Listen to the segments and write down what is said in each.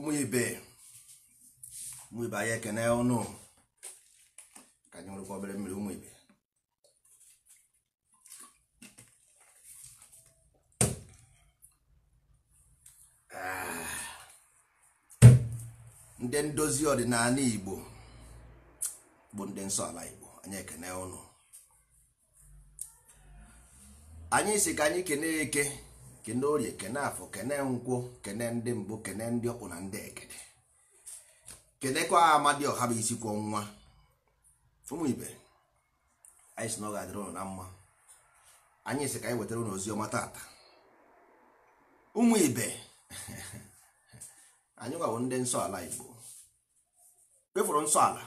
ụmụ ibe ụmụ ibe anyị ekene ọnụ ka anyị nwerekwa obere mmiri ụmụ ibe ndị ndozi ọdịnala igbo bụ ndị nsọ ala igbo anyị ekene ọnụ anyị si ka anyị kene eke kene orie kene afọ kene nkwụ kene ndị mbụ kene ndị ọkpụ na ndị egede kenekwa amadi ọha bụ isi kwọ nwa ụmụ ibe anyị si na ọ ga-adịrị ụnụ na mma anyị si ka anyị wetara ụnụ ozi ọma tata ụmụ ibe anyị nwawo ndị nsọ ala igbo kpefụrụ nsọ ala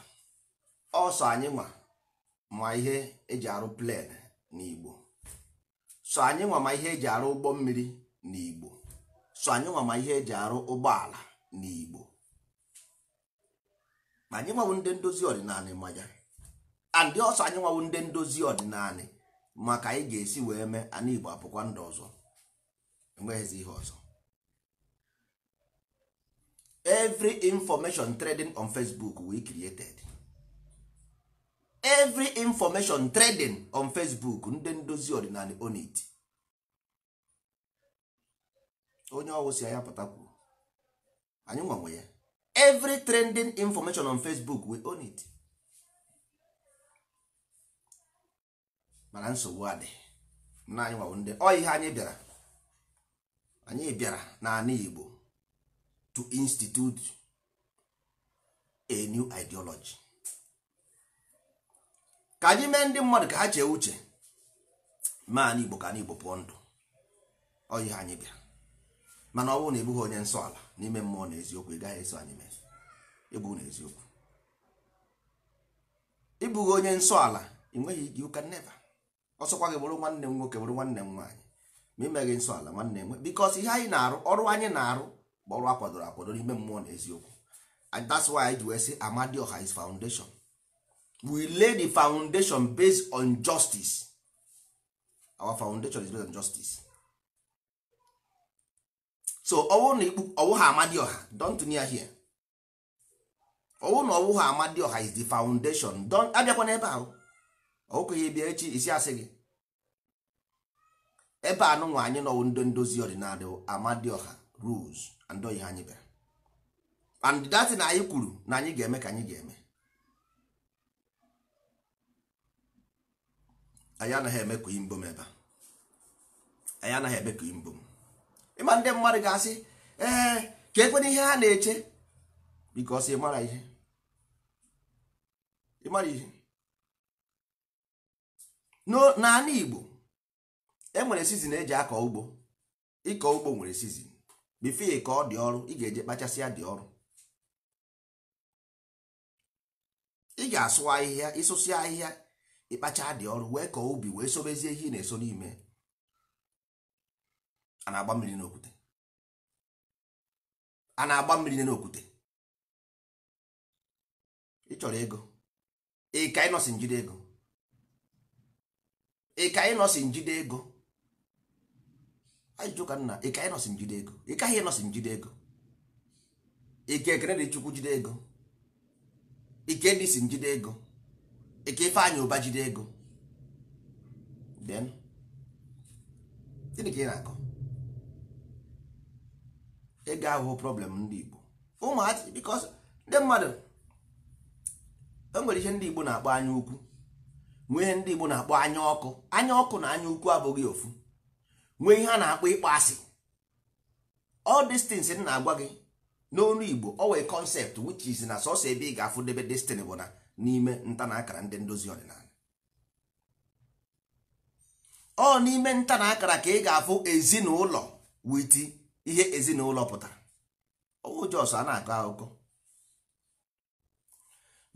ọsọ anyị nwa ma ihe eji arụ plen n'igbo so anyị nwama ihe eji arụ ụgbọ mmiri na igbo so anyị nwama ihe eji arụ ụgbọala na igbo ma anyị nwawo ndị ndozi ọdịnala ma ya andị ọsọ anyị nwawo ndị ndozi ọdịnala maka anyị ga-esi wee mee ana igbo apụkwa ndụ ọzọ enweghịzi ihe ọzọ every information trading on facebook we created. every information trading on facebook ndị ndozi ọdịnala onit onye ọwụ si ya pụtakwu anyị nwanwe ya every trending information on facebook we own it mana nsogbu adị na anyị nwanwe ndị ọ ihe anyị bịara anyị bịara anyị igbo to institute a new ideology ka anyị mee ndị mmadụ ka ha chee uche maa n'igbo ka n'igbo pụọ ndụ oyi ha anyị bịa mana ọ bụrụ na ebughị onye nsọ ala n'ime mmụọ na eziokwu ị gaghị eso anyị mee ebu na eziokwu ịbụghị onye nsọ ala ị nweghị ike ụka neva ọsọkwa gị bụrụ nwanne m nwoke bụrụ nwanne m nwaanyị ma imeghị nsọ ala nwanne m bikos ihe anyị na-arụ ọrụ anyị na-arụ bụ ọrụ akwadoro akwadoro n'ime mmụọ na eziokwu and that's why anyị ji wee sị Amadioha is foundation we lay the foundation based on justice our foundation is based on justice so ọwụ na ọwụha ha amadioha don't near here ọwụ na ọwụ ha amadioha is the foundation don abịakwa n'ebe ahụ ọwụkwa ihe bịa echi isi asị gị ebe a anụnwa anyị nọwụ ndị ndozi ọdịnala amadioha rules and ihe anyị bịara and that na anyị kwuru na anyị ga-eme ka anyị ga-eme anyị anaghị eme ka imbom ebe anyị anaghị eme ka imbom ịma ndị mmadụ ga-asị ee ka ekwena ihe ha na-eche bikos ịmara ihe ịmara ihe n'ala Igbo enwere sizin eji akọ ugbo ịkọ ugbo nwere sizin bifie ka ọ dị ọrụ ị ga-eje kpachasịa dị ọrụ ị ga-asụ ahịhịa ịsụsịa ahịhịa ịkpacha dị ọrụ wee kọọ obi wee sobezie ihe ị na-eso n'ime a na-agba mmiri n'okwute a na-agba mmiri n'okwute ị chọrọ ego ịka ịnọsi njide ego ịka ịnọsi njide ego ajụjụ ka nna ịka ịnọsi njide ego ịkaghị ịnọsi njide ego ike ekene dị chukwu jide ego ike ndị si njide ego eke Ifeanyị ụba jide ego then ka ị na-akọ ego ahụhụ problem ndị Igbo ụmụazị because ndị mmadụ e nwere ihe ndị Igbo na-akpọ anya ukwu nwee ihe ndị Igbo na-akpọ anya ọkụ anya ọkụ na anya ukwu abụghị ofu nwee ihe a na-akpọ ịkpọ asị all these m na-agwa gị n'olu Igbo ọ wee concept which is na sọsọ ebe ị ga-afụ debe destin bụ na n'ime nta na akara ndị ndozi ọdịnala ọ n'ime nta na akara ka ị ga-afụ ezinụlọ witi ihe ezinụlọ pụtara owu jos a na-akọ akụkọ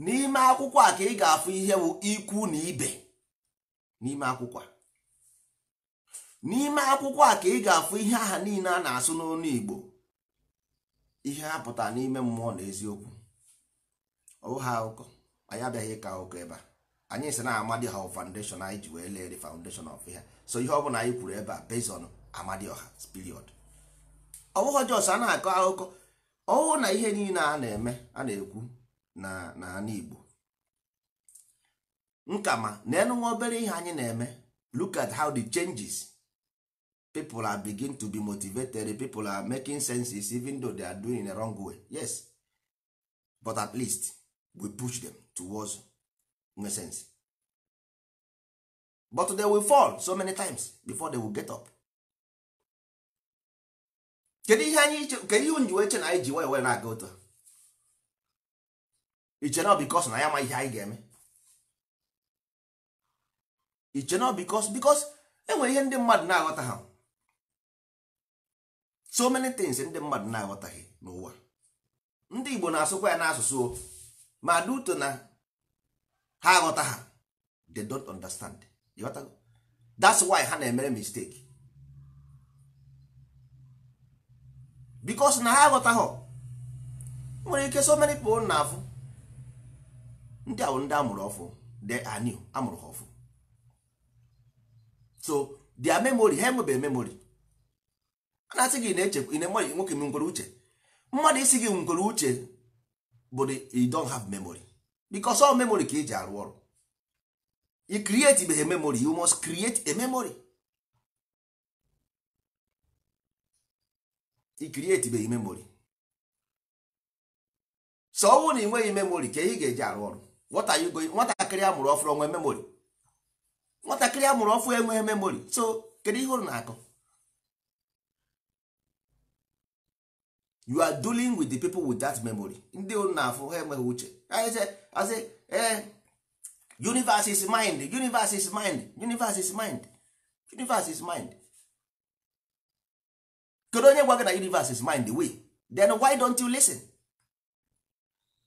n'ime akwụkwọ a ka ị ga-afụ ihe bụ ikwu na ibe n'ime akwụkwọ a n'ime akwụkwọ a ka ị ga-afụ ihe aha niile a na-asụ n'ọnụ Igbo ihe ha pụtara n'ime mmụọ na eziokwu ọwụ ha akụkọ anyị abịaghị ịka ụka ebe a anyị si na amadioha foundation anyị ji wee lee the foundation of ihe so ihe ọ bụla anyị kwuru ebe a based on amadioha period ọ bụghị jos a na-akọ akụkọ ọwụ na ihe niile a na-eme a na-ekwu na n'ala Igbo nkama na enunwa obere ihe anyị na-eme look at how the changes people are begin to be motivated people are making senses even though they are doing in the wrong way yes but at least we push them towards nonsense but they will fall so many times before they will get up kedu ihe anyị kedu ihe nji wee na anyị ji wee wee na-aga otu iche nọ bikos na ya ma ihe anyị ga-eme iche nọ bikos bikos enwere ihe ndị mmadụ na-aghọta ha so many things ndị mmadụ na-aghọtaghị n'ụwa ndị Igbo na-asụkwa ya n'asụsụ ma duto na ha aghọta ha they don't understand that's why ha na-emere mistake because na ha aghọtaghọ nwere ike so many people na afụ ndị ahụ ndị amụrụ ọfụ de are new amụrụ ha ọfụ so their memory ha enwebeghị memory a na-asị gị na eche enweghị nwoke m uche mmadụ isi gị ngwere uche bụ you don't have memory because all memory ka eji arụ ọrụ you create a memory you must create a memory you memory so na ịnweghị memory ka ga-eji arụ ọrụ what are you going nwatakịrị amụrụ ọfụrụ onwe memory nwatakịrị amụrụ ọfụ enweghị memory so kedu ihe ụrụ na-akọ you are dealing with the people with that memory ndị na-afụ ha enweghị uche e, universe is mind universe is mind universe is mind universe is mind kedu onye gwa gị na universe is mind we then why don't you listen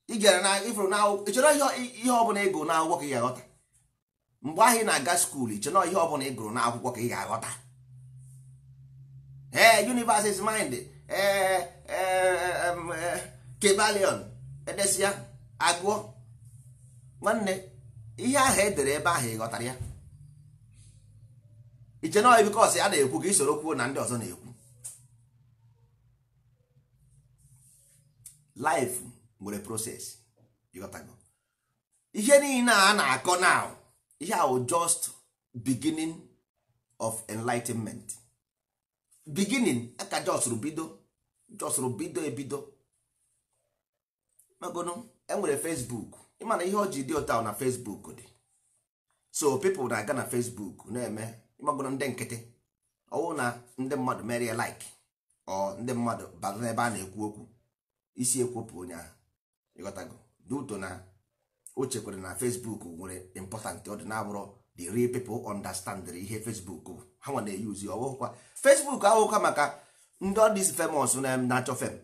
ị gara na ifuru na ịchọrọ ihe ọbụla ego na akwụkwọ ka ị ga-aghọta mgbe ahụ ị na-aga skuul ịchọrọ ihe ọbụla ị na akwụkwọ ka ị ga-aghọta ee universe is mind Eh, eh, eh, kebalion edesia agụọ nwanne ihe ahụ edere ebe ahụ ịghọtara ya iche na bikos ya na-ekwu ka isoro kwuo na ndị ọzọ na-ekwu life nwere proses ịghọtago ihe niile a na-akọ now ihe ahụ just beginning of enlightenment beginning aka just bido jọsụrụ bido ebido magonụ enwere fesbuk ịmana na ihe ọ ji dị ụta na fesbuk dị so people na-aga na fesbuk na-eme magonụ ndị nkịtị ọwụ na ndị mmadụ mere ya like ọ ndị mmadụ bata n'ebe a na-ekwu okwu isi ekwopụ onye ahụ ịghọtago duto na o chekwara na fesbuk nwere important ọ dị na-abụrụ the real people understand ihe fesbuk ha nwa na-eyuzi ọwụkwa fesbuk ahụkwa maka ndị ọdịs famous na-achọ fem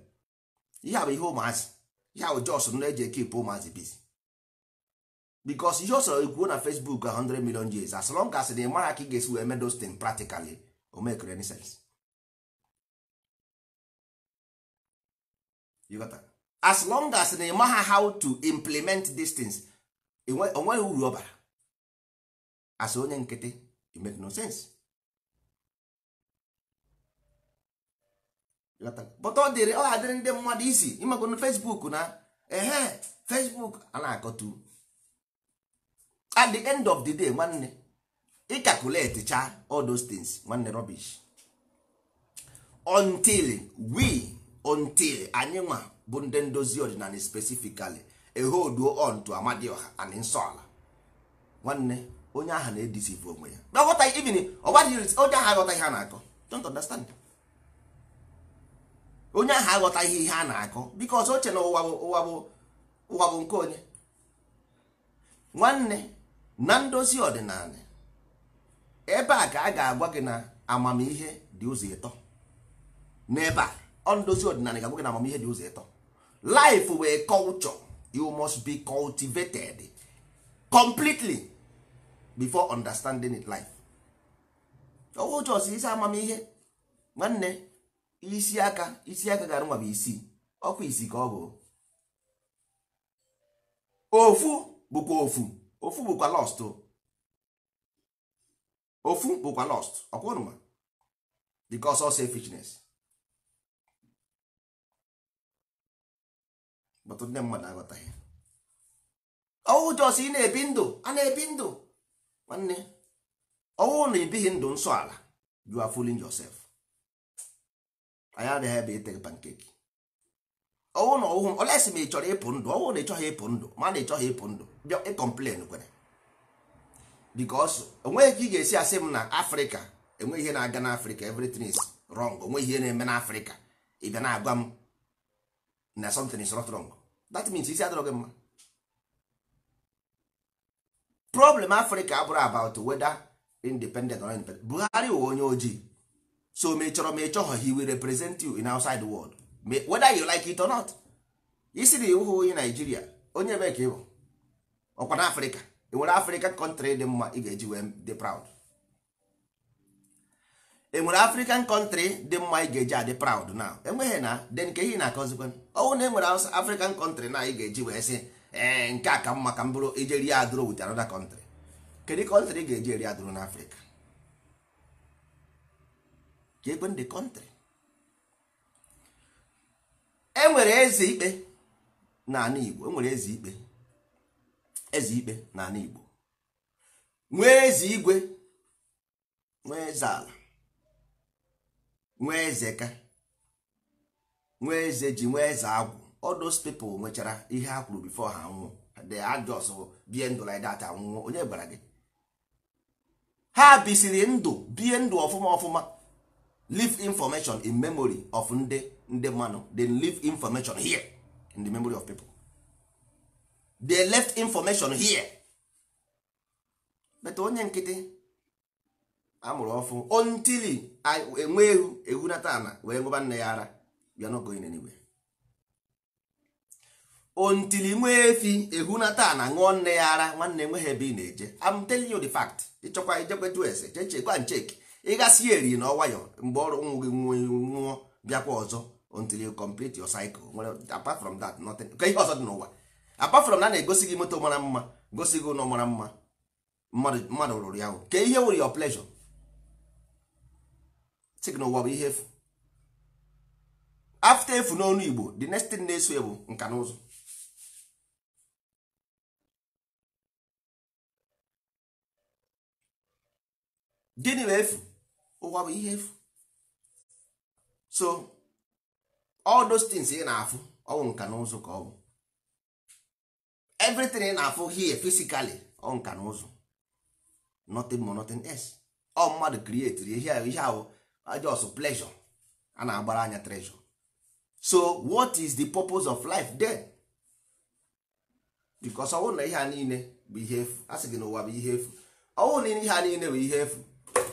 ihe bụ ihe ụmụazị ya bụ jos na-eji ekipụ ụmụazị biz bikos ihe ọ ekwuo na facebook a 100 million years as long as na ịmara ka ị ga-esi wee those things practically o make any sense as long as na ịma ha how to implement these things onweghị uru ọ bara as onye nkịtị it make no sense ọ dịrị ọ hadịrị ndị mmadụ isi ịmakwa na Facebook na ehe eh, Fesbuk! ana na-akọtu at the end of the day nwanne ị calculate cha all nwanne rubbish until we until anyị nwa bụ ndị ndozi ọdịnala specifically eholduo on to Amadioha and Nsọala nwanne onye aha na-edisive onwe ya onye aha aghọtaghị ha na-akọ don't understand onye ahụ aghọtaghị ihe a na-akọ biko ọzọ oche na ụwa bụ ụwa bụ nke onye nwanne na ndozi ọdịnala ebe a ka a ga-agwa gị na amamihe dị ụzọ ịtọ ebe a ọ ndozi ọdịnala ga-agwa gị na amamihe dị ụzọ ịtọ life wee culture you must be cultivated completely before understanding life ọwụ ụjọ si isi amamihe nwanne isi aka isi aka gara nwa bụ isii ọkwa isi ka ọ bụ ofu bụkwa ofu ofu bụkwa lost ofu bụkwa lost ọkwa ọnụma because of selfishness but ndị mmadụ aghọtaghị ọwụ jos ị na-ebi ndụ a na-ebi ndụ nwanne ọwụ na ibighị ndụ nsọ ala you are fooling anyị adịghị ebe ite pankeki ọwụ na ọwụ olesi ma ị chọrọ ịpụ ndụ ọwụ na ị ịchọghị ịpụ ndụ ma na ị ịchọghị ịpụ ndụ bịa ịkọmplen kwere bikos onweghị ka ị ga-esi asị m na afrịka enweghị ihe na-aga n'afrịka everything is wrong onweghị ihe na-eme n'afrịka ị bịa na-agwa m um, na something is not wrong that means isi adịrọ gị mma problem afrịka abụrụ about whether independent or independent buhari onye oh, ojii so ma ị chọrọ ma ị he will represent you in outside world whether you like it or not isi na ịwụghị onye naijiria onye ebe ka ịbụ ọkwa na afrịka ị e nwere afrịka kọntrị dị mma ị ga-eji wee dị proud enwere nwere afrịkan kọntrị dị mma ị ga-eji adị proud e na enweghị na de nke ihe na-akọzikwa ọnwụ na enwere nwere afrịkan kọntrị na ị ga-eji wee sị ee nke a ka mma ka m bụrụ ijeri adụrụ wit anoda kọntrị kedu kọntrị ị ga-eji eri adụrụ n'afrịka ka ndị the country enwere eze ikpe n'ala Igbo enwere eze ikpe eze ikpe n'ala Igbo nwee eze igwe nwee eze ala nwee eze ka nwee eze ji nwee eze agwụ all those nwechara ihe a kwuru bifọ ha nwụọ the adjust bie ndụ like that anwụọ onye gbara gị ha bisiri ndụ bie ndụ ọfụma ọfụma leave information in memory of ndị ndị mmanụ leave information here in the memory of people they left information here but onye nkịtị amụrụ ọfụ ontili enwe ehu ehunata ana wee nweba nne ya ara bịa n'ogo inenigwe ontili nwee efi ehunata ana ṅụọ nne ya ara nwanne enweghị ebe ị na-eje I'm telling you the fact ịchọkwa ijekwetu ese cheche gwa ncheki ị ịgasị ya eri na ọwayọ mgbe ọrụ nwụ gị nwụọ bịakwa ọzọ until you complete your cycle nwere apart from that nothing ka ihe ọzọ dị n'ụwa apart from na na-egosi gị moto mara mma gosi gị ụlọ mara mma mmadụ rụrụ ya ka ihe wụrụ your pleasure sị n'ụwa bụ ihe efu after efu n'onu Igbo the next thing na-eso ya nka na ụzọ gịnị bụ efu ụwa bụ ihe efu so all those things ị na-afụ ọwụ nka na ụzụ ka ọ bụ everything ị na-afụ here physically ọ nka na ụzụ nothing more nothing else ọ mmadụ create ihe ihe ahụ just pleasure a na-agbara anya treasure so what is the purpose of life then because ọwụ na ihe a niile bụ ihe efu a sị gị na ụwa bụ ihe efu ọwụ na ihe a niile bụ ihe efu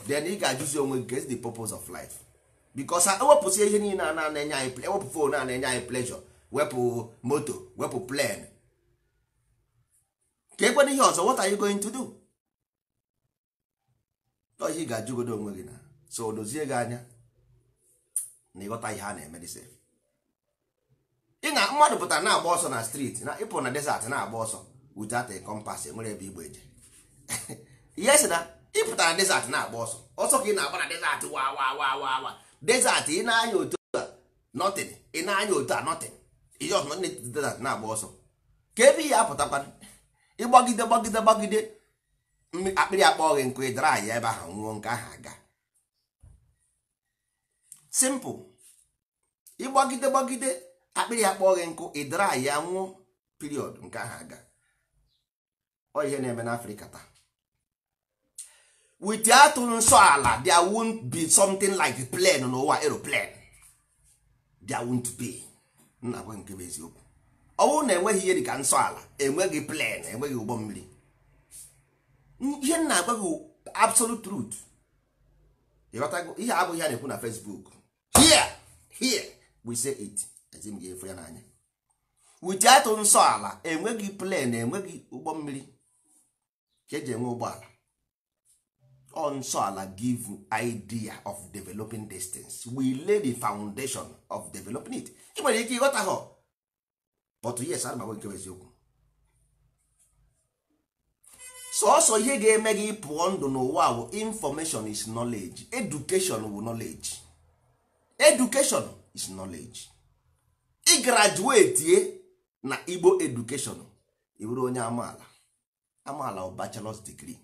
then ị ga-ajụzi onwe gị get the purpose of life because ewepụsị ihe niile a na-enye anyị ewepụ fon a na-enye anyị pleasure wepụ moto wepụ plane ka ekwena ihe ọzọ what are you going to do ihe ị ga-ajụgodo onwe gị na so dozie gị anya na ịghọta ihe a na-eme dịse ị na mmadụ pụta na-agba ọsọ na striti na ịpụ na desert na-agba ọsọ without a compass enwere ebe igbo eje ihe na ịpụta na desert na-agba ọsọ ọsọ ka ị na-agba na desert wa wa wa wa wa desert ị na-anya otu a nothing ị na-anya otu a nothing iji ọsọ na desert na-agba ọsọ ka ebe ihe apụtakwana ịgbagide gbagide gbagide akpịrị akpọ gị nkụ ịdara ahịa ebe ahụ nwụọ nke ahụ aga simple ịgbagide gbagide akpịrị akpọ gị nkụ ịdara ahịa anwụọ period nke ahụ aga ọ ihe na-eme n'afrịka taa without nsọ ala there won't be something like plan n'ụwa aeroplane there won't be nna gwa nke bụ eziokwu ọ bụrụ na enweghị ihe dịka nsọ ala enweghị plan enweghị ụgbọ mmiri ihe nna agwa gị absolute truth ịghọtago ihe abụghị ya na-ekwu na Facebook here here we say it ezi m ga-efu ya n'anya without nsọ ala enweghị plan enweghị ụgbọ mmiri ka eji enwe ụgbọala nsọala give idea of developing distance we lay the foundation of developing it I nwere ike ịghọta ha but yes ana m agwa eziokwu sọọsọ ihe ga-eme gị pụọ ndụ n'ụwa bụ information is knowledge education wu knowledge education is knowledge ị graduate na Igbo education ị bụrụ onye amaala amaala ọ bachelor's degree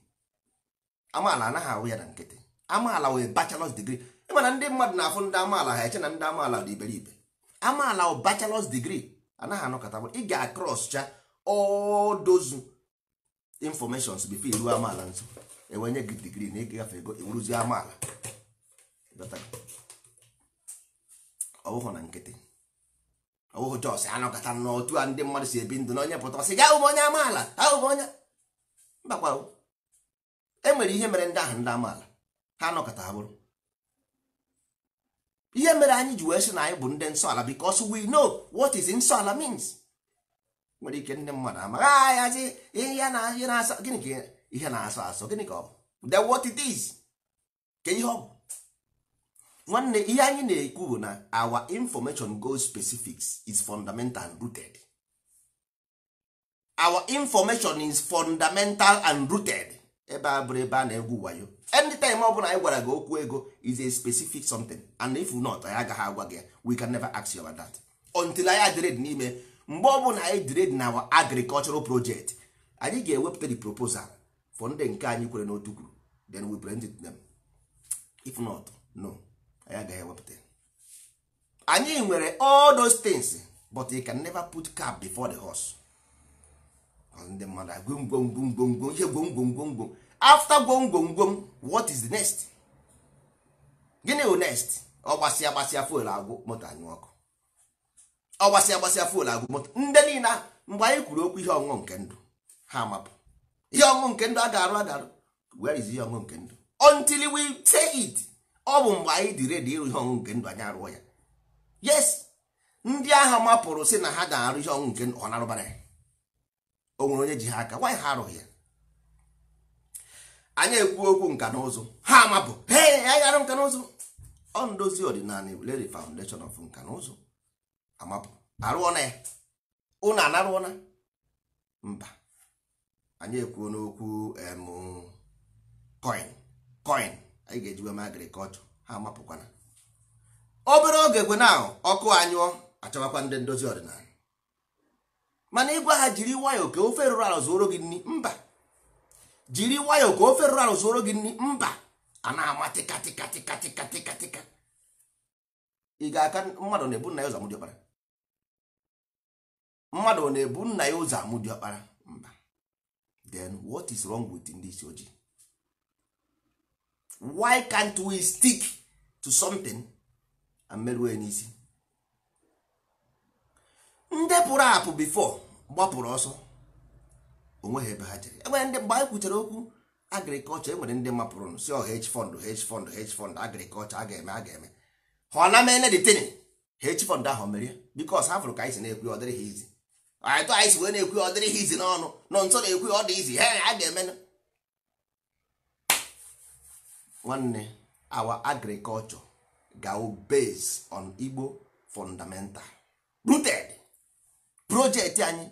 amaala anaghị ahụ ya na nkịtị amaala wee bachelors degree ịmana ndị mmadụ na-afụ ndị amaala ha eche na ndị amaala dị iberibe amaala o bachalọs digri anaghị anọkọta ị ga-acrosscha all those informations before iruo amaala nso enwenye gị digrii na ịgafe ego iwuruzi e amaala ọ bụghị na nkịtị ọ bụghị jos anọkọta n'otu a ndị mmadụ si ebi ndụ na onye pụta ọsị ga ahụ onye amaala ahụ onye mbakwa e nwere ihe mere ndị ahụ ndị amaala ha anọkọta ha bụrụ ihe mere anyị ji wee sị na anyị bụ ndị nsọ ala because we know what is nsọ ala means nwere ike ndị mmadụ ama amaghị ayazi ah, ihe na-asọ ihe na gịnị ka ihe na-asọ asọ gịnị ka ọ bụ then what it is ka ihe ọ bụ nwanne ihe anyị na-ekwu bụ na our information goes specifics is fundamental and rooted our information is fundamental and rooted ebe a bụrụ ebe a na-egwu wayo anytime ọ bụla anyị gwara gị okwu ego is a specific something and if not anyị agaghị agwa gị we can never ask you about that until anyị adred n'ime mgbe ọ bụla anyị dred na our agricultural project anyị ga-ewepụta the proposal for ndị nke anyị kwere n'otu kwuru then we present it them if not no anyị agaghị ewepụta anyị nwere all those things but you can never put cap before the horse ndị mmadụ agwụ ngwongwo ngwongwo ihe gwongwo ngwongwo after gwongwongwom what is the next gịnị bụ next ọ gbasịa gbasịa fuel agwụ moto anyụ ọkụ ọ gbasịa gbasịa fuel agwụ moto ndị niile mgbe anyị kwuru okwu ihe ọṅụṅụ nke ndụ ha mapụ ihe ọṅụṅụ nke ndụ agarụ agarụ where is ihe ọṅụṅụ nke ndụ until we say it ọ bụ mgbe anyị dị redi ịrụ ihe ọṅụṅụ nke ndụ anyị arụọ ya yes ndị agha mapụrụ si na ha ga-arụ ihe ọṅụṅụ nke ndụ ọ narụbara ya o onye ji ha aka nwaanyị ha arụghị ya anya ekwu okwu nka na ụzụ ha mabụ hey anyị arụ nka na ụzụ ọ ndozi ọdịnala lady foundation of nka na ụzụ amapụ arụọ na ya ụnụ anarụọ na mba anyị ekwuo n'okwu em coin coin anyị ga-ejiwe ma agrikọlchọ ha amapụkwana obere oge kwe na ọkụ anyụọ achọwakwa ndị ndozi ọdịnala mana ịgwa ha jiri nwayọọ ka ofe rụrụ ala zụoro gị nri mba jiri wayo ka ofe rụrụ arụ soro gị nri mba a na-ama tika tika tika tika tika. ị ga-aka mmadụ na-ebu nna ya ụzọ amụdị ọkpara mmadụ na-ebu nna ya ụzọ di ọkpara mba then what is wrong with ndị isi ojii why can't we stick to something and merue n'isi ndị pụrụ apụ before gbapụrụ ọsọ onweghị ebe ha jere enwere ndị mgbe anyị kwuchara okwu agrikọlchọ enwere ndị mapụrụ si ọ oh, hedge fund hedge fund hedge fund agrikọlchọ a ga-eme a ga-eme ha ọ na mene detin hedge fund ahụ mere bikos ha fụrụ ka anyị si na-ekwu ọ dịrị ha izi atụ anyị si wee na-ekwu ọ dịrị ha izi n'ọnụ nọ nso na-ekwu ọ dị izi he a ga-eme nwanne awa agriculture go based on Igbo fundamental rooted projekti anyị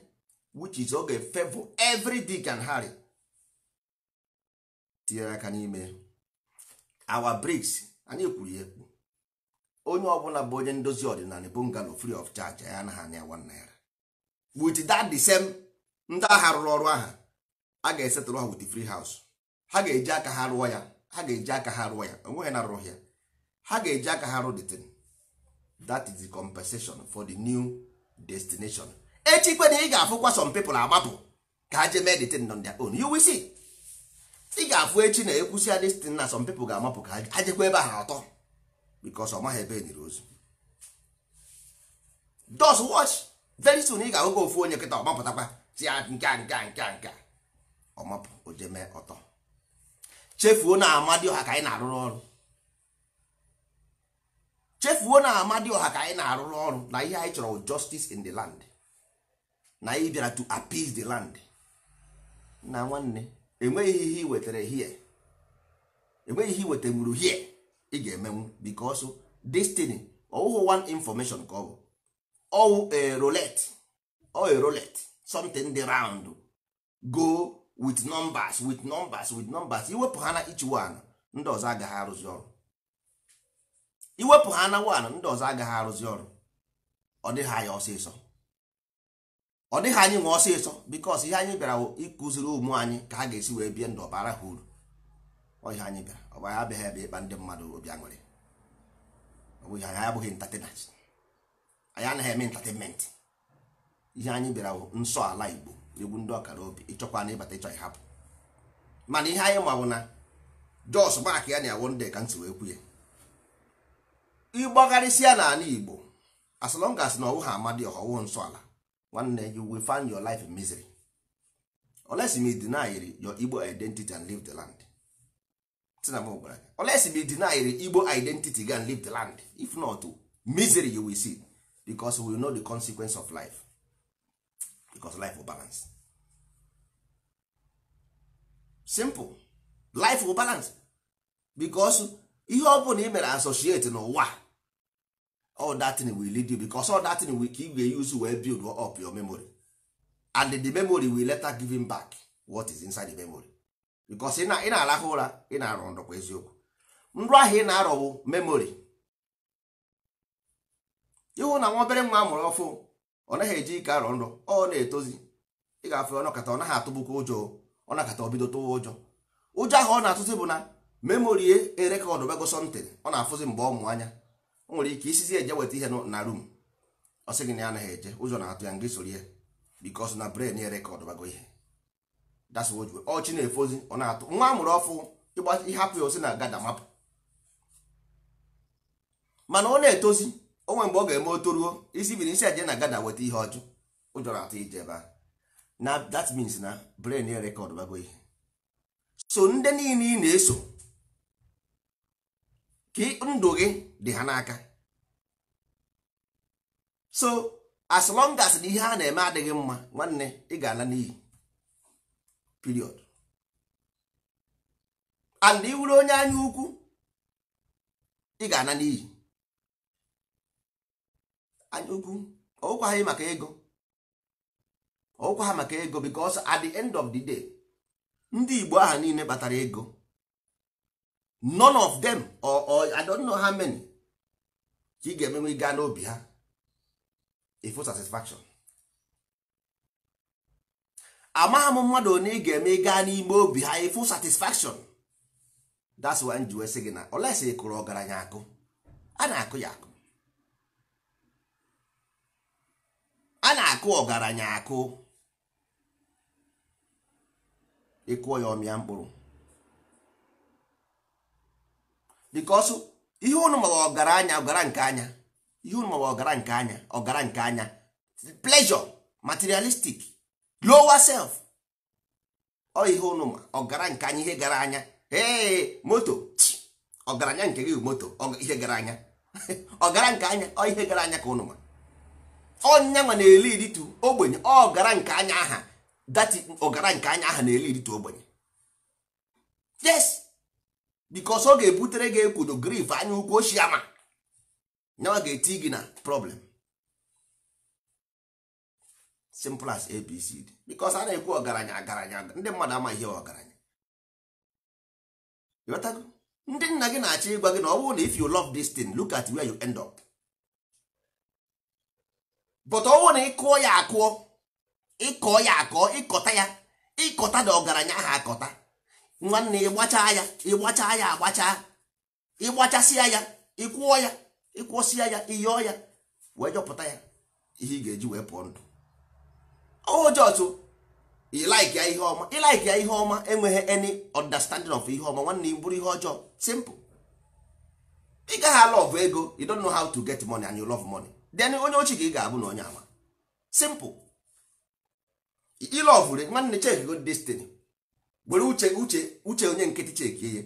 which is oge favor every dick and harry tinyere aka n'ime our bricks anyị kwuru ya ekwu onye ọbụla bụ onye ndozi ọdịnala ngalo free of charge ya anaghị anya one naira with that the same ndị agha rụrụ ọrụ aha a ga-esetụrụ ha with free house ha ga-eji aka ha rụọ ya ha ga-eji aka ha rụọ ya onweghị na arụrụ ya ha ga-eji aka ha rụ the thing that is the compensation for the new destination echi kwe na ị ga-afụkwa some people agbapụ ka ha jee meditate on their own you ị ga-afụ echi na ekwusi adestin na some people ga-amapụ ka ha jekwa ebe ha atọ because ọ maghị ebe enyere ozu dos watch very soon ị ga-ahụga ofu onye nkịta ọmapụtakwa si ya ah, nke a nka nka ọmapụ ojeme ọtọ chefuo na ọha ka anyị na-arụrụ ọrụ chefuo na amadioha ka anyị na-arụrụ ọrụ na ihe anyị chọrọ justice in the land na anyị bịara to appease the land na nwanne enweghị ihe ị wetara hie enweghị ihe ị wetamuru hie ị ga-emenwu because destiny ọwụhụ one information ka ọ bụ ọwụ a roulette ọ a roulette something dị round go with numbers with numbers with numbers iwepụ ha na each one ndị ọzọ agaghị arụzi ọrụ iwepụ ha na one ndị ọzọ agaghị arụzi ọrụ ọ dịghị anya ọsịsọ ọ dịghị anyị nwe ọsịsọ bikos ihe anyị bịara ịkụziri ụmụ anyị ka ha ga-esi wee bie ndụ ọbara ha uru ọhịa anyị bịara ọbara abịaghị ebe ịkpa ndị mmadụ obi aṅụrị ọbụghị anyị abụghị ntatenat anyị anaghị eme ntatenment ihe anyị bịara nsọ ala igbo egwu ndị ọkara obi ịchọkwa na ịbata ịchọ ịhapụ mana ihe anyị ma na jos mak ya na-awụ ndị ka nsi wee kwu ya na n'ala igbo as long as na ọwụ ha amadi ọhọwụ nsọ ala nwanne you will find your life in misery unless you deny your igbo identity and leave the land unless you deny igbo identity and leave the land if not misery you will see because we know the consequence of life because life will balance simple life will balance because ihe ọ bụla ị mere associate n'ụwa all that thing will lead you because all that thing will ka ị use wee build up your memory and the memory will later give him back what is inside the memory because ị na-arahụ ụra ị na-arọ ndọkwa eziokwu nrọ ahụ ị na-arọ bụ ịhụ na nwa obere nwa amụrụ ọfụ ọ naghị eji ike arọ nrọ ọ na-etozi ị ga-afụ ọ naghị atụbụkwa ụjọ ọ nakata ọ bido ụjọ ụjọ ahụ ọ na-atụzi bụ na memory erekọdụ e bego something ọ na-afụzi mgbe ọ o nwere ike isizi eje weta ihe na rum ọ gị na ya anaghị eje ụzọ na-atụ ya ngị soro ya bikos na bren ya rekọd bago ihe das ọchị na-efozi ọ na-atụ nwa amụrụ ọfụ ịhapụ ya osi na gada mapụ mana ọ na-etozi onwe mgbe ọ ga-eme otoruo isi biri isi eje na gada weta ihe ọjụ ụjọ na-atụ ije ebe a na that means na bren ya rekọd bago ihe so ndị niile ị na-eso ka ndụ gị dị ha n'aka so as long as na ihe a na-eme adịghị mma nwanne ị ga-ala n'iyi period and onye anya ukwu ị ga-ala n'iyi anya ukwu ọụkwaghị maka ego ọụkwa ha maka ego bikos at the end of the day ndị Igbo aha niile batara ego none of them or, or i don't know how many ka ị ga-emenwe gaa n'obi ha ifo satisfaction amagham m mmadụ onye ị ga-eme gaa n'ime obi ha ifo satisfaction that's why njiwe sị gị na olesi ị kụrụ ọgaranya akụ a na-akụ ya akụ a na-akụ ọgaranya akụ ịkụọ ya ọmịa mkpụrụ because ihe unu mawa ọgaranya ọgara nke anya ihe unu mawa ọgara nke anya ọgara nke anya pleasure materialistic lower self ọ ihe unu ma ọgara nke anya ihe gara anya ee moto ọgaranya nke gị moto ihe gara anya ọgara nke anya ọ ihe gara anya ka unu ma ọnya nwa na-eli iritu ogbenye ọgara nke anya aha dati ọgara nke anya aha na-eli iritu ogbenye yes bikos ọ ga-ebutere gị ekwudo grif anya ukwu oshi ama nyawa ga-eti gị na problem simple as abcd bikos a na-ekwu ọgaranya agaranya ndị mmadụ ama ihe ọgaranya ịghọtago ndị nna gị na-achọ ịgwa gị na ọ na if you love this thing look at where you end up but ọ na ịkụọ ya akụọ ịkọ ya akọọ ịkọta ya ịkọta na ọgaranya ahụ akọta nwanne ịgbacha ya gbachaa ya agbacha ịgbachasịa ya ịkwụọ ya ịkwụsịa ya ịyọọ ya wee jọpụta ya ihe ị ga-eji wee pụọ ndụ ojọtụ ilaik ya ihe ọma ilaik ya ihe ọma enweghị any understanding of ihe ọma nwanne bụrụ ihe ọjọọ simple ị gaghị ala ego you don't know how to get money and you love money then onye ochi ka ị ga-abụ na onye ama simple ilọvụre nwanne chek go destiny were uche uche uche onye nkịtị chekie ihe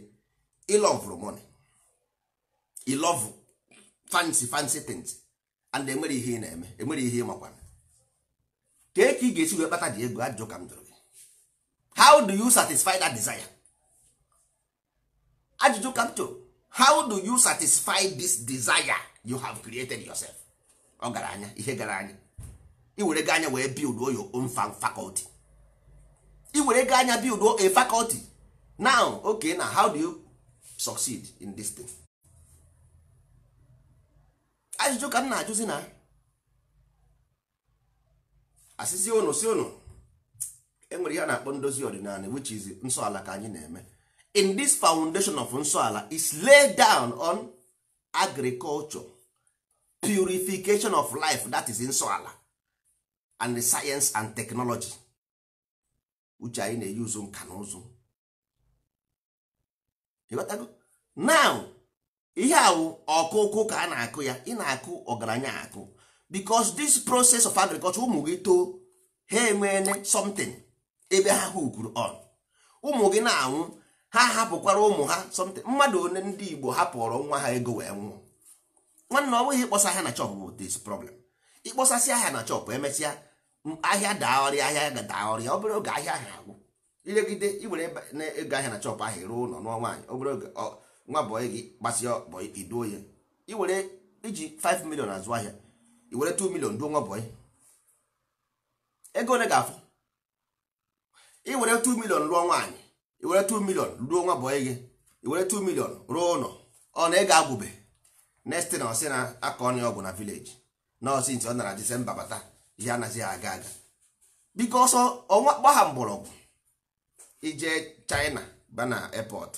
ịlọvụrụ money ilovu fancy fancy things and enwere ihe ị na-eme enwere ihe ị makwana kee ka ị ga-esi wee kpata dị ego ajụjụ ka m jụrụ gị how do you satisfy that desire ajụjụ ka m how do you satisfy this desire you have created yourself ọ gara anya ihe gara anya ị were gị anya wee build your own faculty i were ego anya build a faculty now ok na how do you succeed in this thing ajụjụ ka m na-ajụzi na asịsị ụnụ si ụnụ enwere ihe na-akpọ ndozi ọdịnala which is nsọala ka anyị na-eme in this foundation of nsọala is laid down on agriculture purification of life that is nsọala and the science and technology uche anyị na-eyi ụzụ nka na ụzụ now ihe awụ ọkụkụ ka a na-akụ ya ị na-akụ ọgaranya akụ because this process of agriculture ụmụ gị too ha enweele something ebe ha hụkuru on ụmụ gị na-anwụ ha hapụkwara ụmụ ha something mmadụ one ndị Igbo hapụrụ nwa ha ego wee nwụọ nwanne ọ bụghị ịkpọsa ha na chọpụ bụ this problem ịkpọsasị ha na chọpụ emesịa ahịa daa ọrịa ahịa ga daa ọrịa obere oge ahịa ahụ agwụ ilegide iwere ego ahịa na chọp ahụ ruo ụlọ nụọ nwaanyị obere oge nwa bọyị gị gbasịa bọyị iduo ya iwere iji 5 million azụ ahịa iwere 2 million duo nwa bọyị ego ole ga-afụ iwere 2 million rụọ nwaanyị iwere 2 million ruo nwa bọyị gị iwere 2 million rụọ ụlọ ọ na ego agwụbe next na ọsị na aka ọnụ ọgwụ na vileji nọọsụ ntị ọ nara disemba bata ihe anaghị aga aga biko ọsọ ọnwa gbagha mgbọrọgwụ ije China ba na airport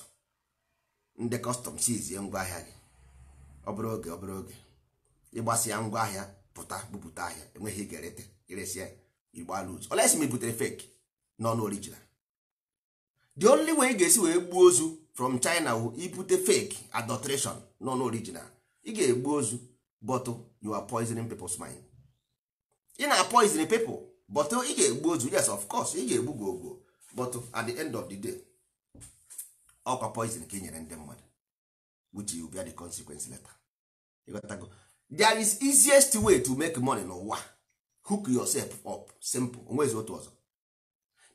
ndị kọstọm sizie ngwaahịa gị obere oge obere oge ịgbasịa ngwaahịa pụta bupụta ahịa enweghị igerete iresịa igbo alụz olesi ma ibutere fake non original the only way ị ga-esi wee gbuo ozu from China wu ibute fake adulteration non original ị ga-egbu ozu but you are poisoning people's mind ị na poison people but ị ga-egbu ozu yes of course ị ga-egbu gị ogbo but at the end of the day ọkwa poison ka ị e nyere ndị mmadụ which you bear the consequence later there is easiest way to make money n'ụwa hook yourself up simple onwezi otu ọzọ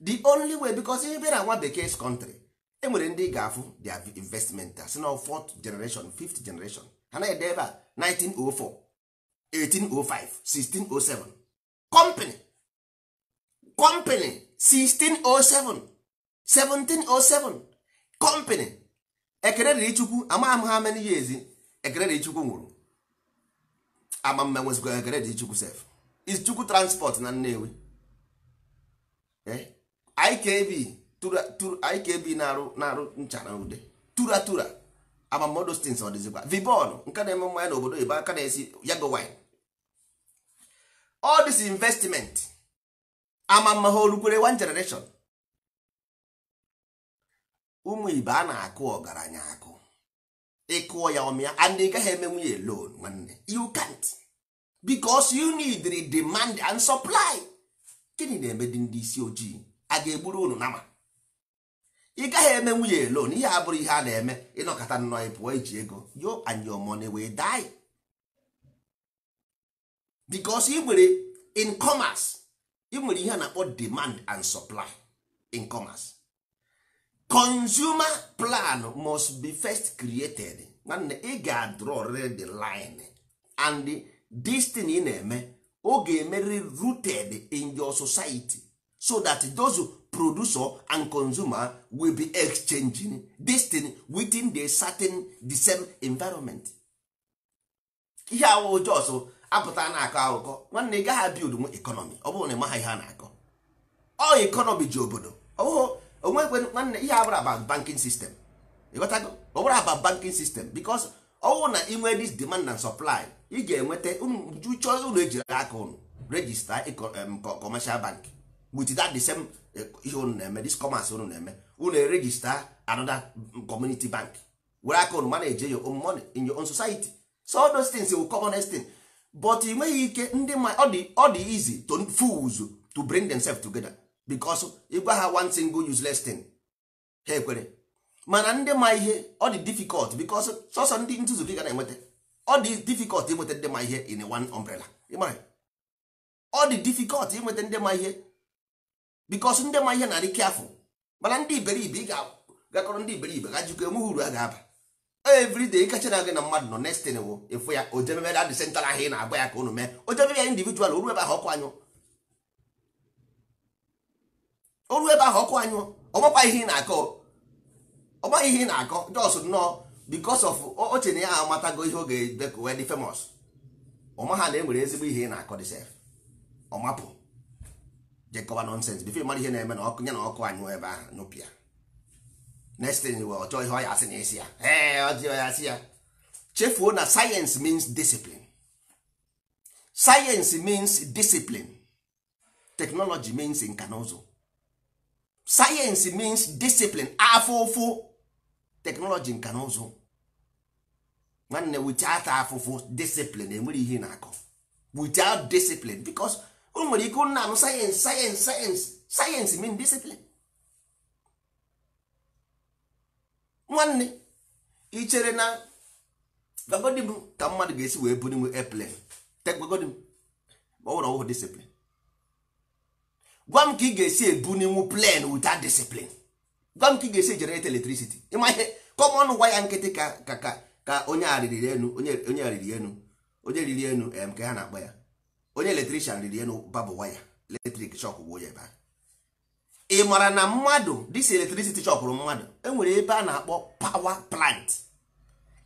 the only way because ị bịara nwa bekee country enwere ndị ga-afụ their investment si na fourth generation fifth generation ha na-ede ebe a 1904 1805 1607 company company 1607 1707 company ekele dịrị chukwu ama m ha many years ekerere dịrị chukwu nwụrụ ama m enwezikwa ekele chukwu sef chukwu transport na Nnewi eh? IKB IKB na-arụ nchara arụ ncha na ude tura tura ama m odostins ọ dịzikwa vibon nke na-eme mmanya n'obodo oyibo aka na-esi yago wine all this investment amamma ha olukwere one generation ụmụ ibe a na-akụ ọgaranya akụ ịkụọ ya ọmịa and ị gaghị emenwu ya loan nwanne you can't because you need the demand and supply gịnị na-eme dị ndị isi ojii a ga-egburu unu nama ị gaghị eme nwunye loan ihe abụrụ ihe a na-eme ịnọkọta nnọọ ịpụọ iji ego yo and your money wey die because ị nwere in commerce ị nwere ihe a na-akpọ demand and supply in commerce consumer plan must be first created nwanne ị ga-adrọrịrị the line and this thing na-eme ọ ga-emerịrị rooted in your society so that those producer and consumer will be exchanging this thing within the certain the same environment ihe awụ jos apụta na-akọ akụkọ nwanne ị gaghị abild ekọnọmi ọ bụrụ na ịmaha ihe a na-akọ ọ ekọnọmi ji obodo ọbụghị nwanne ihe abụrụ aba bankin sistem ịghọtago ọ bụrụ aba bankin sistem bikos ọwụ na inwe dis demand na supply ị ga-enweta chọọ ụlọ ejiri aka ụnụ regista commercial bank with that the ụnụ eh, na-eme ụnụ na-eme erejista bank were aka ụnụ mana eje your own money in but ị nweghị ike ndị ma ọ dị ọ dị easy to fools to bring themselves together because ịgwa ha one single useless thing ha ekwere mana ndị ma ihe ọ dị difficult because sọsọ ndị nzuzu gị ga na-enweta ọ dị difficult inweta ndị ma ihe in one umbrella ịmara ọ dị difficult inweta ndị ma ihe because ndị ma ihe na-adị careful mana ndị iberibe ị ga akọrọ ndị iberibe ga jikọ enweghị uru a ga-aba everyday kacha na gị na mmadụ nọ next thing ịfụ ya ojemebe da disentara ahụ ị na-agba ya ka unu mee ojemebe ya individual oru ebe ahụ ọkụ anyụ oru ebe ahụ ọkụ anyụ ọgbakwa ihe ị na-akọ ọgbaghị ihe ị na-akọ jos nnọọ because of oche na ya amatago ihe oge ebe wed wee dị na enwere ezigbo ihe ị na-akọ dị sef ọmapụ jekọba nonsens bifo ịmara ihe na-eme na ọkụ ya na ọkụ anyụ ebe ahụ n'ụpịa next thing wee ọjọọ ihe ọ ya asị na esi ya ee ọjị ya asị ya chefuo na science means discipline science means discipline technology means nka na ụzụ science means discipline afufu technology nka na ụzụ nwanne without afụfụ discipline enwere ihe na-akọ without discipline because o nwere ike nna m sayensị sayensị sayensị sayensị mean discipline nwanne ị chere na gwagodi m ka mmadụ ga-esi wee buru nwe airplane gwagodi m ọ bụrụ ọwụhụ disiplin gwa m ka ị ga-esi ebuninwu plen without disiplin gwa m ka ị ga-esi generate electricity ịma ihe kọmọn gwa ya nkịtị ka ka ka ka onye arịrị enu onye arịrị enu onye riri enu em ka ha na-akpọ ya onye eletrician riri enu babụ waya eletrik shọk gbuo ya ebe ahụ ị mara na mmadụ dis electricity chọkụrụ mmadụ enwere ebe a na-akpọ power plant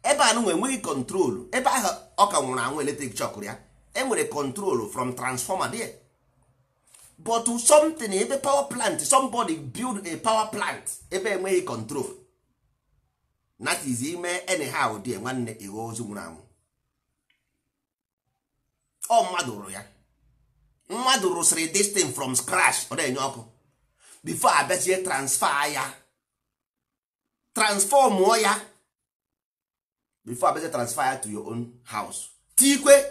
ebe anụ enweghị kọntrolu ebe ahụ ọ ka nwụrụ anwụ eletrik chọkụrụ ya enwere kọntrolu from transfọma there but something ebe power plant somebody build a power plant ebe enweghị control that is ime anyhow dị nwanne ihe ozu nwụrụ anwụ ọ mmadụ rụrụ ya mmadụ rụsịrị distin from ọ na-enye ọkụ before abịachie transfer ya transform ya before abịachie transfer ya to your own house tikwe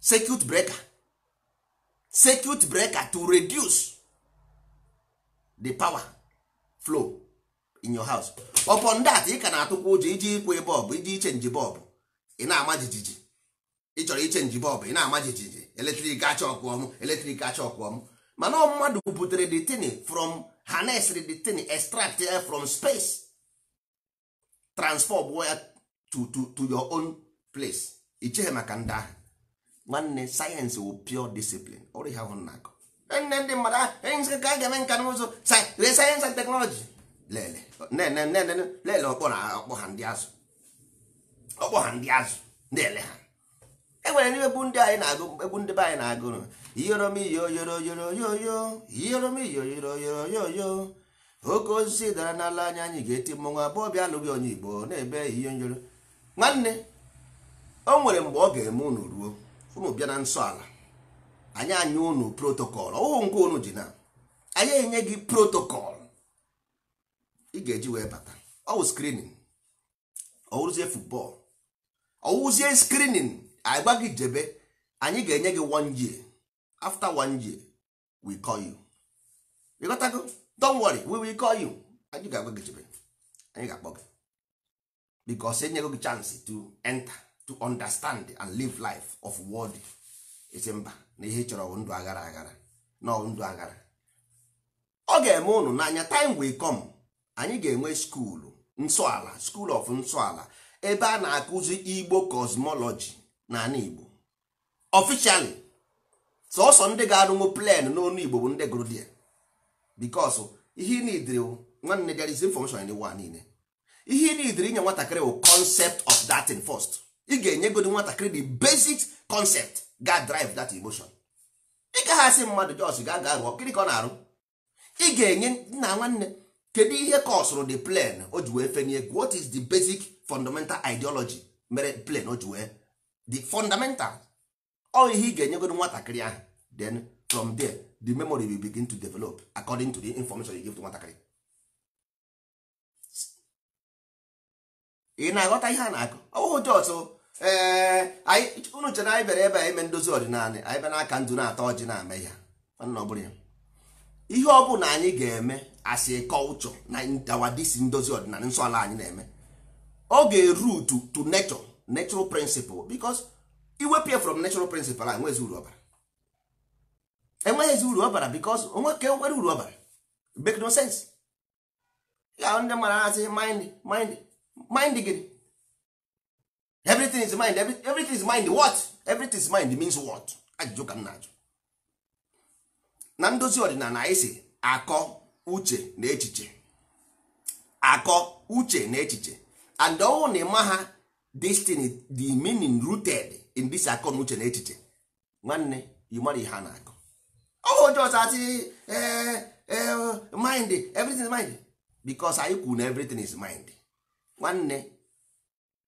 circuit breaker circuit breaker to reduce the power flow in your house upon that ị ka na-atụkwa ụjọ iji ikwe bọlbụ iji ichenji bọlbụ ị na-ama jijiji ị chọrọ ichenji bọlbụ ị na-ama jijiji eletrik achọ ọkụ ọmụ eletrik achọ ọkụ ọmụ mana mmadụ buputere the thing from harnessed the thing extract ya from space transform ya to, to, to your own place icheghe maka ndị ahụ nwanne sayensị wụ pure discipline ọrụ ihe ahụ na-akọ ndị mmadụ ahụ ka a ga-eme nka n'ụzọ sayensị and teknọlọji lele ọkpọ na ọkpọ ha ndị azụ ọkpọ ha ndị azụ na-ele ha enwere ndị anyị na-agụ egwu ndị be anyị na-agụ yọrọ yọrọ iyoromyoyoroyoroyoyo iyoromyoyoroyoroyoyo oke osisi dara n'ala anya anyị ga-eti mmọnwụ abụọ bịa alụghị onye igbo na-ebe nyoro. nwanne o nwere mgbe ọ ga-eme unu ruo unu bịa na nsọ ala anyị anya unu protokọl ọhụụ nke unu ji na anyị enye gị protokọl ị ga-eji wee bata ọwụ skrinin ọwụzie futbọl ọwụzie skrinin anyị gwa gị jebe anyị ga-enye gị one year after one year we call you you got go? don't worry we will call you anyị ga-agwa gị chebe anyị ga-akpọ gị because enyego gị chance to enter to understand and live life of world esi mba na ihe chọrọ ndụ aghara aghara na ndụ aghara ọ ga-eme unu n'anya time will come anyị ga-enwe skuulu nsọala school of nsọala ebe a na-akụzi igbo cosmology na igbo officially sọsọ ndị ga-arụnwu plen n'onu igbo bụ ndị gụrụ die bikos ihe nidiri nwanne there is information in the one niile ihe nidiri inye nwatakịrị bụ concept of that thing first ị ga-enyegodi enye nwatakịrị the basic concept ga drive that emotion ị gaghị asị mmadụ jos ga ga rụọ gịnị ka ọ na-arụ ị ga-enye nna nwanne kedu ihe ka the plen o ji wee fenye what is the basic fundamental ideology mere plen o ji wee the fundamental ọ ihe ị ga-enyegodi nwatakịrị ahụ then from there the memory will begin to develop according to the information you give to nwatakịrị ị na-aghọta ihe a na-akụ ọwụhụ jọs unu chere anyị bịara ebe a ime ndozi ọdịnala anyị bịa n'aka ndụ na atọ ọjị na-ama ya ihe ọ bụla anyị ga-eme asị kọlchọ na dawadisi ndozi ọdịnala nsọ ala anyị na-eme ọ ga-eru to nature natural principle because iwepụ from natural principle a nwezi uru ọbara enweghịzi uru ọ bara onwe ka e nwere uru ọ bara make no sense ndị mara asị mind mind everything is mind everything is mind what everything is mind means what ajụjụ ka m na-ajụ na ndozi ọdịnala anyị si akọ uche na echiche akọ uche na echiche and ọnwụ na ịma ha destiny the meaning rooted in this akọ na uche na echiche nwanne ọhụụ ndị ọzọ ati e, e, mind everything is mind because anyị kwuru na everything is mind nwanne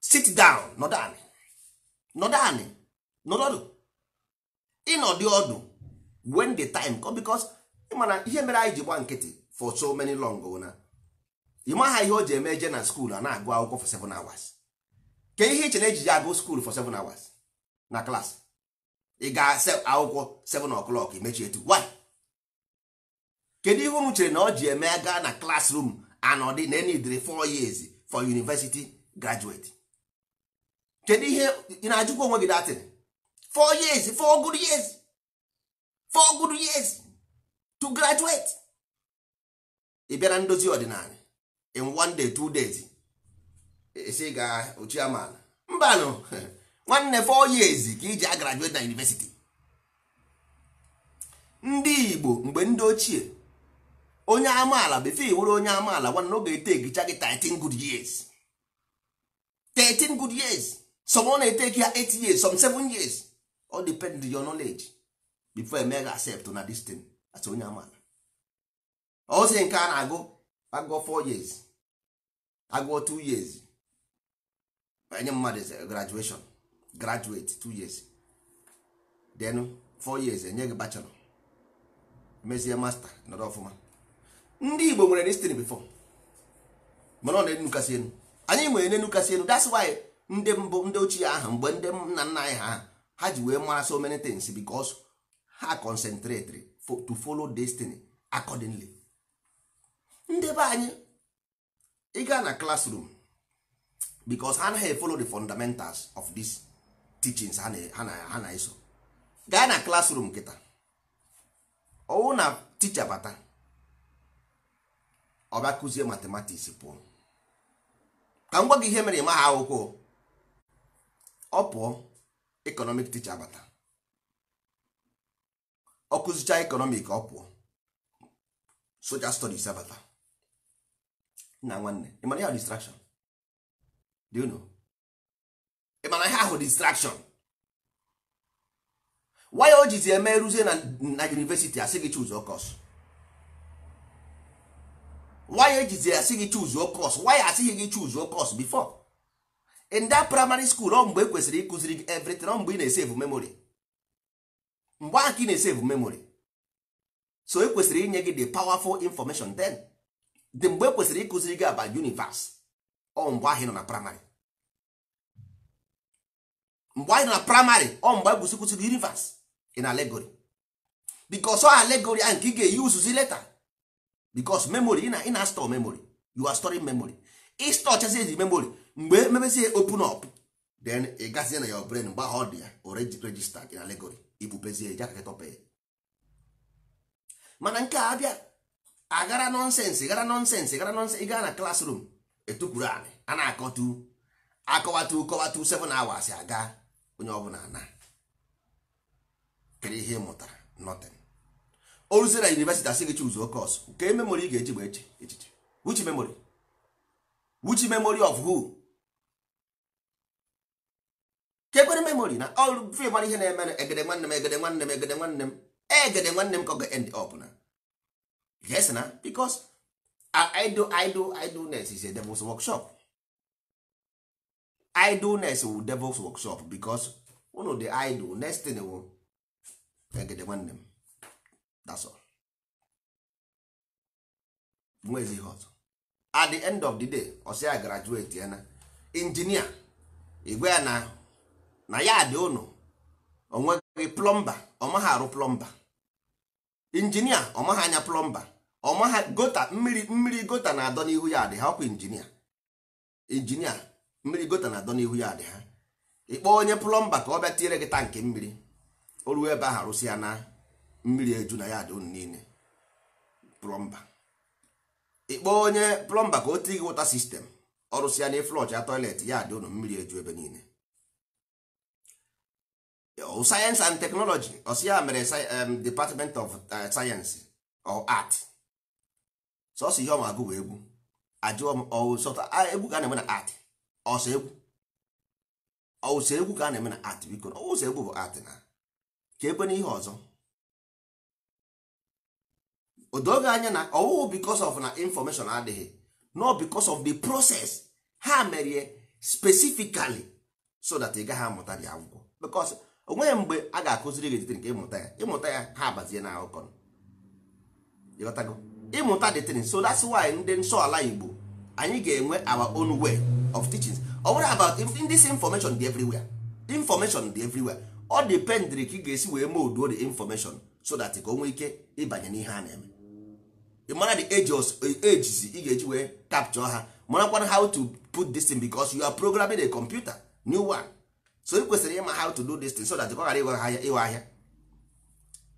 sit down nọdụ anị nọdụ anị nọdụ ịnọdụ ọdụ when the time come because ịmana ihe mere anyị ji gba nkịtị for so many long na ịmaha ihe o ji eme eje na skuul a na-agụ akwụkwọ for 7 hours ke ihe iche e na agụ skuul for na klaasị ị ga akwụkwọ 7:00 o'clock mechie etu why kedu ihe unu chere na ọ ji eme gaa na classroom anọdị na enidiri 4 years for university graduate kedu ihe ị na-ajụkwa onwe gị datin 4 years 4 good years 4 good years to graduate ị bịara ndozi ọdịnala in one day two days esi ga mba mbanụ nwanne four years ka iji a graduate na university ndị Igbo mgbe ndị ochie onye amaala before nwere onye amaala nwanne ọ ga-etegicha gị 13 good years 13 good years some ọ na-eteki ya 8 years some 7 years all depend on your knowledge before emega accept na this thing as onye amaala ozi nke a na-agụ agụọ 4 years agụọ 2 years enye mmadụ graduation graduate two years then four years enye gị bachelọ mezie master nọrọ ọfụma ndị Igbo nwere destiny before mana ọ na-enu kasị enu anyị nwere n'enu kasị elu that's why ndị mbụ ndị ochie ahụ mgbe ndị nna nna anyị ha ha ji wee mara so many things because ha concentrate to follow destiny accordingly ndị be anyị ịga na classroom because ha anaghị follow the fundamentals of this teachings ha na-eso gaa na classroom nkịta ọwụ na ticha bata ọba kụzie matematiks pụọ ka m gwa gị ihe mere ịma ha akwụkwọ ọ pụọ economic ticha bata ọ kụzicha economic ọ pụọ social studies abata nna nwanne ịmara ya distraction do you know ị mana ihe ahụ distraction why o jizi eme ruzie na university asị gị choose okos why ejizi asị gị choose okos why asịghị gị choose okos before in that primary school ọ mgbe e ịkụziri gị everything ọ mgbe ị na-esave memory mgbe ahụ ka ị na-esave memory so ekwesịrị kwesịrị inye gị the powerful information then the mgbe e ịkụziri gị aba universe ọ mgbe ahụ ị nọ na primary mgbe anyị na primary ọ mgbe anyị kwụsịkwụsịgo rivers in allegory bikos ọ allegory ahụ nke ị ga-eyi uzuzi leta bikos memory ị na ị na store memory you are storing memory ịstọ chazi eji memory mgbe emebezie open up then ị gazie na ya brain mgbe ahụ ọ dị ya already registered in allegory ibubezie eji aka tọpe mana nke a abịa agara nonsensị gara nonsensị gara nonsensị ịga na classroom etukwuru anị a na-akọtu akọwatu kọwatu 7 hours aga onye ọbụla na kedu ihe mụtara nothing o na university asị gị chụzụ oke ọsụ nke memory ị ga-eji gba echiche which memory which memory of who kekwere memory na all free mara ihe na-eme egede nwanne m egede nwanne m egede nwanne m egede nwanne m ka ga-end up na yes na because idle idle idleness is a devil's workshop idleness wu devil's workshop because unu dị idle next thing wu egede nwanne m that's all nwezi ihe ọzọ at the end of the day ọsị graduate ya na injinia igwe na na ya dị unu onweghị plọmba ọmaghị arụ plọmba injinia ọmaghị anya plọmba ọmaghị gota mmiri mmiri gota na-adọ n'ihu ya dị ha ọkwa injinia injinia mmiri gota na adọ n'ihu ya dị ha ịkpọ onye plọmba ka ọ bịa tinyere gị tankị mmiri o ruo ebe ahụ arụsị ya na mmiri eju na ya dị unu niile plọmba ịkpọ onye plọmba ka o tie gị wọta sistem ọrụsị ya na ịflọch ya tọilet ya dị unu mmiri eju ebe niile sayensị and teknọlọji ọsị ya mere department of eh, sayensị or art sọsọ ihe ọma agụ bụ egwu ajụọ m ọwụ sọta egwu ga na-eme na art ọsọ egwu egwu ka a na-eme na art biko egwu bụ art na ka ekwe n'ihe ọzọ odoge anya na ọwụwụ because of na information adịghị no because of the proces ha merie specifically so that ị gaghị amụta dị akwụkwọ because onweghị mgbe a ga-akụziri gị etiti nke ịmụta ya ịmụta ya ha abazie na akụkọ ịmụta dị tin so that's why ndị nsọ ala Igbo anyị ga-enwe our own way of teachings ọ bụrụ about this information dị everywhere information dị everywhere ọ dependịrị ka ị ga-esi wee moduo the information so that ka o nwee ike ịbanye n'ihe a na-eme ị mara the ages ị ga-eji wee capture ha marakwana how to put this thing because you are programming a computer new one so ị kwesịrị ịma how to do this thing so that ọ ghara ịghọ ahịa ịghọ ahịa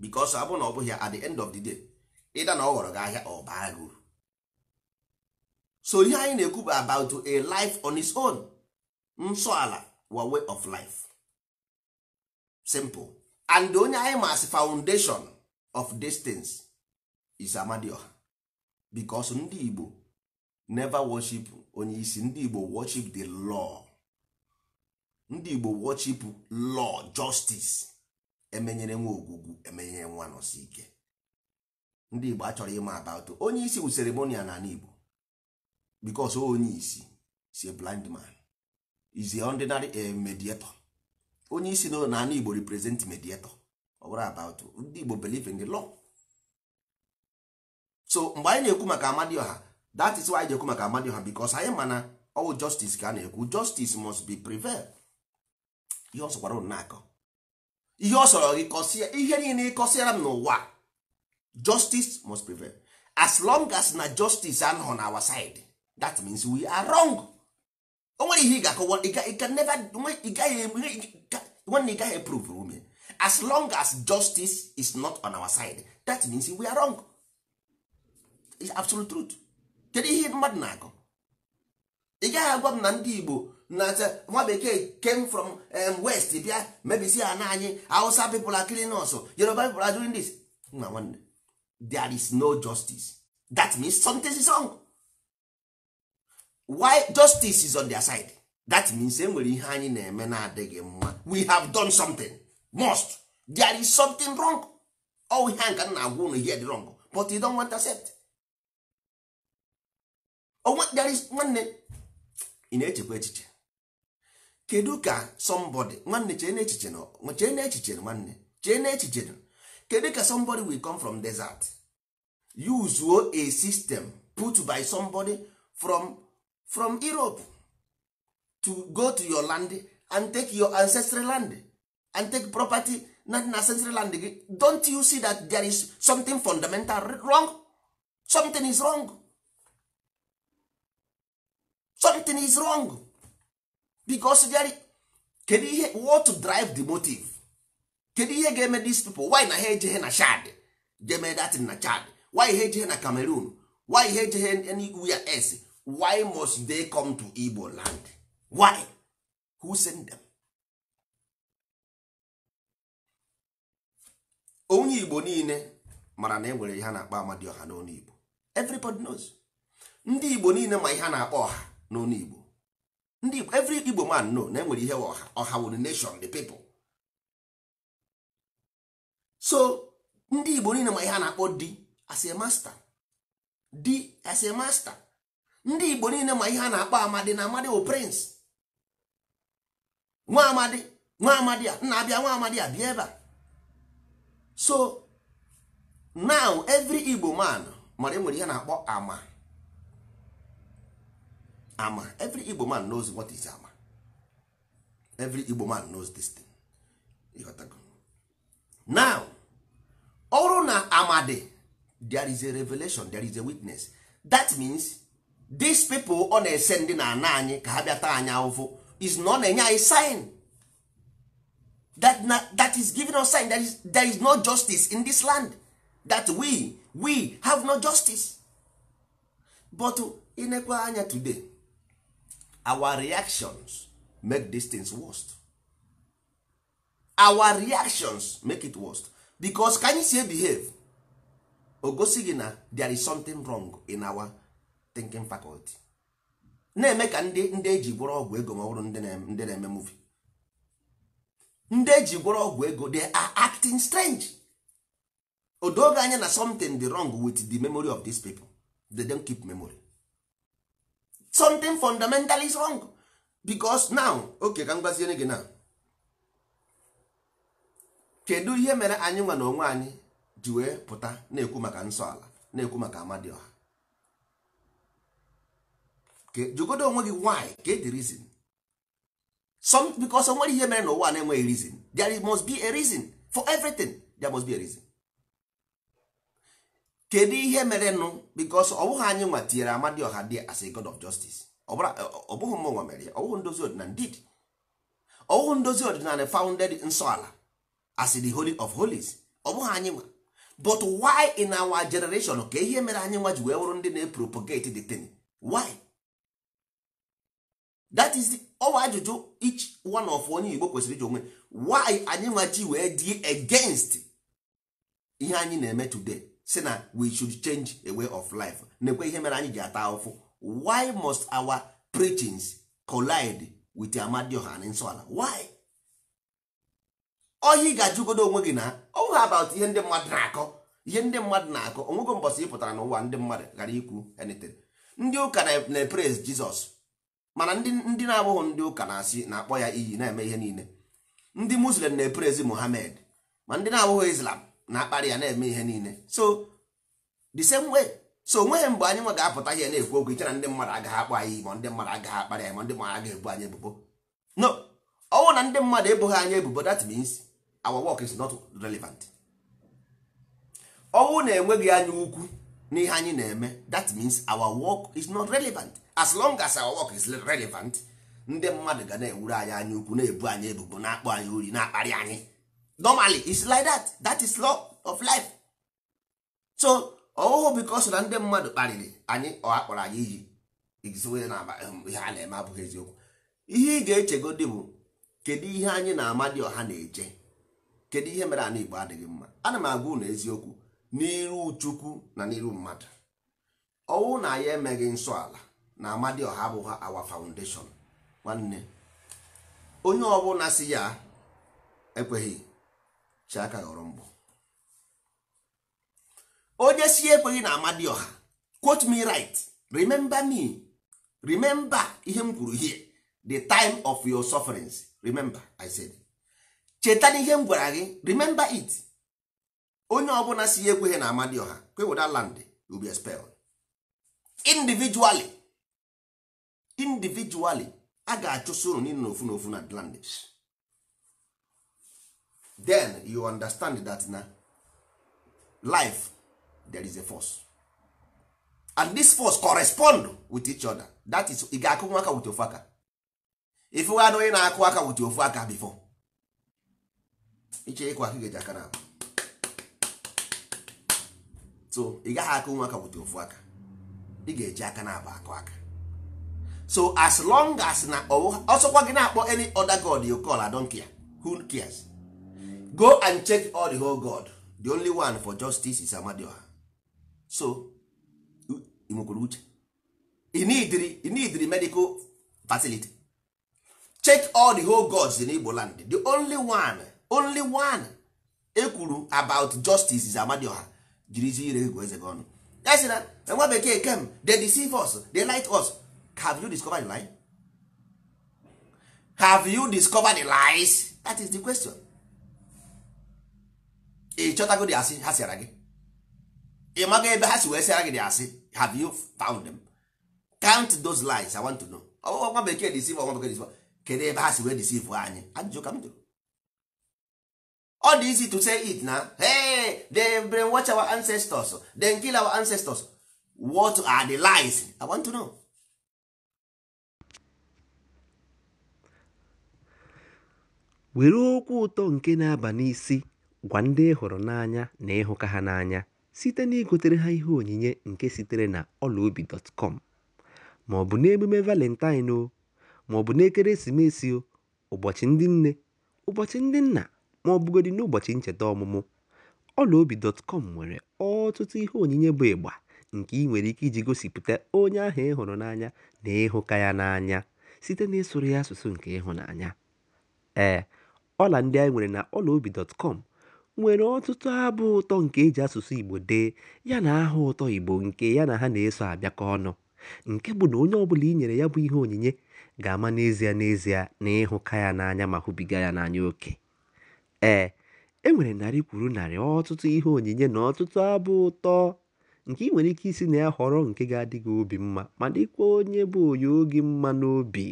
because ọ na ọ bụghị at the end of the day ịda na ọ ghọrọ gị ahịa ọ baa gị uru so ihe anyị na-ekwu bụ about a life on its own nsọala wa way of life simple and onye anyị masị foundation of distance is amadioha because ndị Igbo never worship onye isi ndị Igbo worship the law ndị Igbo worship law justice emenyere nwa ogwugwu emenyere nwa nọsi ike ndị Igbo achọrọ ịma about onye isi bụ ceremonial n'ala Igbo bikos onye isi si a blind man is a ordinary eh, mediator onye isi na n'ala igbo represent mediator ọ bụrụ about ndị igbo believe in the law so mgbe anyị na-ekwu maka amadioha that is why anyị ji ekwu maka amadioha bikos anyị mana ọwụ justice ka a na-ekwu justice must be prevail ihe ọ sọkwara akọ ihe ọ sọrọ gị kọsịa ihe niile ịkọsịara m n'ụwa justice must prevail as long as na justice anọ na our side that means we are wrong o nwere ihe ị ga-akọwa nwanne ị gaghị eprove ume as long as justice is not on our side that means we are wrong it's absolute truth kedu ihe mmadụ na-akọ ị gaghị agwa m na ndị Igbo na nwa bekee came from um, west bịa mebisi ha na anyị Hausa people are killing us oh. Yoruba people are doing this nna nwanne there is no justice that means something is wrong why justice is on their side that means enwere ihe anyị na-eme na-adịghị mma we have done something must there is something wrong all ihe nka na agwa unu ihe dị wrong but you don't want to accept there is nwanne ị na-echekwa echiche kedu ka somebody nwanne chee na echiche na chee na echiche nwanne chee na echiche na kedu ka somebody will come from desert use a system put by somebody from from europe to go to your land and take your ancestral land and take property na in ancestral land gị don't you see that there is something fundamental wrong something is wrong something is wrong because there kedu ihe what to drive the motive kedu ihe ga-eme these people why na ha ejeghe na shad jeme datin na chad why ha ejeghe na cameroon why ha ejeghe anywhere else why must they come to igbo land why who sent them onye igbo niile mara na enwere ihe a na-akpọ ọha n'ọnụ igbo everybody knows ndị igbo niile ma ihe a na-akpọ ọha n'ọnụ igbo ndị igbo every igbo man know na enwere ihe ọha ọha wụ nation the people so ndị igbo niile ma ihe a na-akpọ di as a master di as a master ndị igbo niile ma ihe a na-akpọ amadi na amadi bụ prince nwa amadi nwa amadi a nna abịa nwa amadi a bịa ebe a so now every igbo man mara enwere ihe na-akpọ ama ama every igbo man knows what is ama every igbo man knows this thing now ọrụ na amadi there is a revelation there is a witness that means these people ọ na-ese ndị na ana anyị ka ha bịa taa anyị ahụhụ is na ọ na-enye anyị sign that, na, that is giving us sign that is, there is no justice in this land that we we have no justice but inekwa anya today our reactions make these things worst our reactions make it worst because ka anyị si behave o gosi gị na there is something wrong in our thinking faculty na-eme ka ndị ndị eji gburu ọgwụ ego ma ọ bụrụ ndị na-eme muvi ndị eji gburu ọgwụ ego they acting strange odoge anya na something dị wrong with the memory of these people they don't keep memory something fundamentally is wrong because now okay ka m gwaziere gị now kedu ihe mere anyị nwa na onwe anyị ji wee pụta na-ekwu maka nsọ ala na-ekwu maka amadioha jụgodo onwe gị why get the reason some because nwere ihe mere n'ụwa na-enweghị reason there must be a reason for everything there must be a reason kedu ihe mere nụ because ọ bụghị anyị nwa tinyere Amadioha dị as a god of justice ọ bụghị nwa mere ya ọwụghị ndozi ọdịnala did ọwụghị ndozi ọdịnala founded nsọ ala as the holy of holies ọ bụghị anyị nwa but why in our generation ka ihe mere anyị nwa ji wee wụrụ ndị na-epropagate the thing why that is ọwa oh, ajụjụ each one of onye Igbo kwesịrị iji onwe why anyị nwachi wee dị against ihe anyị na-eme today si na we should change a way of life na-ekwe ihe mere anyị ji ata ụfụ why must our preachings collide with Amadioha na nsọala why ohi ga-ajụgodo onwe gị na ọha oh, about ihe ndị mmadụ na-akọ ihe ndị mmadụ na-akọ onwego mbọsị ị pụtara n'ụwa ndị mmadụ ghara ikwu anything ndị ụka na-epraise Jizọs mana ndị na-abụghị ndị ụka na-asị na-akpọ ya iyi na-eme ihe niile ndị muslim na eperezi Muhammad ma ndị na-abụghị Islam na-akparị ya na-eme ihe niile so the same way so onweghị mgbe anyị nwa ga-apụta ihe na-ekwu okwu iche ndị mmadụ agaghị akpọ anyị ma ndị mmadụ agaghị akparị anyị ma ndị mmadụ agaghị ebu anyị ebubo no ọnwụ na ndị mmadụ ebughị anyị ebubo that means our work is not relevant ọnwụ na-enweghị anya ukwu n'ihe anyị na-eme that means our work is not relevant as long as our work is relevant ndị mmadụ ga na-ewuru anyị anya ukwu na-ebu anyị ebubo na-akpọ anyị ori na-akparị anyị normally it's like that that is law of life so ọhụhụ because na ndị mmadụ kparịrị anyị ọha akpọrọ anyị iyi um, ihe a na-eme abụghị eziokwu ihe ị ga-echegodi bụ kedu ihe anyị na ọha na-eje kedu ihe mere anụ Igbo adịghị mma ana m agwa unu eziokwu n'iru chukwu na n'iru mmadụ ọnwụ na ya emeghị nsọ ala na amadioha abụghị awa foundation nwanne onye ọbụla si ya ekweghị chiaka ghọrọ mbụ onye si ekweghị na amadioha quote me right remember me remember ihe m kwuru here the time of your sufferings remember i said cheta n'ihe m gwara gị remember it onye ọbụla si ya ekweghị na Amadioha kweweda land will be expelled individually individually a ga-achụso unu niile n'ofu n'ofu na landis then you understand that na life there is a force and this force correspond with each other that is ị ga-akụ nwa aka wute ofu aka ifụghana onye na-akụ aka wute ofu aka before iche ịkụ aka ga-eji aka na-abụ so ị gaghị aka nwa aka ofu aka ị ga-eji aka na-abụ akụ aka so as long as na ọsọkwa gị na-akpọ any other god you call adonkia who cares go and check all the whole god the only one for justice is Amadioha so nwekwara uche inidiri medical facility check all the whole gods in Igbo land the only one only one ekwuru about justice is Amadioha jirizi ire gụ eze gị ọnụ ya sị na e nwa bekee kem they deceive us they light us have you discovered the lie have you discovered the lies that is the question ị chọtago dị asị ha sịara gị ị maga ebe ha si wee sịara gị dị asị have you found them count those lies i want to know ọgwụgwọ nwa bekee deceive ọgwụ bekee deceive kedu ebe ha si wee deceive anyị ajụjụ ka m jụrụ ọ dị easy to say it na hey, they watch our ancestors they kill our ancestors what are the lies i want to know were okwu ụtọ nke na-aba n'isi gwa ndị ịhụrụ n'anya na ịhụka ha n'anya site na igotere ha ihe onyinye nke sitere na ọlaobi.com ma ọ bụ n'emume valentine o ma ọ bụ n'ekeresimesi o ụbọchị ndị nne ụbọchị ndị nna ma ọ bụgodị n'ụbọchị ncheta ọmụmụ, ọlaobi.com nwere ọtụtụ ihe onyinye bụ ịgba nke ị nwere ike iji gosipụta onye ahụ ịhụrụ n'anya na ịhụka ya n'anya site n'ịsụrụ ya asụsụ nke ịhụnanya. Ee, ọla ndị anyị nwere na ọlaobi.com nwere ọtụtụ abụ ụtọ nke e ji asụsụ Igbo dee ya na aha ụtọ Igbo nke ya na ha na-eso abịakọ ọnụ, nke bụ na onye ọbụla i nyere ya bụ ihe onyinye ga-ama n'ezie n'ezie na ịhụka ya n'anya ma hụbiga ya n'anya oke. Ee, e nwere narị kwuru narị ọtụtụ ihe onyinye na ọtụtụ abụ ụtọ nke ị nwere ike isi na ya họrọ nke ga-adị gị obi mma ma dịkwa onye bụ onye oge mma n'obi.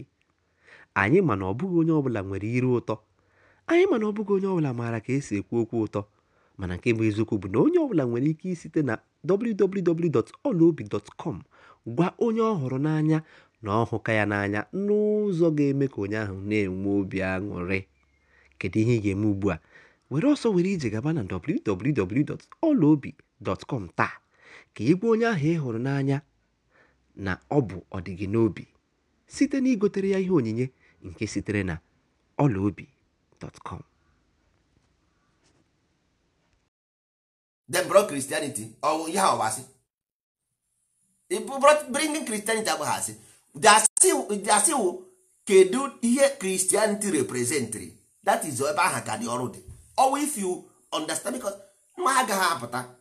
Anyị ma na ọ bụghị onye ọbụla nwere iru ụtọ, anyị ma na ọ bụghị onye ọbụla maara ka e si ekwu okwu ụtọ, mana nke bụ eziokwu bụ na onye ọbụla nwere ike isite na www.olaobi.com gwa onye ọ hụrụ n'anya na ọhụka ya n'anya n'ụzọ ga-eme ka onye ahụ na-enwe obi aṅụrị. kedu ihe ị ga-eme ugbu a were ọsọ were ije gaba na www.ọlaobi.com taa ka ị onye ahụ ị hụrụ n'anya na ọ bụ ọdịgị n'obi site na igotere ya ihe onyinye nke sitere na ọlaobi.com dem bro Christianity ọwụ ihe Christianity that is ebe aha ka dị ọrụ dị ọwa if you understand because nwa agaghị apụta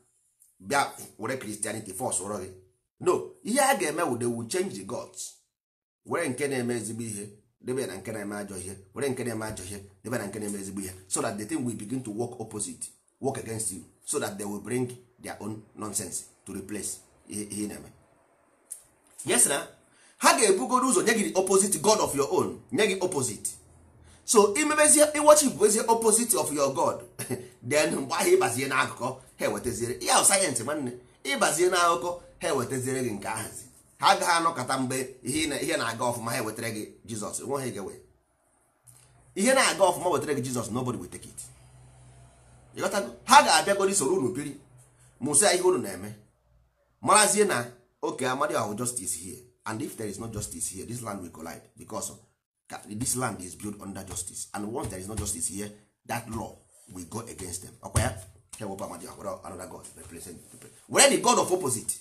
bịa were Christianity force ụrọ gị no ihe a ga-eme wude wu change the gods were nke na-eme ezigbo ihe debe na nke na-eme ajọ ihe were nke na-eme ajọ ihe debe na nke na-eme ezigbo ihe so that the thing will begin to work opposite work against you so that they will bring their own nonsense to replace ihe na-eme yes na ha ga-ebugoro ụzọ nye gị opposite god of your own nye gị opposite so imemezie imebezie bụ ezie opposite of your god then mgbe ahụ ịbazie n'akụkọ ha ewetaziere ya sayensị nwanne ịbazie n'akụkọ ha ewetaziere gị nke ahazi ha agaghị anọkọta mgbe ihe na-aga ọfụma ha ewetara gị jizọs nwe ha ga-ewe ihe na-aga ọfụma wetara gị jizọs nobody will take it ha ga-abịagoro soro unu biri mụsịa ihe unu na-eme marazie na oke amadi ahụ justice here and if there is no justice here this land will collide because this land is built under justice and once there is no justice here that law will go against them ọkwa ya another god represent were the god of opposite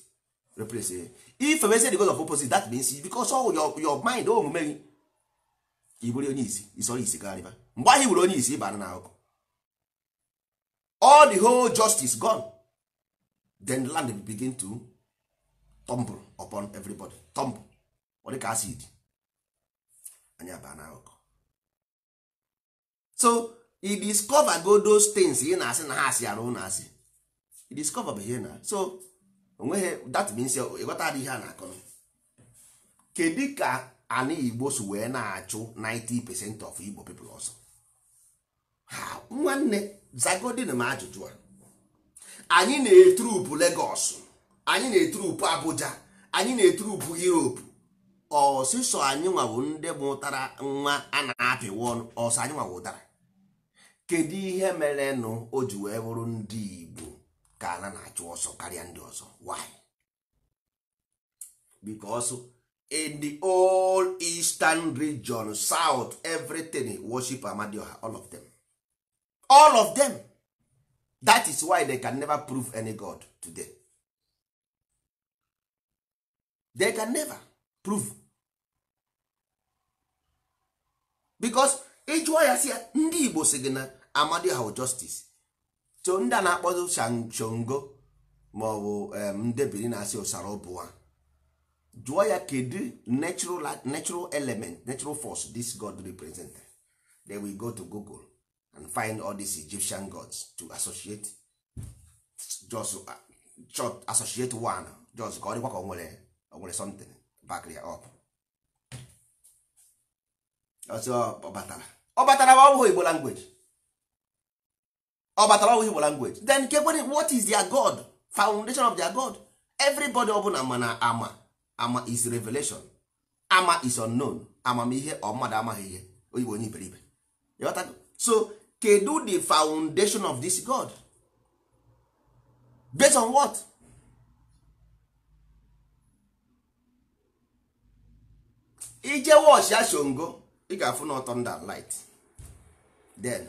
represent if emezi the god of opposite that means because all your, your mind omume oh, gị ibụrụ onye isi isọrọ isi karịba mgbe ahụ ibụrụ onye isi ịbara na akụkụ all the whole justice gone then the land begin to tumble upon everybody tumble ọ acid anyị abaa na akụkọ so i discover go those things ị na-asị na ha asị arụ na asị e discover bụ ihe na so onweghị that means ịghọta adịghị ha na-akọ kedu ka ana igbo so wee na-achụ 90% of igbo people ọsọ ha nwanne zagodin m ajụjụ a anyị na-etrupu legọs anyị na-etrupu Abuja anyị na-etrupu Europe ọsịsọ anyị nwawo ndị mụtara nwa a na-apịwa ọnụ ọsọ anyị nwawo ụtara kedu ihe mere nụ o ji wee bụrụ ndị Igbo ka a na-achụ ọsọ karịa ndị ọzọ why because in the all eastern region south everything worship Amadioha all of them all of them that is why they can never prove any god today they can never proof because ịjụọ ya si ya ndị Igbo si gị na amadi ha justice to ndị a na-akpọzi shongo ma ọ bụ ndebiri na-asị ụsara obuwa jụọ ya kedu natural element natural force this god represent then we go to google and find all these egyptian gods to associate just uh, associate one just ka ọ dịkwa ka o nwere something back up ọ batara ọ batara ma Igbo language ọ batara ọ Igbo language then kekwere what is their God foundation of their God everybody ọbụla mana ama ama is revelation ama is unknown amamihe ọ mmadụ amaghị ihe oyibo onye iberibe so kedu the foundation of this God based on what? ije wọchị ashongo ị ga-afụ na thunder light then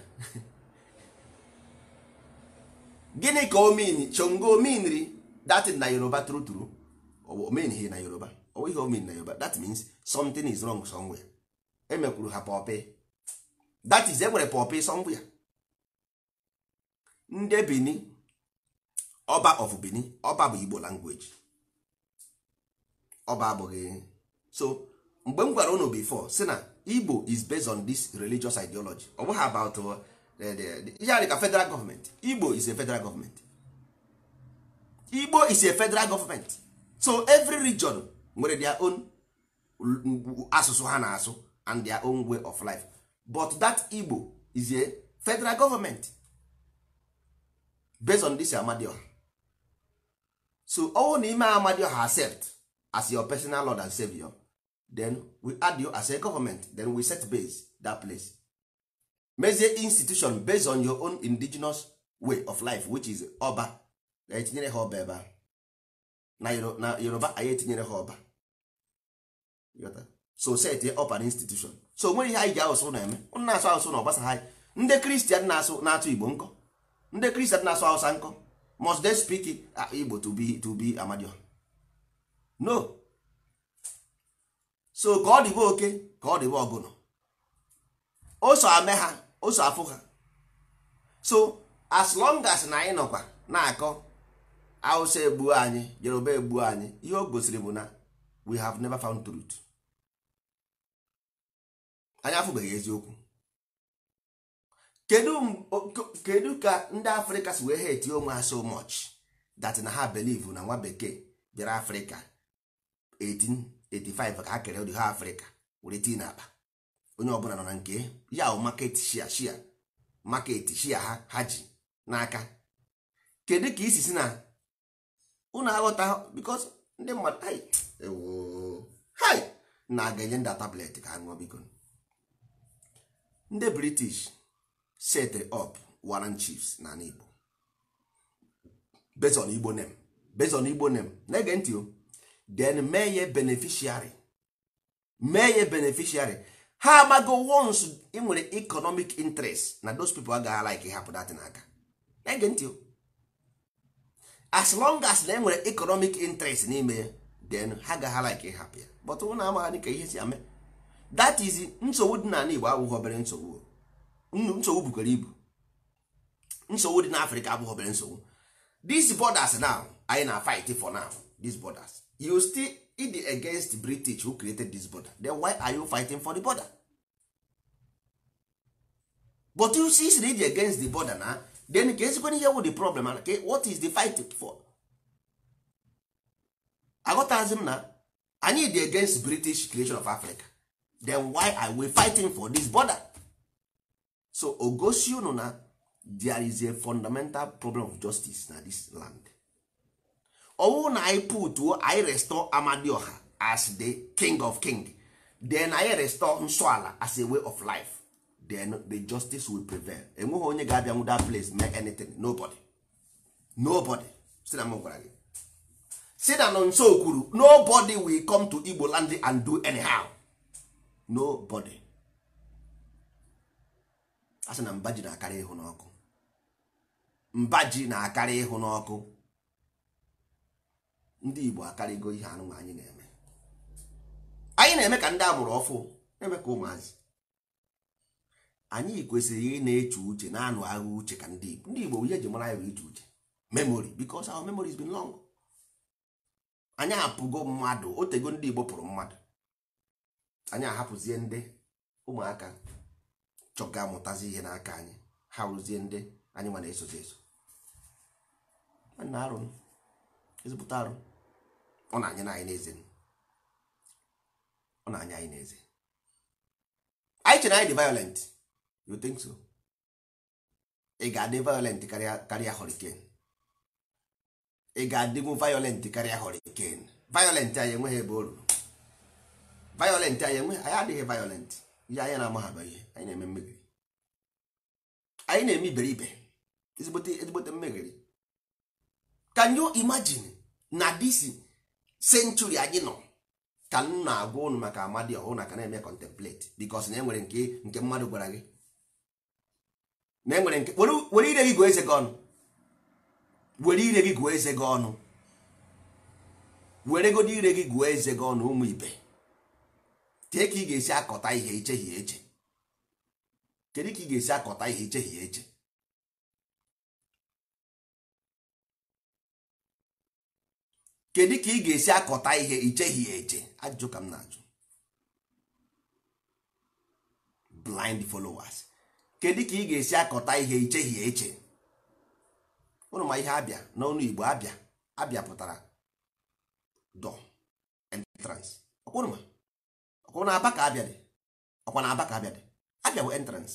gịnị ka o mean chongo meanri that na yoruba true true o mean na yoruba o ihe o na yoruba that means something is wrong somewhere emekwuru ha pọpị that is enwere pọpị somewhere ndị Benin ọba of Benin ọba bụ Igbo language ọba abụghị so mgbe m gwara unu before si na igbo is based on this religious ideology ọ bụghị about uh, ihe a ka federal government igbo is a federal government igbo is a federal government so every region nwere their own asụsụ ha na-asụ and their own way of life but that igbo is a federal government based on this amadioha so ọnwụ na ime amadioha accept as your personal lord and savior then we add you as a government then we set base that place mezie institution based on your own indigenous way of life which is ọba na etinyere ha ọba ebe na yoruba anyị etinyere ha ọba so set ọba na institution so nwere ihe anyị ji asụsụ na-eme na-asụ asụsụ na ọgbasa ha ndị kristian na-asụ na-atụ igbo nkọ ndị kristian na-asụ hausa nkọ must they speak uh, igbo to be to be amadion no so ka ọ dịbe oke ka ọ dịbe ọgụnụ oso ame ha oso afụ ha so as long as na anyị nọkwa na-akọ Hausa egbuo anyị Yoruba egbuo anyị ihe o gosiri bụ na we have never found truth anyị afụbeghị eziokwu kedu ka ndị afrịka si wee eti onwe ha so much that na ha believe na nwa bekee bịara afrịka 18 85 ka ha kere ụdị ha afrịka were tii na akpa onye ọbụla nọ na nke ya bụ maket shia shia maket shia ha ha ji n'aka kedu ka isi si na ụnụ aghọta bikos ndị mmadụ hai na aga enye nda tablet ka ha ṅụọ biko ndị british set up warren chiefs na igbo igbo name based igbo na-ege ntị o then mee ya beneficiary mee ya beneficiary ha amago once ị nwere economic interest na those people agaghị like ịhapụ datin aka ege ntị as long as na enwere economic interest n'ime ya then ha gaghị like hapụ ya but ụna amaghị ka ihe si ame that is nsogbu dị n'ala Igbo abụghị obere nsogbu nsogbu bukwara ibu nsogbu dị n'Afrịka abụghị obere nsogbu these borders now anyị na fight for now these borders you still it against british who created this border then why are you fighting for the border but you see siri dị against the border na then ka ezikwana ihe wụ the problem okay? what is the fight for aghọtazi m na anyị dị against british creation of africa then why are we fighting for this border so ogosi unu na there is a fundamental problem of justice na this land ọwụ na anyị putuo anyị restore amadioha as the king of king then anyị restore nsọala as a way of life then the justice will prevail enweghị onye ga-abịa nwụ that place mee anything nobody nobody si na m gwara gị si na nọ nso kwuru nobody will come to igbo land and do anyhow nobody a sị na mba ji na-akarị ịhụ mba ji na-akarị ịhụ n'ọkụ ndị Igbo akarịgo ihe anụnwa anyị na-eme anyị na-eme ka ndị agbụrụ ọfụ eme ka ụmụazị anyị kwesịrị ị na-eche uche na-anụ agha uche ka ndị Igbo ndị Igbo ihe eji mara ya bụ iche uche memory because our memory has been long anyị apụgo mmadụ otego ndị Igbo pụrụ mmadụ anyị ahapụzie ndị ụmụaka chọga amụtazi ihe n'aka anyị ha rụzie ndị anyị nwa na-esozi eso nwanne arụ ezipụta arụ ọ na-anya anyị n'eze ọ na-anya anyị n'eze anyị chere anyị dị violent you think so ị ga-adị violent karịa karịa hurricane ị ga-adịgwu violent karịa hurricane violent anyị enweghị ebe o ruru violent anyị enweghị anyị adịghị violent ihe anyị na-amaghaba ihe anyị na-eme mmegiri anyị na-eme iberibe ezigbote ezigbote mmegiri can you imagine na disi senchuri anyị nọ ka m na-agwa ụnụ maka amadi ọhụụ na ka na-eme contemplate because na enwere nke nke mmadụ gwara gị na enwere nke were ire gị gụọ eze gị ọnụ were ire gị gụọ eze gị ọnụ were godo ire gị gụọ eze gị ọnụ ụmụ ibe tee ka ị ga-esi akọta ihe ichehie eche kedu ka ị ga-esi akọta ihe ichehie eche kedu ka ị ga-esi akọta ihe icheghị ya eche ajụjụ ka m na-ajụ blind followers kedu ka ị ga-esi akọta ihe icheghị ya eche ụnụ ma ihe abịa n'ọnụ Igbo abịa abịa pụtara door entrance ọkwụnụ ọkwụnụ aba ka abịa dị ọkwa na aba ka abịa dị abịa bụ entrance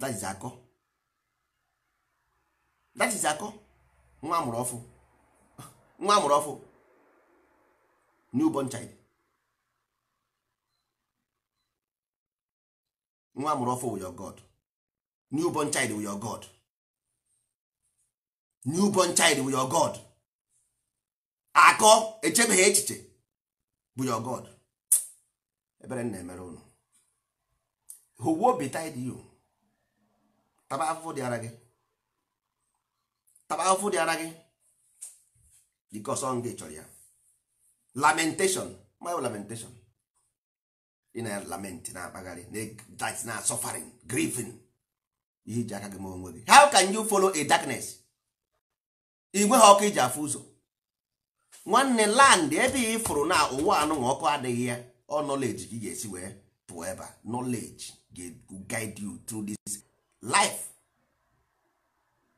that akọ akọ nwa amụrụ ọfụ nwa amụrụ ọfụ newborn child nwa amụrụ ọfụ wụ your god newborn child wụ your god newborn child wụ your god akọ echebeghị echiche bụ your god ebere m na-emere unu. who betide you taba afụfụ dị ara gị taba afụfụ dị ara gị because ọ dị chọrọ ya lamentation my lamentation ị na lament na-akpagharị that na suffering grieving ihe iji aka gị ma onwe gị how can you follow a darkness igwe ha ọkụ iji afụ ụzọ nwanne land ebe ị fụrụ na ụwa anụnwa ọkụ adịghị ya ọ nọleji gị ga-esi wee pụọ ebe knowledge ga guide you through this life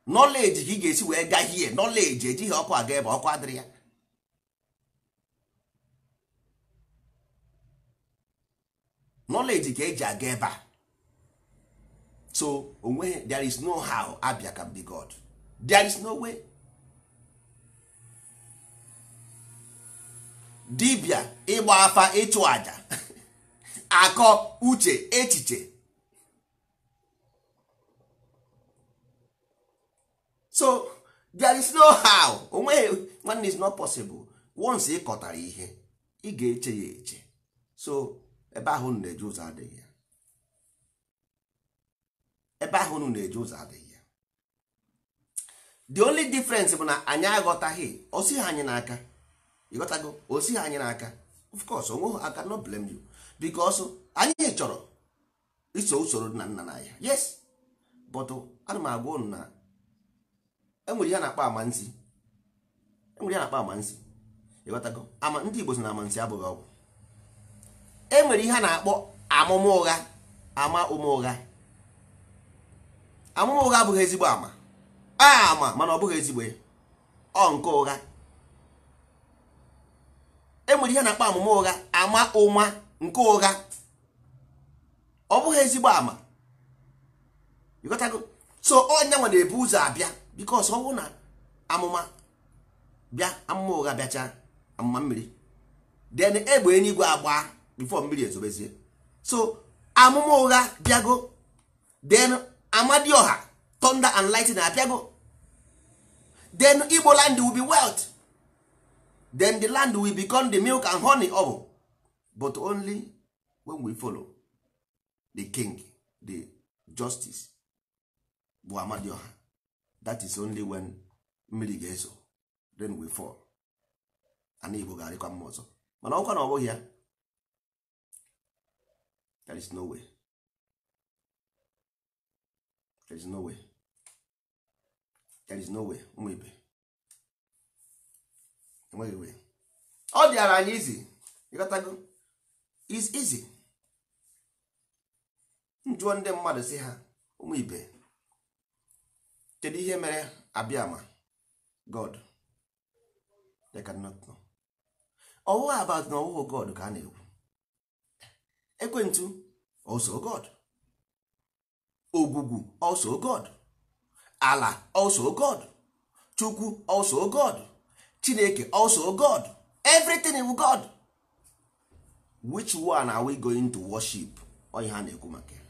nọleji ka ị ga-esi wee gaa hie nọleji ejighị ọkụ aga ebe ọkụ adịrị ya nọleji ka eji aga ebe a so onwe there is no how Abia can be God there is no way dibia ịgba afa ịchụ aja akọ uche echiche so there is no how onweghị nwanne is not possible once ị kọtara ihe ị ga-eche ya eche so ebe ahụ unu na-eje ụzọ adịghị ya ebe ahụ unu na-eje ụzọ adịghị ya the only difference bụ na anyị aghọtaghị osighị anyị n'aka ịghọtago osighị anyị n'aka of course onweghị aka no blame you because anyị chọrọ iso usoro nna nna na ya yes but ana m agwa ụnụ na enwere ihe na-akpọ amansi enwere ihe na-akpọ amansi ịghọtago ama ndị Igbo sị na amansi abụghị ọgwụ enwere ihe a na-akpọ amụma ụgha ama ụma ụgha amụma ụgha abụghị ezigbo ama ah, ama mana ọ bụghị ezigbo ọ nke ụgha enwere ihe na-akpọ amụma ụgha ama ụma nke ụgha ọ bụghị ezigbo ama ịghọtago so onye nwa na-ebu ụzọ abịa bikos ọnwụ na amụma bịa amụma ụgha bịacha amụma mmiri den egbe eluigwe agba bifo mmiri ezobezie so amụma ụgha bịago then amadioha thunder and na abịago den igbo land will be wealth then the land will become the milk and honey of but only when we follow the king the justice bụ amadioha that is only when mmiri ga-ezo then we fall ana igbo ga-arịkwa mma ọzọ mana ọkwa na ọ bụghị ya there is no way there is no way there is no way ụmụ ibe enweghị way ọ dịara anyị izi ịghọtago is easy njụọ ndị mmadụ si ha ụmụ ibe kedu ihe mere abịama god they cannot know ọwụwa about na ọwụwa god ka a na-ekwu ekwentụ also god ogwugwu also god ala also god chukwu also god chineke also god everything iwu god which one are we going to worship onye ha na-ekwu maka ya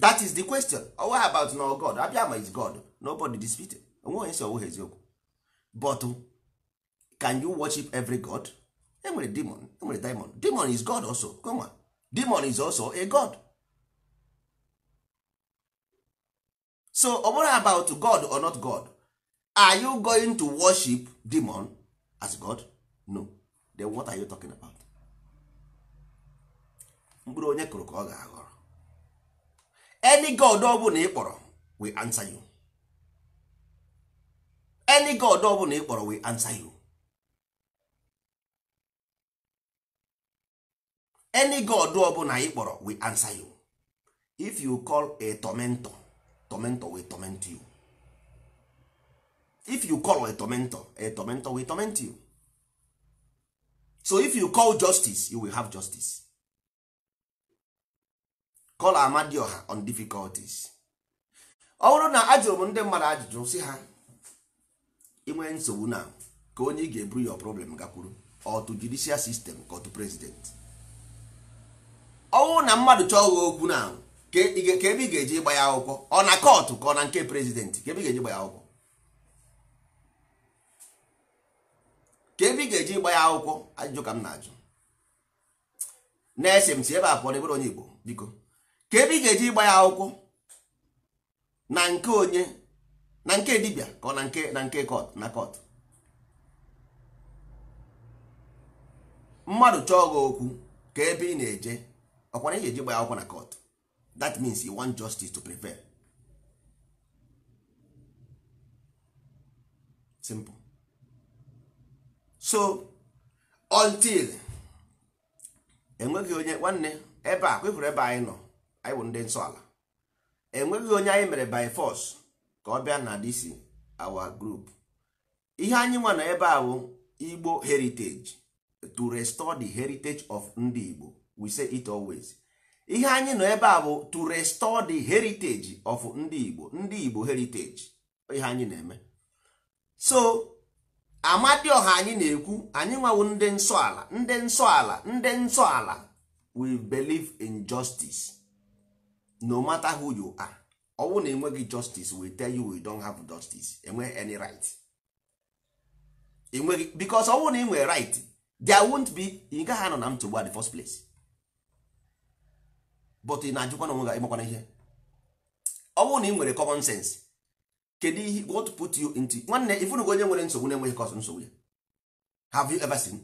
that is the question oh, what about no god abịa is god nobody dispute onwe onye ọwụghị eziokwu but um, can you worship every god enwere demon enwere demon demon is god also kwenwa demon is also a god so ọ um, about god or not god are you going to worship demon as god no then what are you talking about mkpụrụ onye kụrụ ka ọ ga-aghọrọ any god ọbụla ị kpọrọ we answer you any god ọbụla ị kpọrọ we answer you any god ọbụla ị kpọrọ we answer you if you call a tormentor tormentor we torment you if you call a tormentor a tormentor we torment you so if you call justice you will have justice call amadioha on difficulties ọ bụrụ na ajụrụ m ndị mmadụ ajụjụ si ha inwe nsogbu na ka onye ị ga-eburu your problem gakwuru otu judicial system ka otu president ọ bụrụ na mmadụ chọọ gha okwu na ka ebe ị ga-eji gba ya akwụkwọ ọ na kọtụ ka ọ na nke prezidentị ka ebe ga-eji gba ya akwụkwọ ka ebe ị ga-eji gba ya akwụkwọ ajụjụ ka m na-ajụ na-ese m si ebe a pụọ na onye Igbo biko ka ebe ị ga-eji ịgba ya akwụkwọ na nke onye na nke dibia ka na nke na nke kọt na kọt mmadụ chọọ gị okwu ka ebe ị na-eje ọkwara ị ga-eji gba ya akwụkwọ na kọt that means you want justice to prevail simple so until enweghị onye nwanne ebe a ebe anyị nọ anyị bụ ndị nsọ ala enweghị onye anyị mere by force ka ọ bịa na dc our group ihe anyị nwa na ebe a bụ igbo heritage to restore the heritage of ndị igbo we say it always ihe anyị nọ ebe a bụ to restore the heritage of ndị igbo ndị igbo heritage ihe anyị na-eme so ọha anyị na-ekwu anyị nwawo ndị nsọ ala ndị nsọ ala ndị nsọ ala we believe in justice no matter who you are ọnwụ na enweghị justice we tell you we don't have justice enwe any right enweghị because ọnwụ na inwe right there won't be ị gaghị anọ na nsogbu at the first place but ị na-ajụkwa na onwe gị ịmakwana ihe ọnwụ na ị nwere common sense kedu ihe what put you into nwanne ifunugo onye nwere nsogbu na-enweghị nsogbu ya have you ever seen?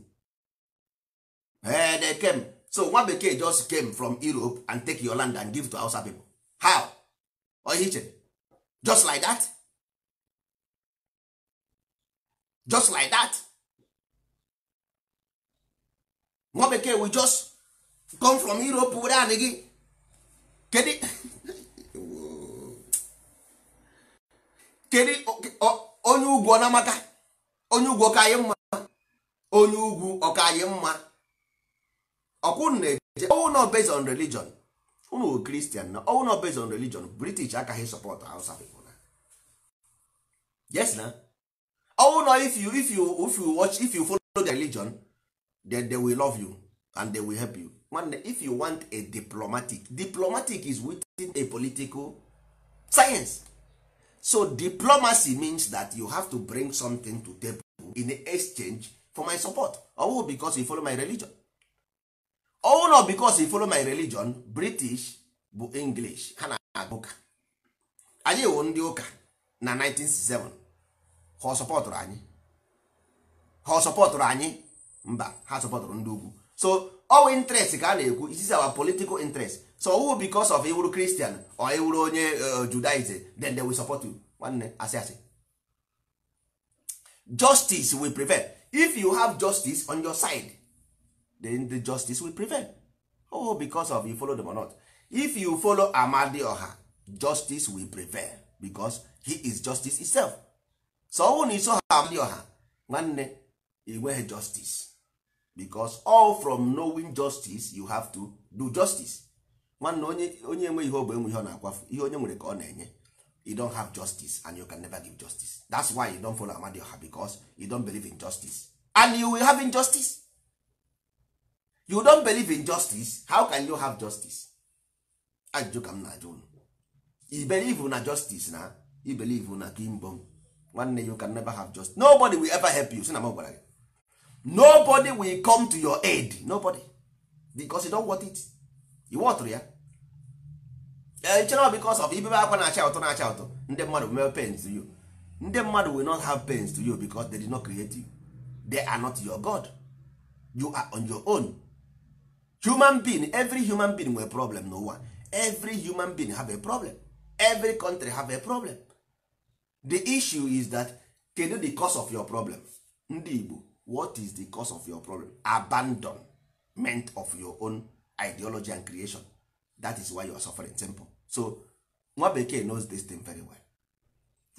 Hey, they came. so nwa bekee just came from europe and take your land and give to hausa people how oye just like that just like that nwa bekee we just come from europe were anyị gị kedu kedu onye ugwu ọ na onye ugwu ọka mma onye ugwu mma ọkwụ na-eje ọwụ based on religion unu kristian na ọwụ na based on religion british akaghị sọpọtụ hausa people na yes na ọwụ na if you if you if you watch if you follow the religion then they will love you and they will help you nwanne if you want a diplomatic diplomatic is within a political science so diplomacy means that you have to bring something to table in exchange for my support ọwụ because you follow my religion ọwụ oh, na because follow my religion british bụ english ha na -agụ. ụka anyị wụ ndị ụka na 1967 ha sọpọtụrụ anyị ha sọpọtụrụ anyị mba ha sọpọtụrụ ndị ugwu so ọwụ interest ka a na-ekwu is our political interest so ọwụ because of iwuru christian or iwuru onye uh, judaism then they will support you nwanne asị asị justice will prevent if you have justice on your side then the justice will prevail oh because of you follow them or not if you follow Amadi Oha justice will prevail because he is justice itself so ọ bụrụ na iso Oha nwanne inweghị justice because all from knowing justice you have to do justice nwanne onye onye ihe ogbe enwe ihe ọ na-akwafu ihe onye nwere ka ọ na-enye you don have justice and you can never give justice that's why you don follow Oha because you don believe in justice and you will have injustice you don believe in justice how can you have justice ajụjụ ka m na-ajụ unu i believe na justice na You believe na One nwanne you can never have justice nobody will ever help you si na m gwara gị nobody will come to your aid nobody because you don't want it you want ya echere because of ibebe akwa na-acha ụtọ na-acha ụtọ ndị mmadụ have pains to you ndị mmadụ will not have pains to you because they did not create you they are not your god you are on your own human being every human being nwere problem n'ụwa every human being have a problem every country have a problem the issue is that kedu the cause of your problem ndị igbo what is the cause of your problem abandonment of your own ideology and creation that is why you are suffering simple so nwa bekee knows this thing very well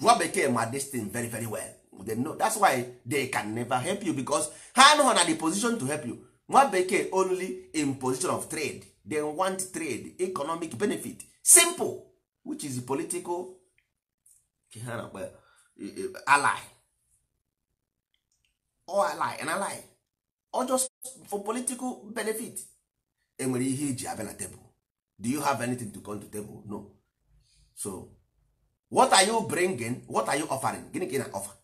nwa bekee ma this thing very very well they know that's why they can never help you because ha anụghị na the position to help you nwa bekee only in position of trade they want trade economic benefit simple which is political ha na e, e, ally or ally an ally or just for political benefit enwere ihe iji e abịa na do you have anything to come to table no so what are you bringing what are you offering gịnị ka ị na offer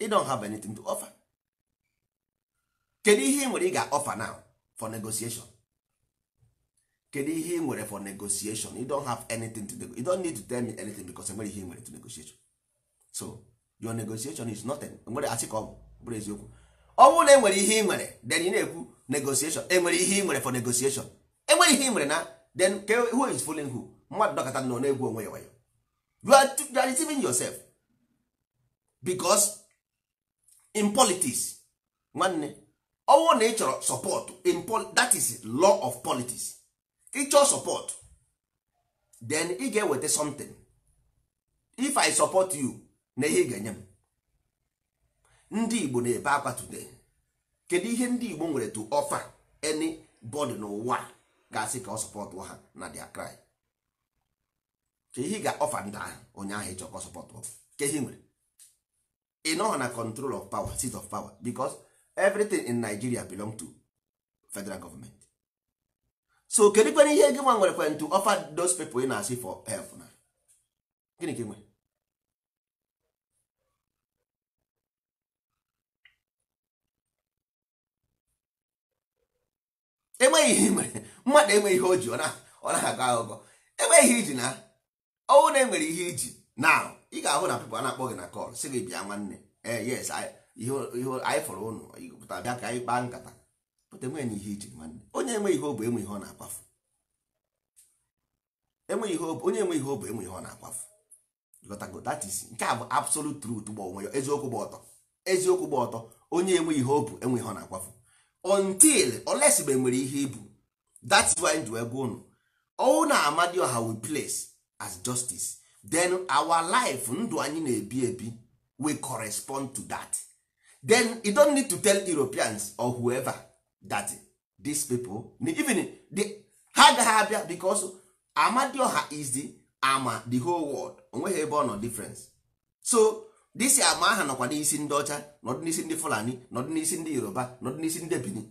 you don't have anything to offer kedu ihe ị nwere ị ga-offer now for negotiation kedu ihe ị nwere for negotiation you don't have anything to you don't need to tell me anything because enwere ihe ị nwere to negotiation so your negotiation is nothing nwere asị ka ọ bụrụ eziokwu ọ bụrụ na enwere ihe ị nwere then ị na-ekwu negotiation enwere ihe ị nwere for negotiation enwere ihe ị nwere na then who is fooling who mmadụ dọkọta na na-egwu onwe ya wayo you are, you are deceiving yourself because in politics nwanne ọnwụ na ị chọrọ support in that is law of politics ị chọọ support then ị ga-eweta something if i support you na ihe ị ga-enye m ndị igbo na-ebe akwa today kedu ihe ndị igbo nwere to offer any body n'ụwa ga-asị ka ọ sọpọtụ ha na dia cry ka ihe ga-ọfa ndị ahụ onye ahụ ịchọkọ sọpọt ka ihe nwere ị na control of power seat of power because everything in nigeria belong to federal government so kedu kwere ihe gị nwere kwen to offer those people ị na-asị for help na gịnị ka nwere enweghị ihe mere mmadụ enweghị ihe o ji ọ na-agụ aghụghọ enweghị ihe iji na ọnwụ na enwere ihe iji na ị ga-ahụ na people a na-akpọ na kọl sị gị bịa nwanne ee eh, yes ihe anyị fọrọ ụnụ pụta bịa ka anyị kpaa nkata pụta enweghị na ihe iche nwanne onye enweghị ihe obu enwe ihe ọ na-akwafu enwe ihe obu onye enweghị ihe obu enwe ihe ọ na-akwafu gotago that is nke a bụ absolute truth gba onwe ya eziokwu gba ọtọ eziokwu gba ọtọ onye enweghị ihe obu enwe ihe ọ na-akwafu until unless nwere ihe ibu that's why ji wee gwa ụnụ ọnwụ na ọha we place as justice then our life ndụ anyị na-ebi ebi we correspond to that. then you don't need to tell europeans or whoever that these people even the ha agaghị abịa because amadioha is the ama the whole world onweghị ebe ọ nọ difference so this ama aha nọkwa n'isi ndị ọcha nọdụ n'isi ndị fulani nọdụ n'isi ndị yoruba nọdụ n'isi ndị benin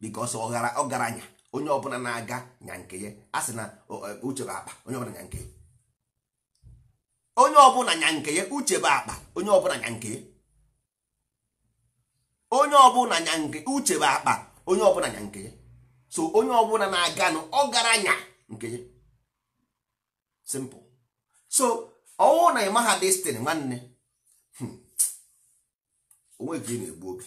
because ọgaranya onye ọbụla na-aga nya nke ya a na e, uche bụ akpa onye ọbụla nya nke onye ọbụla nya nke ya uche bụ akpa onye ọbụla nya nke ya onye ọbụla nya nke uche bụ akpa onye ọbụla nya nke so onye ọbụla na-aganụ ọ gara nya nke simple so ọwụ na ị ha destin nwanne hmm, onweghị ị na-egbu oge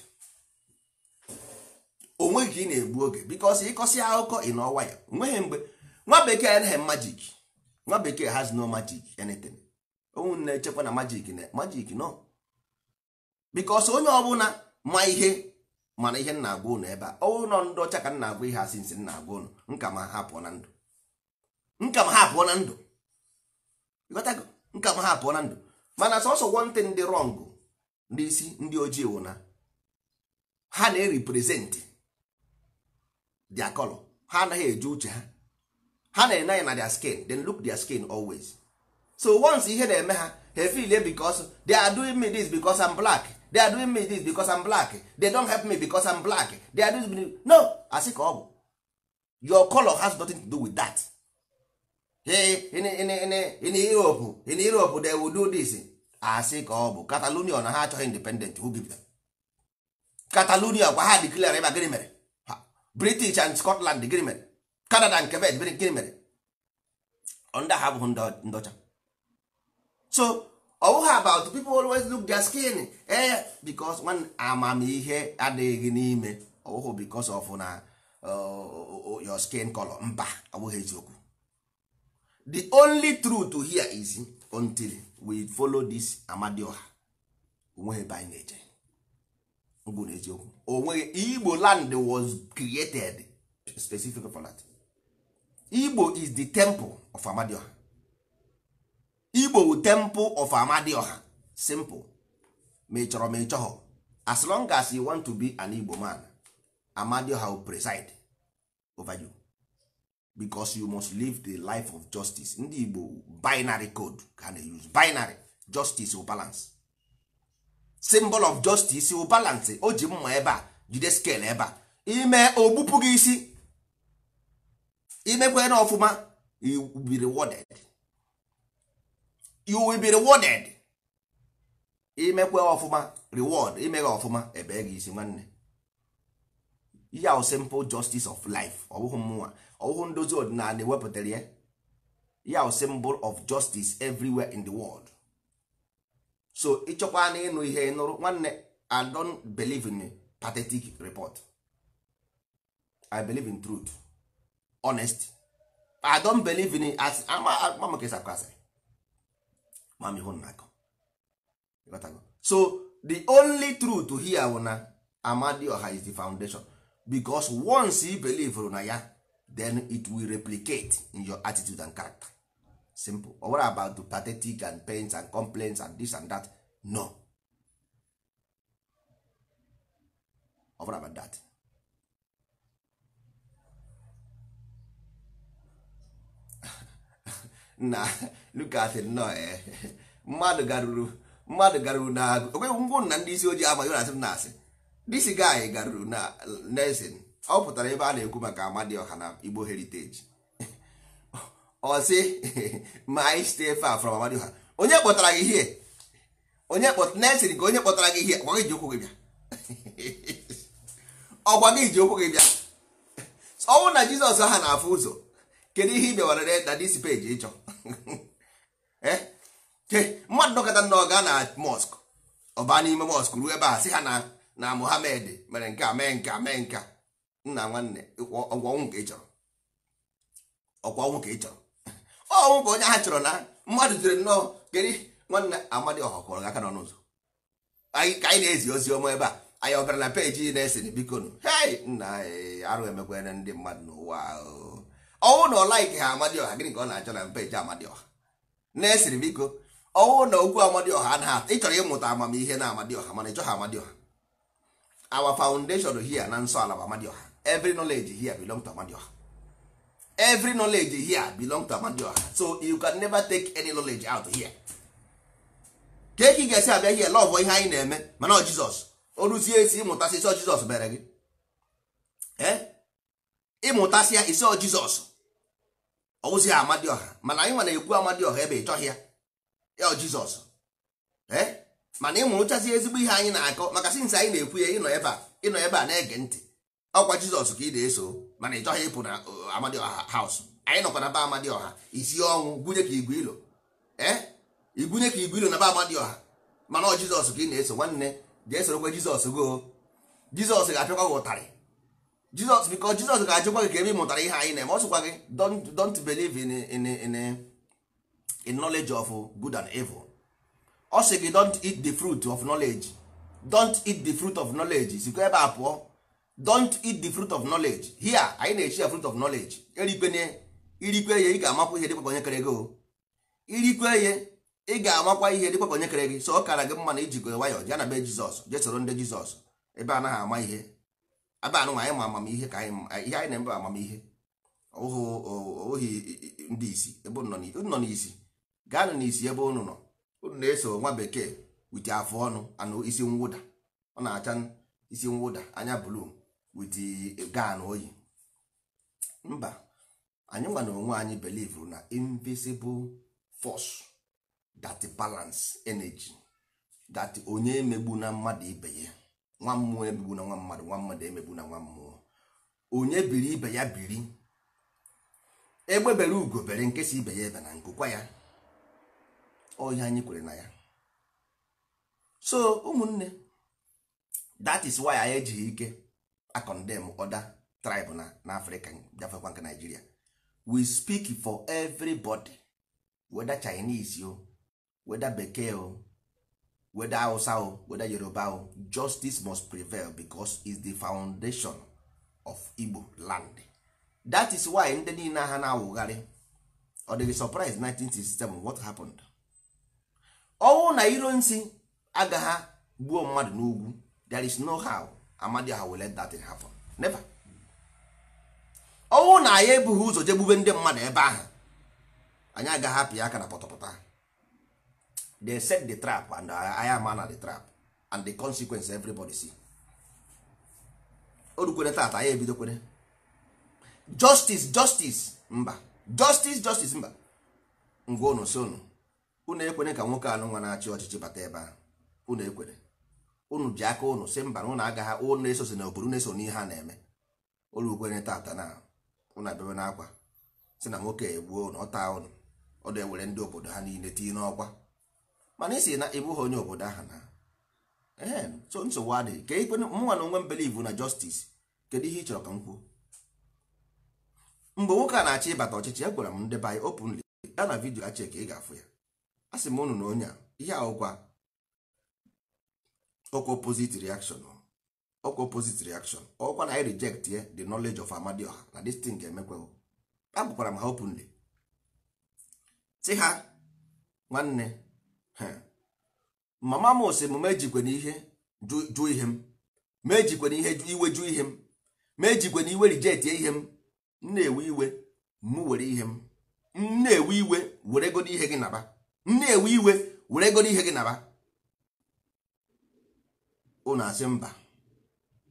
onweghị ị na-egbu oge bikọsi ịkọsị akụkọ ị na ọwa ya nweghị mgbe nwa bekee anaghị majik nwa bekee has no magic anything onwe na-echekwa na majik na majik nọ. bikọsi onye ọbụla ma ihe mana ihe nna agwa ụnụ ebe a ụlọ ndị ọcha ka nna agwa ihe asị nsị nna agwa ụnụ nka ma ha pụọ na ndụ nka ma ha pụọ na ndụ nka ma ha pụọ na ndụ mana sọsọ wọntị ndị rọngụ ndị isi ndị ojii wụ ha na-eriprezentị dia kọlọ ha anaghị eji uche ha ha na-ene anya na dia skin then look dia skin always so once ihe na-eme ha ha efilie because they are doing me this because I'm black they are doing me this because I'm black they don't help me because I'm black they are doing me no asị ka ọ bụ your color has nothing to do with that in, in, Europe in Europe they will do this asị ka ọ bụ Catalonia na ha achọghị independent who give them Catalonia gwa ha declare ebe gịnị mere British and Scotland gịnị mere Canada and Quebec gịnị mere under ha abụghị ndị ọcha so ọ about people always look their skin eh because one amamihe adịghị n'ime ọ bụghị because of na oh, oh, your skin color mba ọ bụghị eziokwu the only truth here is until we follow this amadioha onweghị ebe anyị na-eje bụ na eziokwu onweghị Igbo land was created specifically for that Igbo is the temple of amadioha igbo temple of amadioha simple ma ị chọrọ ma ị chọghọ as long as you want to be an igbo man amadioha will preside over you because you must live the life of justice ndị igbo binary code ka they use binary justice will balance symbol of justice will balance o ji mma ebe a jide scale ebe a ime ogbupụ gị isi imekwe na ọfụma you will be rewarded you will be rewarded imekwe ọfụma reward imeghe ọfụma ebe gị isi nwanne ihe ahụ simple justice of life ọbụghị mmụnwa ọbụghị ndozi ọdịnala ewepụtara ya ihe ahụ symbol of justice everywhere in the world so ịchọkwa na ịnụ ihe ịnụrụ nwanne i don't believe in pathetic report i believe in truth honest i don't believe in as ama maka kwasịrị ma m ihu na-akọ so the only truth here bụ na Amadioha is the foundation because once you believe na ya then it will replicate in your attitude and character simple But what about the pathetic and pains and complaints and this and that no ọ were about that na lukasị nnọọ mmadụ eh. garuru mmadụ garuru na okweghị ngwụ na ndị isi ojii amaghị na asị m na asị disi gaanyị garuru na nesin ọ pụtara ebe a na-ekwu maka Amadioha na Igbo heriteji ọ sị ma anyị site far from Amadioha onye kpọtara gị ihe onye nesin ka onye kpọtara gị ihe ọgwa gị ji ụkwụ gị bịa ọgwa gị ji ụkwụ gị bịa ọnwụ na Jizọs ha na-afụ ụzọ kedu ihe ị bịawara na disi peji ịchọ Eh? mmadụ nọkọta nna ga na mọsk ọba n'ime mọsk ruo ebe a sị ha na na mere nke a mee nke a mee nke a nna nwanne ọgwụ ọnwụ ka ị chọrọ ọgwụ ọnwụ ka ị chọrọ ọnwụ bụ onye ha chọrọ na mmadụ jere nnọọ kedu nwanne amadi ọha kwọrọ aka n'ọnụ ụzọ ka anyị na-ezi ozi ọma ebe a anyị ọ bịara na peji na-esiri biko nụ hei nna arụ emekwana ndị mmadụ n'ụwa ọnwụ na ọ like ha amadioha gịnị ka ọ na-achọ na peji amadioha na-esiri biko ọnwụ na okwu amadioha anaghị ịchọrọ ịmụta amamihe na amadioha mana ịchọghị amadioha our foundation here na nsọ ala bụ amadioha every nọleji here belong to amadioha every nọleji here belong to amadioha so you can never take any knowledge out here ka eke ị ga-esi abịa here lọvụ ihe anyị na-eme mana ọ jizọs o ruzie esi ịmụta sisọ jizọs mere gị ee eh? ịmụtasịa iso jizọs ọwụzi amadịọha mana anyị nwere ekwu amadịọha ebe ịchọghị ya ya jizọs mana ịmụrụchazi ezigbo ihe anyị na-akọ maka sinsi anyị na-ekwu ya ịnọ ebe a ịnọ ebe a na-ege ntị ọkwa jizọs ka ị na-eso mana ị chọghị ịpụ na uh, amadịọha haus anyị nọkwa na ba amadịọha isi ọnwụ gwunye ka igwe ilo igwunye ka igwe ilo na ba amadịọha mana ọ jizọs ka ị na-eso nwanne jee sorokwa jizọs goo jizọs ga-apịakwa gị ụtarị jizọs biko jizọs ga-ajụkwa gị ka ebe ị mụtara ihe anyị na-eme ọ sịkwa gị don't don't believe in in in in knowledge of good and evil ọ sị gị don't eat the fruit of knowledge don't eat the fruit of knowledge sikwa ebe a pụọ don't eat the fruit of knowledge here anyị na-echi ya fruit of knowledge erikwenye irikwe ihe ị ga-amakwa ihe dịkwa onye kere gị irikwe ihe ị ga-amakwa ihe dịkwa onye kere gị so ọ kara gị mma na ijikọ nwayọọ ya na be jizọs jee soro ndị jizọs ebe a anaghị ama ihe Abanụ anụ anyị ma amamihe ka anyị ihe anyị na-eme amamihe ohi ndị isi ebe unu nọ n'isi gaanụ n'isi ebe unu nọ unu na-eso nwa bekee wit afọ ọnụ anụ isi mwụda ọ na-acha isi mwụda anya blu wit gan oyi mba anyị nwa na onwe anyị belivu na invisible force dat balans energy dat onye megbu na mmadụ ibe ya nwa mmụọ ebigbu na nwa mmadụ nwa mmadụ emegbu na nwa mmụọ onye biri ibe ya biri egbebere ugo bere nke ibe ya ebe na nkụkwa ya ọhịa anyị kwere na ya so ụmụnne that is why anyị ejighị ike acondem oda tribe na n'afrịka gafekwa nke naijiria we speak for everybody whether chinese o whether bekee o weda hausa o weda yoruba o justice must prevail because is the foundation of igbo land that is why ndị niile ha na-awụgharị ọ dịghị surprise 1967 what happened ọnwụ na iro nsi agagha gbuo mmadụ n'ugwu there is no how amadi ha will let that thing happen never ọnwụ na anyị ebughị ụzọ jegbube ndị mmadụ ebe ahụ anyị agaghị apị aka na pọtọpọtọ they set the trap and I am man the trap and the consequence everybody see o tata ya ebidokwere justice justice mba justice justice mba ngwa unu si unu unu ekwere ka nwoke anụ nwa na-achị ọchịchị bata ebe ahụ unu ekwere unu ji aka unu si mba na unu agaghị unu esosi na obodo na-eso n'ihe ha na-eme olu tata na unu abịawe n'akwa si na nwoke egbuo unu ọ taa unu ọ na-ewere ndị obodo ha niile tinye n'ọkwa mana isi na ịbụghị onye obodo ahụ na ee so nsogbu adịghị ka ikwe e mụnwa na onwe m na justice kedu ihe ị chọrọ ka m kwuo mgbe nwoke a na-achọ ịbata ọchịchị ya gwara m ndị be anyị openly ya na vidio achị ka ị ga-afụ ya a sị m unu na onye a ihe ahụkwa ọkwa opposite reaction ọkwa opposite reaction ọkwa na anyị reject ye eh, the knowledge of Amadioha na destin ga ga a agwakwara m ha openly sị ha nwanne mama m sị m na ihe jụ ihe m mejikwe na ihe iwe jụ ihe m mejikwe na iwe rijetie ihe m na-ewe iwe m were ihe m na-ewe iwe were godo ihe gị naba nna ewe iwe were godo ihe gị naba unu asị mba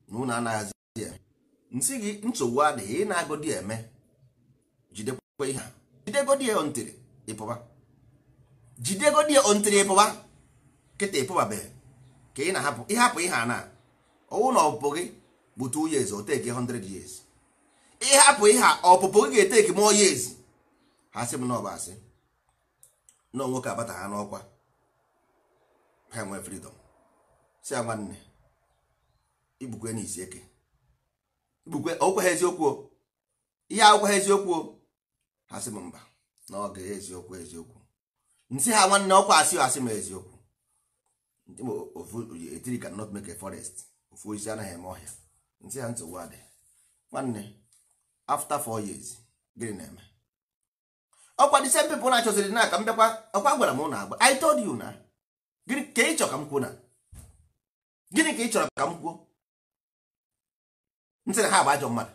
na unu anaghịzi ya nsị gị nsogbu adịghị ị na-agodi eme jidekwa ihe a jidegodi ya ntịrị ịpụba jidegodi ya ontiri ịpụba e kịta e ịpụbabeghị ka ị na-ahapụ ịhapụ ihe a e na ọwụ na ọpụpụ gị bụ two years o teki 100 years ịhapụ ihe a ọpụpụ gị ga-eteki more years ha sị m na ọba asị na nwoke abata ha n'ọkwa ha nwee freedom si ya nwanne igbukwe izi eke igbukwe okwe ha eziokwu ihe akwụkwọ ha eziokwu ha sị m mba na ọ ga eziokwu eziokwu nsị ha nwanne ọkwa asị asị m eziokwu etiri can not make a forest ofu osisi anaghị eme ọhịa nsị ha nsogbu adị nwanne after four years gịnị na-eme ọkwa dị same people na-achọziri na aka m bịakwa ọkwa gwara m na agba I told you na gịnị ka ị chọrọ ka m kwuo na gịnị ka ị chọrọ ka m kwuo nsị na ha bụ ajọ mmadụ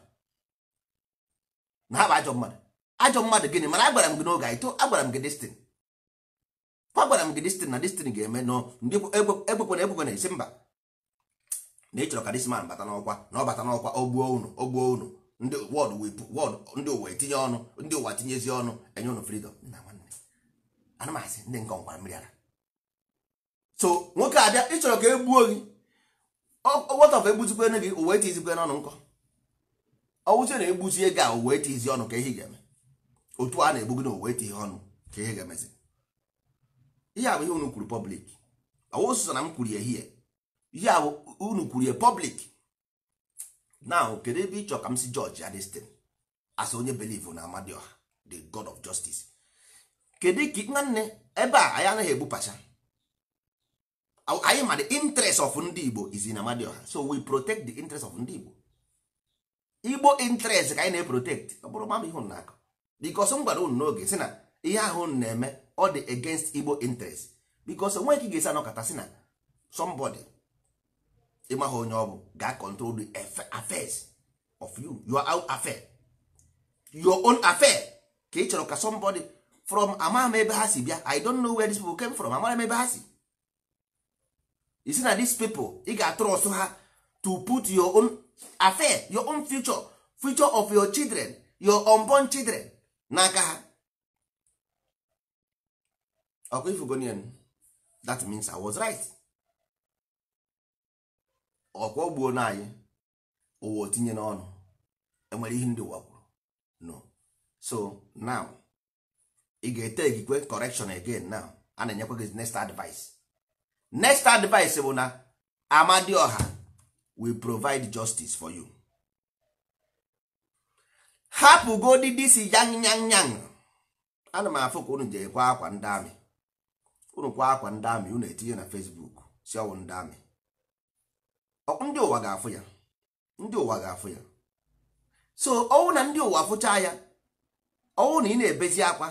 na ha bụ ajọ mmadụ ajọ mmadụ gịnị mana agwara m gị n'oge agwara m gị destin kwa gwara m gị destin na destin ga-eme nọ ndị ekwekwana ekwekwana esi mba na ịchọrọ chọrọ ka disman bata n'ọkwa na ọ bata n'ọkwa ogbuo unu ogbuo unu ndị ụwa etinye ọnụ ndị ụwa tinyezi ọnụ enye ụnụ fridọm na nwanne anụmasị ndị nke ọnwara mmiri ara so nwoke abịa ịchọrọ ka egbuo gị ọwọtọf egbuzikwene gị uwe tizikwe n'ọnụ nkọ ọwụzie na egbuzie gị a uwe tizi ọnụ ka ihe ga-eme otu a na-egbu gị na uwe tihe ọnụ ka ihe ga-emezi ihe a ihe unu kwuru pọblik ọwụsụsọ na m kwuru ehihie ihe a unu kwuru ya pọblik now kedu ebe ịchọ ka m si jọji adestin as onye belivu na amadioha the god of justice kedu ka nwanne ebe a anyị anaghị egbupacha anyị ma the interest of ndị igbo is in amadioha so we protect the interest of ndị igbo igbo interest ka anyị na-eprotect ọ bụrụ mama ihe na akụ bikos m gwara unu n'oge si na ihe ahụ na-eme ọ dị against igbo interest because onwe ka ị ga-esi anọkọta si na somebody ịmaghị onye ọ bụ ga control the affairs of you your own affair your own affair ka ị chọrọ ka somebody from amaghị ebe ha si bịa i don't know where these people came from amaghị m ebe ha si isi na these people ị ga-atụrụ ha to put your own affair your own future future of your children your unborn children n'aka ha ọkwa ifugonian that means i was right ọkwa ogbuo na anyị ụwa otinye n'ọnụ enwere ihe ndị ụwa kwuru no so now ị ga-ete egikwe correction again now a na-enyekwa gị next advice next advice bụ na amadioha we provide justice for you hapụgodị disi yang yang yang ana m afụ ka unu ji ekwe akwa ndị amị ụrụkwa akwa ndị amị unu etinye na Facebook si ọwụ ndị amị ndị ụwa ga-afụ ya ndị ụwa ga-afụ ya so ọwụ na ndị ụwa fụcha ya ọwụ na ị na-ebezi akwa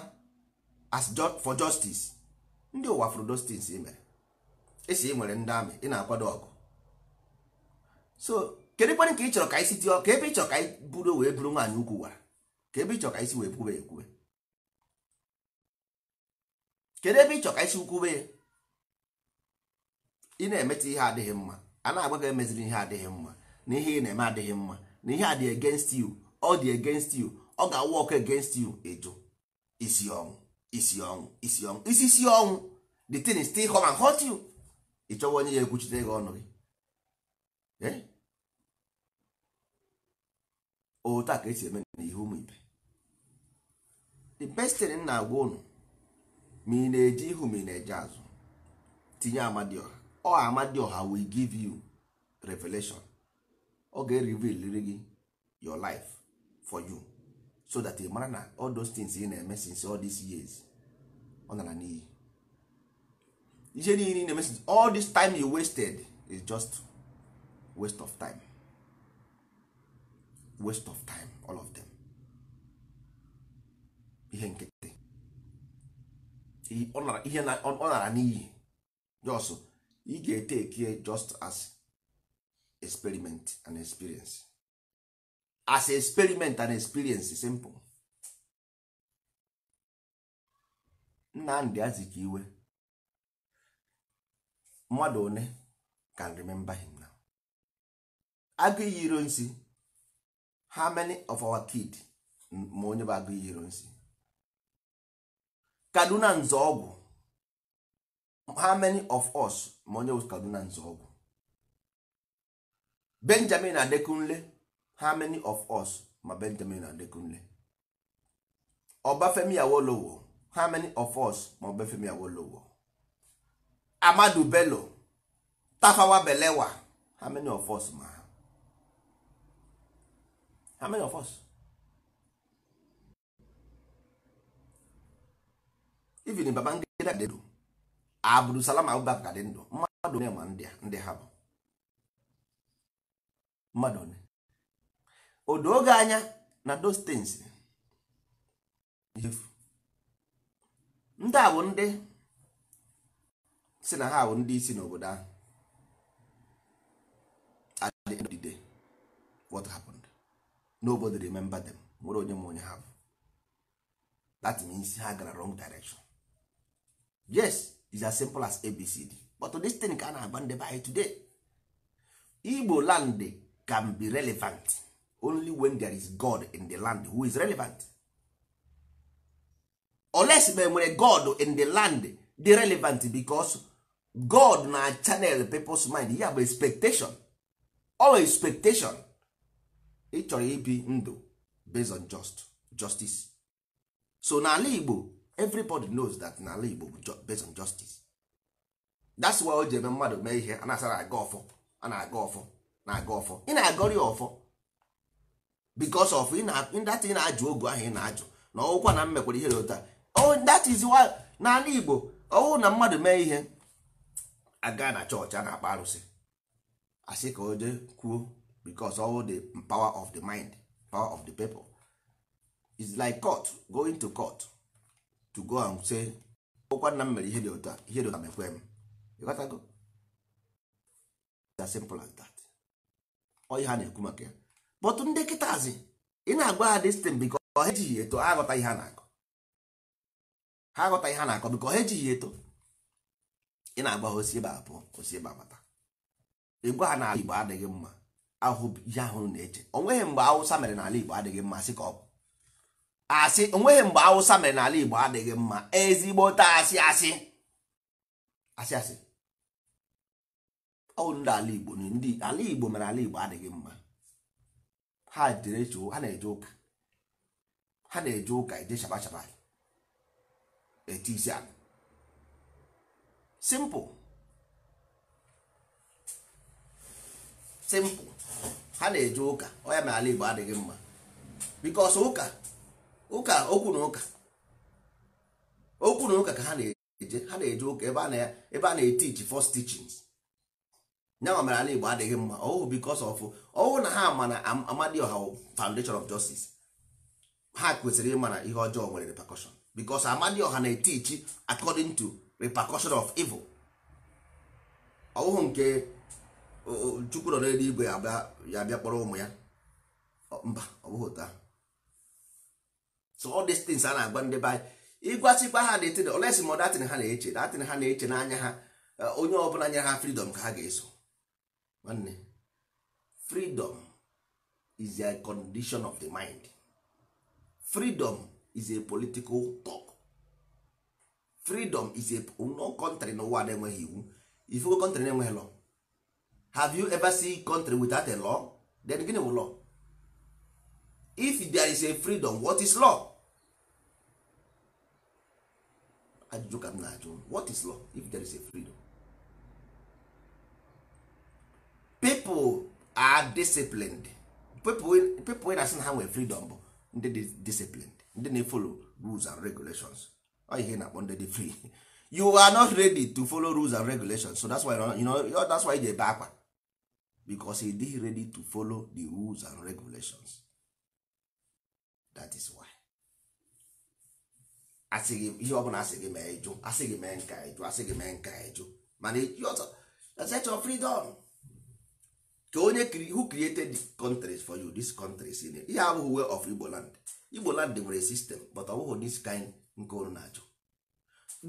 as for justice ndị ụwa fụrụ dostins mere esi ị e nwere ndị amị ị na-akwado ọgụ so kedu kwanị ka ị chọrọ ka anyị si ka ebe ị chọrọ ka anyị buru wee buru nwaanyị ukwu wara ka ebe ị chọrọ ka anyị si wee kwube ekwube kedu ebe ị chọ ka isi ukwube ya ị na-emeta ihe adịghị mma a na-agba gị emeziri ihe adịghị mma na ihe ị na-eme adịghị mma na ihe a dị against you ọ dị against you ọ ga-awụ ọkụ against you ịjụ isi ọnwụ isi ọnwụ isi ọnwụ isi si ọnwụ the thing is still come and hurt you ị chọwa onye ya ekwuchite gị ọnụ gị otu a ka esi eme n'ihe ụmụ ibe the best thing na-agwa ụnụ ma ị na-eje ihu ma ị na-eje azụ tinye amadioha ọ amadioha we give you revelation ọ ga-reveal gị your life for you so that ị mara na all those things ị na-eme since all these years ọ nara n'iyi ihe niile ị na-eme since all this time you wasted is just waste of time waste of time all of them ihe nkịtị ihe ọ nara n'iyi jos ị ga-ete eke just as experiment and experience as experiment and experience simple nna Nnamdi Azikiwe mmadụ one can remember him now agụ iyi iro nsi how many of our kid ma onye bụ agụ iyi iro nsi kaduna nzọọgwụ how many of us ma onye wụ kaduna nzọọgwụ benjamin adekunle how many of us ma benjamin adekunle ọbafemi awolowo how many of us ma ọbafemi awolowo amadu bello tafawa belewa how many of us ma ha. many of us even Babangida dị ndụ Abdulsalam Abubakar dị ndụ mmadụ onye ma ndị ha bụ mmadụ onye odo oge anya na those things ndị a bụ ndị si na ha bụ ndị isi n'obodo ahụ at the what happened nobody remember them nwere onye ma onye ha bụ that means ha gara wrong direction yes is as simple as abcd but this thing ka a na-agba ndị be today igbo land can be relevant only when there is god in the land who is relevant oles ma nwere god in the land dey relevant because god na channel people's mind ya bụ expectation all expectation ị chọrọ ibi ndụ based on just justice so n'ala igbo everybody knows that n'ala Igbo bụ based on justice that's why o ji eme mmadụ mee ihe a na-asara aga ọfọ a na-aga ọfọ na-aga ọfọ ị na-agọrị ọfọ because of that ị na-ajụ ogu ahụ ị na-ajụ na ọwụkwa na mmekwara ihe ụta oh, that is why n'ala Igbo ọwụ na mmadụ mee ihe aga na chọọchị a na-akpa arụsị asị ka o jee kwuo because ọwụ the power of the mind power of the people is like court going to court to go and say ụkwa nna m mere ihe dị otu ihe dị otu a mekwe m ịghọtago as simple as that ọyị ha na-ekwu maka ya but ndị kịtazi ị na-agwa ha destin biko ha ejighị eto ha aghọta ihe ha na-akọ ha aghọta ihe ha na-akọ biko ha ejighị eto ị na-agwa ha osi ebe a pụọ osi ebe abata ịgwa ha n'ala Igbo adịghị mma ahụ ihe ahụ na-eche o nweghị mgbe Awụsa mere n'ala Igbo adịghị mma sị ka ọ bụ asị onweghị mgbe awụsa mere n'ala igbo adịghị mma ezigbote asị asị asị asị ọ ndị ala igbo ndị ala igbo mere ala igbo adịghị mma ha ha na-eje ụka ha na-eje ụka eje shabashaba eti isi ala simple simple ha na-eje ụka ọ ya mere ala igbo adịghị mma because ụka ụka okwu na ụka okwu na ụka ka ha na-eje ha na-eje ụka ebe a na-etiji fọs teachings nyanwa mere ala Igbo adịghị mma ọwụ bikos of ọhụụ na ha ma na Amadioha foundation of justice ha kwesịrị ịma na ihe ọjọọ nwere bikos because Amadioha na-etichi according to repercussion of evil ọhụhụ nke Chukwu nọ n'eluigwe ya bịa kpọrọ ụmụ ya mba ọ bụghị ahụ so all these things a na-agwa ndị be anyị ịgwasịkwa ha datin olesi ma datin ha na-eche datin ha na-eche n'anya ha e, onye ọbụla nyere ha freedom ka ha ga-eso nwanne freedom is a condition of the mind freedom is a political talk freedom is a no country n'ụwa na-enweghị iwu ifugo country na-enweghị law have you ever seen country without a law then gịnị bụ law if there is a freedom what is law ajụjụ ka m na-ajụ what is law if there is a freedom people are disciplined people wey na-asị na ha nwere freedom bụ ndị dị disciplined ndị na-efolo rules and regulations ọ ihe na-akpọ ndị dị free you are not ready to follow rules and regulations so that's why you know that's why ị ebe akwa because ị dey ready to follow the rules and regulations that is why Asị gị ihe ọbụla asị gị mee ịjụ asị gị mee nka ịjụ asị gị mee nka ịjụ mana ọzọ freedom ka onye who created countries for you this countries ihe abụghị way of Igbo land Igbo land nwere system but ọ bụghị this kind nke unu na-ajụ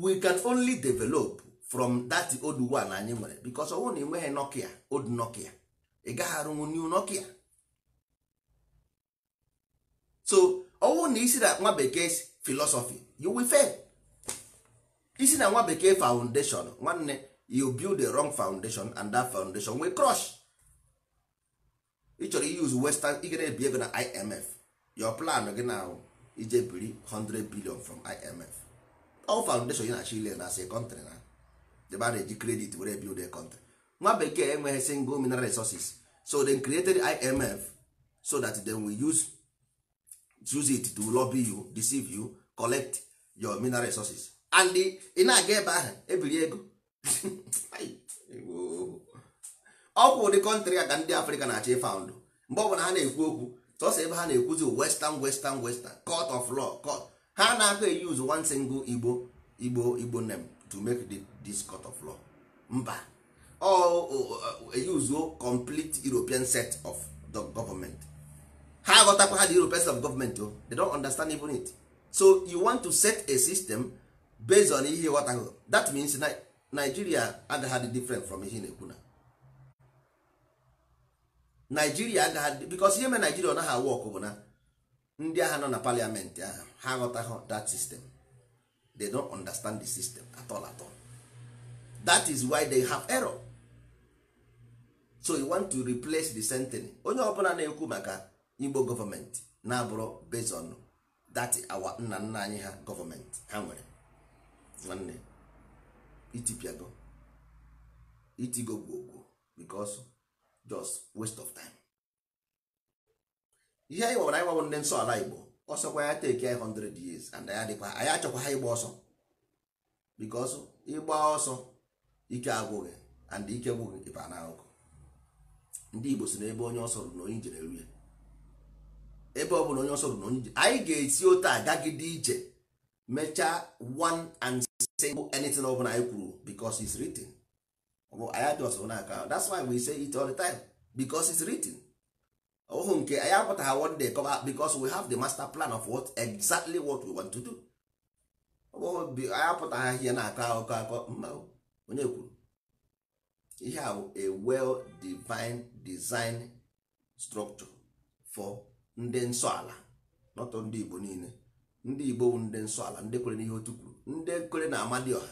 we can only develop from that old one anyị nwere because ọ bụrụ na ị nweghị Nokia old Nokia ị gaghị arụnwu new Nokia so ọ bụrụ na isi na nwa bekee si philosophy you will fail isi na nwa bekee foundation nwanne you build a wrong foundation and that foundation wey crush ị chọrọ use western ị gana ebi ego na imf your plan gị na ije biri 100 billion from imf all foundation na chile na say country na debe a na-eji credit were build a country nwa bekee enweghị single mineral resources so dem created imf so that dem will use use it to lobby you deceive you collect your mineral resources and ị ebe ahụ ebiri ego ọ ụdị kọntrị a ndị afrịka na-achọ ịfaụndụ mgbe ọbụla ha na-ekwu okwu sọsọ ebe ha na-ekwuzi western western western court of law court ha na-aga eyuz one single igbo igbo igbo name to make this court of law mba ọ eyuzuo complete european set of the government ha aghọtakwa ha the europeans of government o they don't understand even it so you want to set a system based on ihe ghọtahụ that means nigeria agaghị dị different from ihe na-ekwu na nigeria agaghị because ihe mere nigeria ọ naghị awụ ọkụ bụ na ndị agha nọ na parliament ahụ ha aghọtaghị that system they don't understand the system at all at all that is why they have error so you want to replace the sentence onye ọbụla na-ekwu maka igbo gọọmenti na-abụrụ based on awa nna nna anyị ha gọọmenti ha nwere nwanne itipiago itigo gwogwo because just waste of time ihe anyị gwara anyị gwabụ ndị nsọ ala igbo ọsọkwa ya teki anyị 100 years and ya adịkwa anyị achọkwa ha ịgba ọsọ because ịgba ọsọ ike agwụghị and ike gwụghị ịba na ndị igbo si n'ebe onye ọsọ rụrụ na onye njere ya ebe ọ bụla onye ọsọ bụ na onye anyị ga-esi otu agagide ije mechaa one and single anything ọ bụla anyị kwuru because it's written bụ anyị adị ọsọ n'aka that's why we say it all the time because it's written ọhụ nke anyị apụtaghị one day kọba because we have the master plan of what exactly what we want to do anyị apụtaghị ihe na-akọ akụkọ akọ mma onye kwuru ihe a a well divine design structure for ndị nsọ ala nọtọ ndị igbo niile ndị igbo bụ ndị nsọ ala ndị kwere n'ihe otu kwuru ndị kwere na amadioha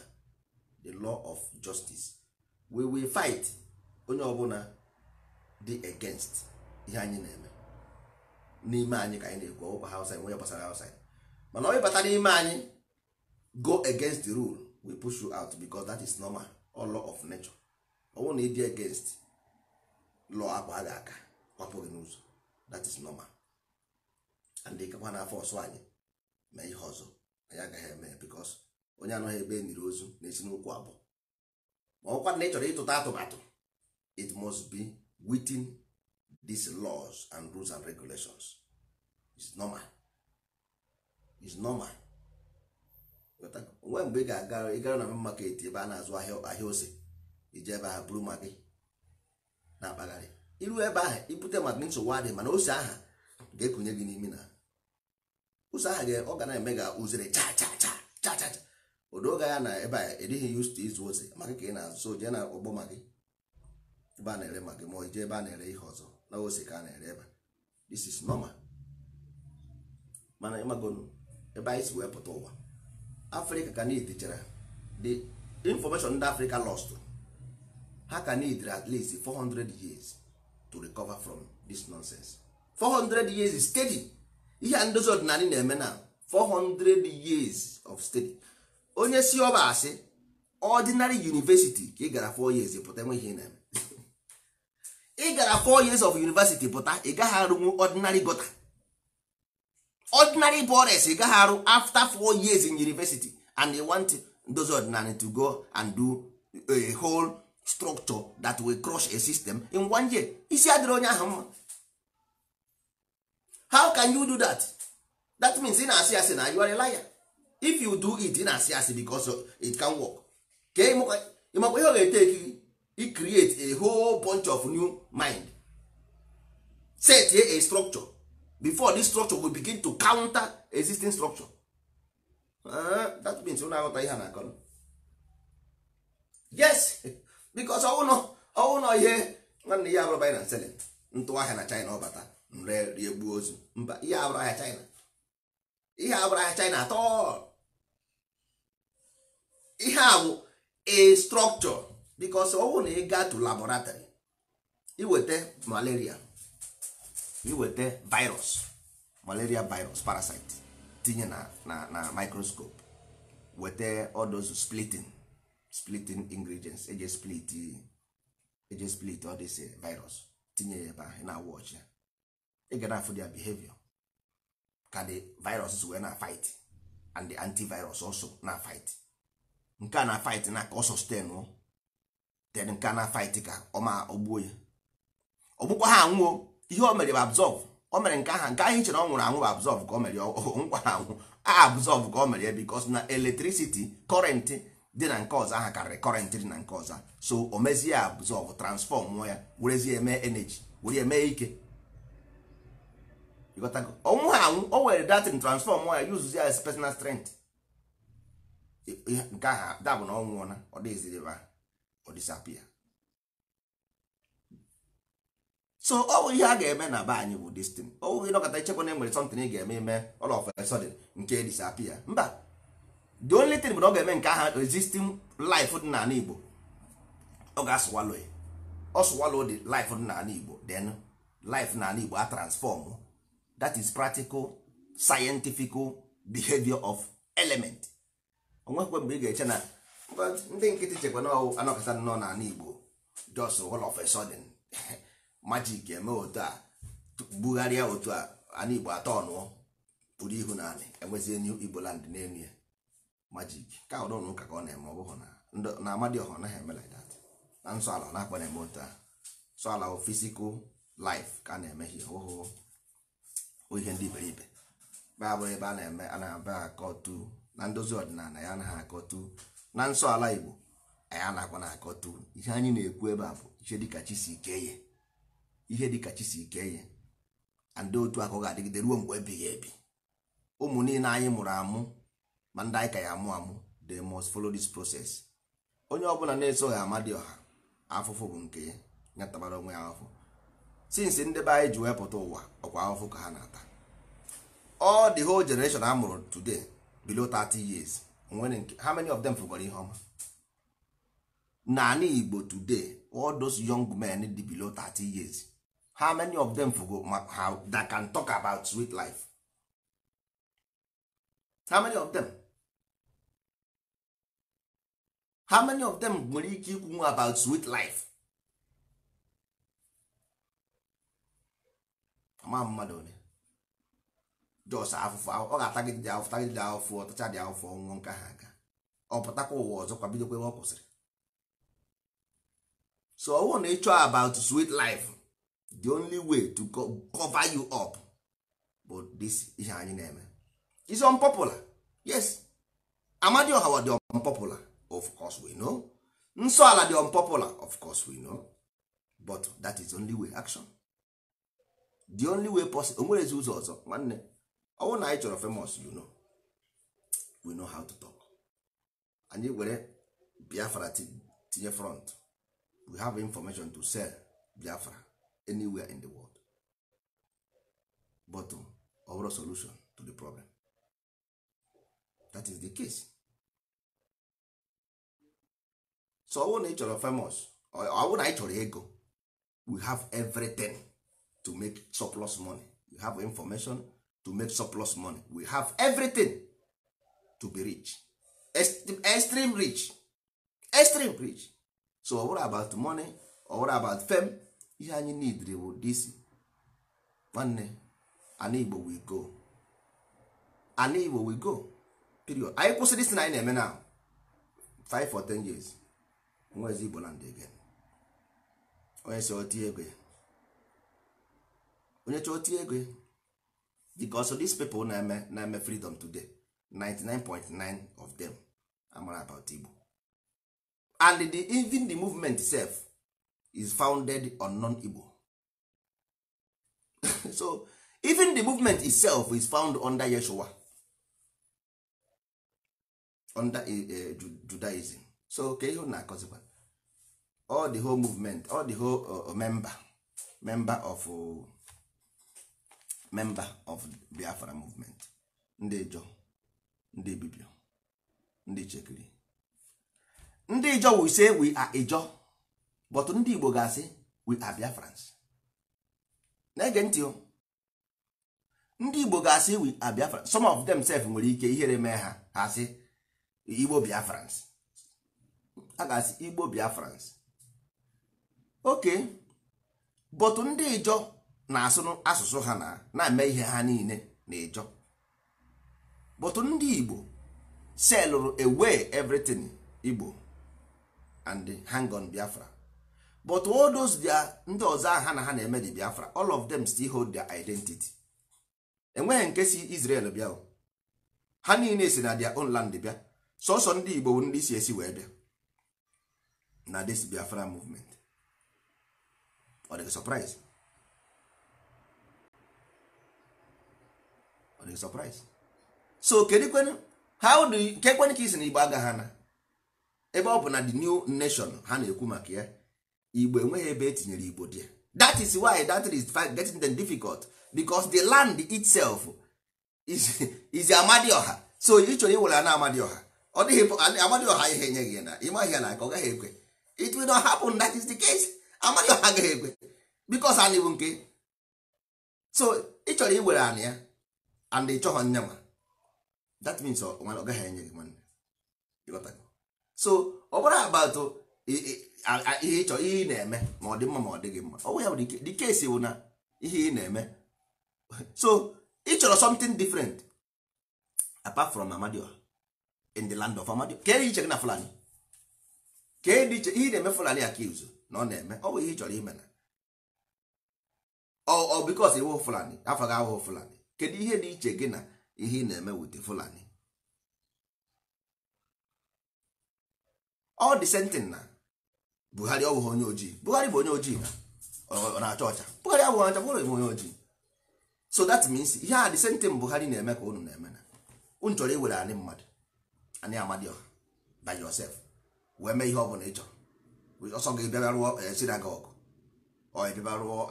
the law of justice we will fight onye ọbụla dị against ihe anyị na-eme n'ime anyị ka anyị na-ekwu ọkwa hausa nwe gbasara hausa mana onye bata n'ime anyị go against the rule we push you out because that is normal or law of nature ọnwụ na ịdị against law akpa a ga-aka ọpụghị n'ụzọ that is normal ndị na-afọ ọsọ anyị mee ihe ọzọ anyị agaghị eme bikos onye anọghị ebe e niri ozu na-esi abụọ ma ọkwa na ị chọrọ ịtụta atụmatụ it must be within these laws and rules and regulations is normal is normal onwe mgbe ị ga-aga gara na maket ebe a na-azụ ahịa ose ije ebe ahụ buru ma gị na-akpagharị iru ebe ahụ ibute maka nsogbu adịghị mana ose aha ga-ekunye gị n'imi na ụzọ ahụ ga ọ ga na-eme ga uzere cha cha cha cha cha odoga ya na ebe a edighị used to izu ozi maka ka ị na-azụ so jee na ọgbọ magị ebe a na-ere magị ma ije ebe a na-ere ihe ọzọ na ose ka a na-ere ebe this is normal mana ịmagonu ebe anyị si wee pụta ụwa afrịka ka niile chara the information ndị afrịka lost ha ka need at least 400 years to recover from this nonsense 400 years steady ihe a ndozi ọdịnala na-eme na 400 years of study onye si ọba asị ordinary university ka ị gara 4 years pụta enweghị ihe na-eme ị gara 4 years of university pụta ị gaghị arụnwu ordinary gota ordinary bores ị gaghị arụ after 4 years in university and you want ndozi ọdịnala to go and do a whole structure that will crush a system in one year isi adịrị onye ahụ mma how can you do that that means ị na-asị asị na you are a liar if you do it ị na-asị asị because it can work ka ịmakwa ihe ọ ga-eteki gị create a whole bunch of new mind set a structure before this structure will begin to counter existing structure uh, that means ụ na-aghọta ihe na-akọ yes because ọwụnọ ihe nwanne ya abụrụ binance ntụwa ahịa na China ọ bata nre riegbuo ozu mba ihe abụrụ ahịa China ihe abụrụ ahịa China atọ ihe a bụ a structure because ọ bụrụ na ị gaa to laboratory iweta malaria iweta virus malaria virus parasite tinye na na na microscope weta odozu splitting splitting ingredients eje split eje split ọ dịsị eh, virus tinye ya ebe ahụ na-awụ ọchịa ị ga afụ their behavior ka the virus wee na fight and the antivirus also na fight nke a na fight na ka ọ sustain o then nke a na fight ka ọ ma ogbuo ya ọgbụkwa ha anwụọ ihe o mere bụ absorb o mere nke aha nke ahụ ichere ọ nwụrụ anwụ bụ absorb ka o mere nkwa ha anwụ a absorb ka o mere ya because na electricity current dị na nke ọzọ aha karịrị current dị na nke ọzọ so o mezie absorb transform ya werezie eme energy were eme ike ọnwụ ha anwụ o were datin transfọm ya yuzuzi ya as personal strength nke ahụ dabụ na ọnwụ nwụọna ọ dịziri ebe ọ disapia so ọ bụ ihe a ga-eme na be anyị bụ destin ọ bụghị ịnọkọta ichekwa na e nwere something ị ga-eme ime all ọf a sudden nke disapia mba the only thing bụ na ọ ga-eme nke ahụ resisting life dị n'ala Igbo ọ oh, ga-asụwalo ọ oh, sụwalo dị life dị n'ala Igbo den life n'ala Igbo a transfọm oh. that is practical scientific behavior of element onwekwe mgbe ị ga-eche na ndị nkịtị chekwa na anọkọta nọ n'ala Igbo just all of a magic eme otu a bugharịa otu a ala Igbo atọ ọnụọ pụrụ ihu na anị enwezie new Igbo land n'elu ya magic ka ọ dọnụ ụka ka ọ na-eme ọ bụghị na Amadioha ọ naghị eme like that na nsọ ala ọ na-akpa na-eme otu a nsọ ala physical life ka a na-eme ihe ọhụụ bụ ihe ndị be abụghị ebe a na-eme a na-aba akọtu na ndozi ọdịnala ya anaghị akọtu na nsọ ala igbo na-akwa na akọtu ihe anyị na-ekwu ebe a bụ ihe dịka chi ike ihe dịka chi ikeye ike ndị otu akụ ga-adịgide ruo mgbe ebighị ebi ụmụ niile anyị mụrụ amụ ma ndị anyị ka ya amụ amụ they must follow this process onye ọbụla na-esoghị amadi ọha afụfụ bụ nke ya ya onwe ya afọ since ndị be anyị ji wee pụta ụwa ọkwa ahụhụ ka ha na-ata all the whole generation a mụrụ today below 30 years how many of them fụgwara ihe ọma naanị Igbo today all those young men dị below 30 years how many of them fugo how that can talk about sweet life how many of them how many of them nwere ike ikwu about sweet life ama mmadụ ole jọs afụfụ ọ ga-atagide dị afụfụ tagide dị afụfụ ọtacha dị afụfụ ọnwụọ nke ha aga ọ pụtakwa ụwa ọzọ kwa bidokwa ebe ọ kwụsịrị so ọwụ na ịchọ about sweet life the only way to cover you up bụ this ihe anyị na-eme is unpopular yes amadioha wa dị unpopular of course we know nsọ ala dị unpopular of course we know but that is only way action the only way possible onwerezi ụzọ ọzọ nwanne ọnwụ na anyị chọrọ famous you know we know how to talk anyị were biafra tinye front we have information to sell biafra anywhere in the world but um, ọ bụrụ solution to the problem that is the case so ọnwụ na ị chọrọ famous ọnwụ na anyị chọrọ ego we have everything to make surplus money we have information to make surplus money we have everything to be rich extreme rich extreme rich so what about money or what about fame ihe anyị need bụ this nwanne ana igbo we go ana igbo we go period anyị kwụsịrị isi na anyị na-eme na 5 or 10 years nwezi igbo land again onye si otie egwe onye chọọ tie ego because these people na-eme na-eme freedom today 99.9 of them amara about Igbo and the, even the movement itself is founded on non-Igbo so even the movement itself is found under Yeshua under uh, Judaism so ka ihe na-akọzikwa all the whole movement all the whole uh, member member of uh, member of biafra movement ndị ijọ ndị bibio ndị chekiri ndị ijọ we say we are ijọ but ndị igbo ga-asị we are biafrans na-ege ntị o ndị igbo ga-asị we are biafrans some of self nwere ike ihere mee ha ha asị igbo biafrans a ga-asị igbo biafrans oke but ndị ijọ na-asụ asụsụ ha na na-eme ihe ha niile na-ejọ bụtụ ndị Igbo selụrụ away everything Igbo and hang on Biafra but all dia ndị ọzọ ahụ ha na ha na-eme di Biafra all of them still hold their identity enweghị nke si Israel bịa ha niile si na dia own land bịa sọsọ ndị Igbo ndị si esi wee bịa na this Biafra movement ọ dị surprise ọ dị surprise so how do you kekwenụ ka isi na igbo agaghị ana ebe ọ bụ na the new nation ha na-ekwu maka ya igbo enweghị ebe etinyere igbo dị that is why that is getting them difficult because the land itself is is ọha so ị chọrọ iwere na amadioha ọ dịghị ọha ihe enye gị na ịmaghị ya na aka ọ gaghị ekwe it will not happen that is the case ọha agaghị ekwe because anị nke so ị chọrọ iwere anị ya and ị chọghọ nne nwa that means ọ gaghị enye gị nwanne so ọ oh, bụrụ about ihe ịchọ ihe ị na-eme ma ọ dị mma ma ọ dịghị mma ọ bụ ya bụ dike esi bụ na ihe ị na-eme so ị chọrọ something different apart from Amadio in the land of Amadio ka iche gị na Fulani ka dị iche ihe na-eme eh, Fulani accuse na ọ na-eme ọ bụ ihe ị chọrọ ime na ọ bikos iwu Fulani afọ gị ahụhụ Fulani kedu ihe dị iche gị na ihe ị na-eme wit fulani ọ dị sentin na buhari ọbụghị onye ojii buhari bụ onye ojii na-acha ọcha buhari abụghị ọcha bụrụ bụ onye ojii so that means ihe a dị sentin buhari na-eme ka unu na-eme na unu chọrọ iwere anyị mmadụ anyị amadioha by yourself wee mee ihe ọ bụla ị chọrọ ọsọ gị bịara rụọ eh, sinagogu ọ bịara rụọ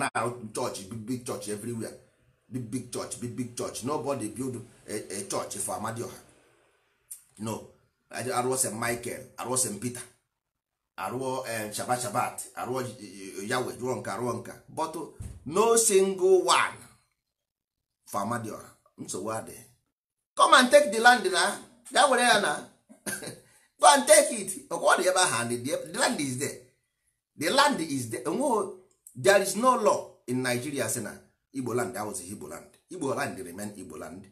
na-arụ chọọchị big chọọchị everywhere big big church big big church nobody build a, a church for amadioha no arụọ st michael arụọ st peter arụọ eh, shabat shabat arụọ eh, eh, yawe jụọ nka arụọ nka but oh, no single one for amadioha nsogbu adịghị come and take the land na ya were ya na go and take it ọkwa dị ebe hand the land is there the land is there there is no law in nigeria sị na igbo land awụzị igbo land igbo land remain igbo land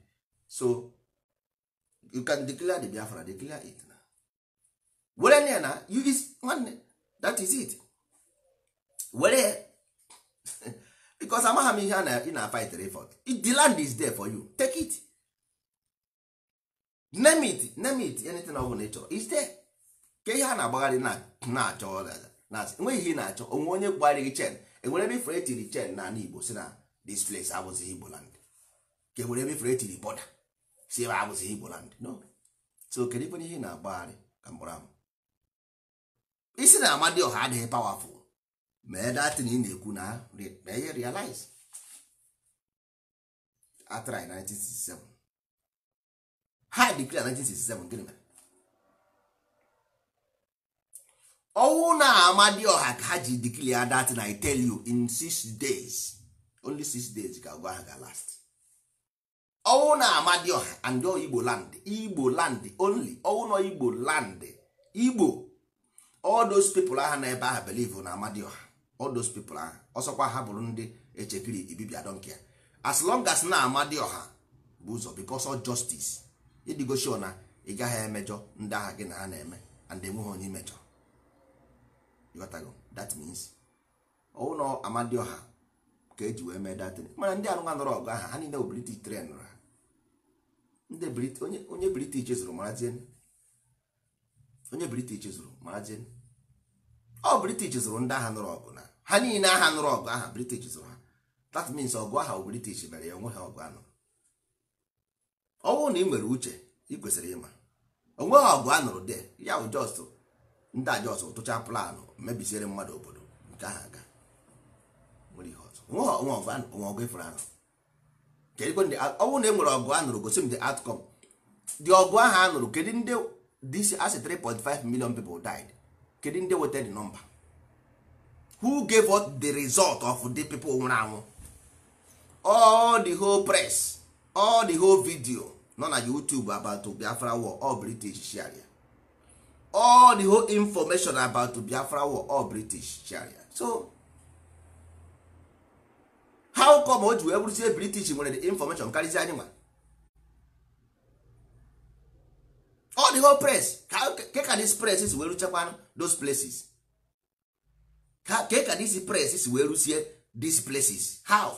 so you can declare the biafra declare it na were na na you is one that is it were because amagha m ihe ị na-fight If the land is there for you take it name it name it anything ọ bụla ị chọrọ is there ka ihe a na-agbagharị na-achọ enweghị ihe ị na-achọ onwe onye gbara gị chen enwere ebe ifere etiri chen na igbo si na this place abụzighị igbo land ka e nwere ebe ifere etiri bọda si ebe abụzighị igbo land no so kedu ikwenye ihe na-agbagharị ka mkpụrụ amụ isi na amadioha adịghị pawafụl mee na ị na-ekwu na ihe realize atrai 1967 ha dikri 1967 gịnị mere ọnwụ na amadioha ka ha ji dikri ya datin i tell you in six days only six days ka agwa ga last ọnwụ na ọha and igbo land igbo land only ọnwụ na igbo land igbo all those people aha na ebe aha believe na amadioha all those people aha ọsọkwa ha bụrụ ndị echekiri ibibia donkia as long as na amadioha bụ ụzọ because of justice ịdịgoshio na ị gaghị emejọ ndị agha gị na ha na-eme and enweghị onye imejọ that means ọnwụ na amadioha ka eji wee mee datin mana ndị arụnwa nọrọ ọgụ aha ha niile bụ british tren ha onye british zụrụ marazin ọ british zụrụ ndị agha nụrụ ọgụ na ha niile agha nụrụ ọgụ aha british zụrụ ha that means ọgụ aha british mere ya onwe ha ọgụ anụrụ ọ bụrụ na ị nwere uche ị kwesịrị ịma onweghị ọgụ anụrụ de ya bụ just ndị a just tụcha planụ mebisiere mmadụ obodo nke aha aga nwa ọgụ ifụrụ anụ ọnwụ na e nwere ọgụ a nụrụ gosi m the outcome dị ọgụ ahụ a nụrụ kedu ndị this as 3.5 million people died kedu ndị weta the nọmba? who gave us the result of the people nwụrụ anwụ all the whole press all the whole video nọ na youtube about biafra war all british sharia all the whole information about biafra war all british sharia so how come o ji wee bụrụzie british nwere the information karịsịa anyị nwa all the whole press ke ka this press si wee ruchekwa those places ke ka this press si wee rusie these places how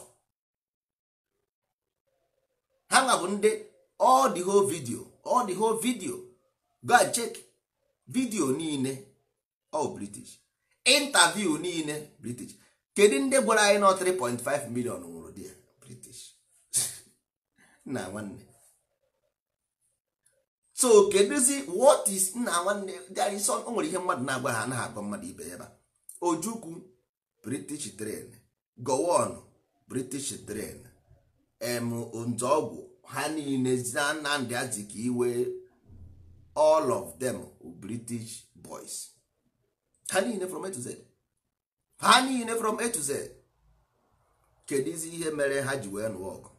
ha nwa bụ ndị all the whole video all the whole video go and check video niile all oh, british interview niile british kedu ndị gwara anyị na 3.5 million nwụrụ di ya british nna nwanne so kedụzi what is nna nwanne dị sọ o nwere ihe mmadụ na-agwa ha anaghị agwa mmadụ ibe ya ba ojukwu british train gowon british train em nzọgwụ ha niile zina nnamdị ka iwe all of them british boys ha niile from A to Z ha niile from A to Z kedizi ihe mere ha ji wee nụọ ọgụ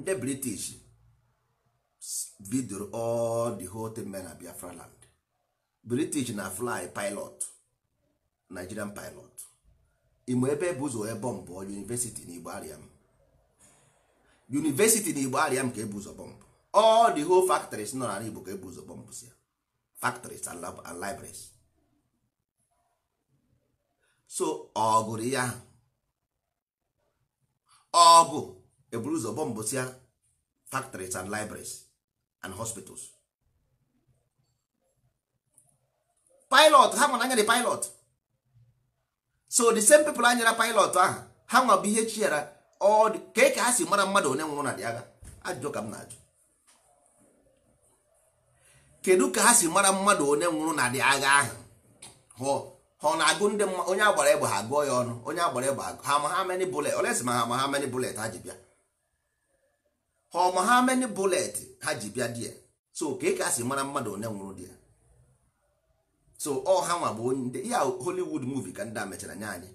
ndị british bidoro all the whole thing na biafra land british na fly pilot nigerian pilot imo ebe bụ ụzọ ebe bọmbụ university na igbo ariam university na igbo ariam ka ebu ụzọ bọmbụ all the whole factories nọ na igbo ka ebu ụzọ bọmbụ si factories and, and libraries so ọ gụrụ ya ahụ ọ eburu ụzọ bọmbụsịa factories and libraries and hospitals pilot ha nwere anyara pilot so the same people anyara pilot ahụ ha nwa bụ ihe chiara kee ka ha si mara mmadụ onye nwụrụ na dị agha ajụjụ ka m na-ajụ kedu ka ha si mara mmadụ onye nwụrụ na dị agha ahụ hụọ ha na-agụ ndị mma onye agbara egbe ha gụọ ya ọnụ onye agbara egbe ha ma ha many bullet olesi ma ha ma ha many bullet ha ji bịa ha ma ha many bullet ha ji bịa di ya so ka ị ka si mara mmadụ onye nwụrụ di ya so ọ ha nwa bụ onye ya Hollywood movie ka ndị a mechara nye anyị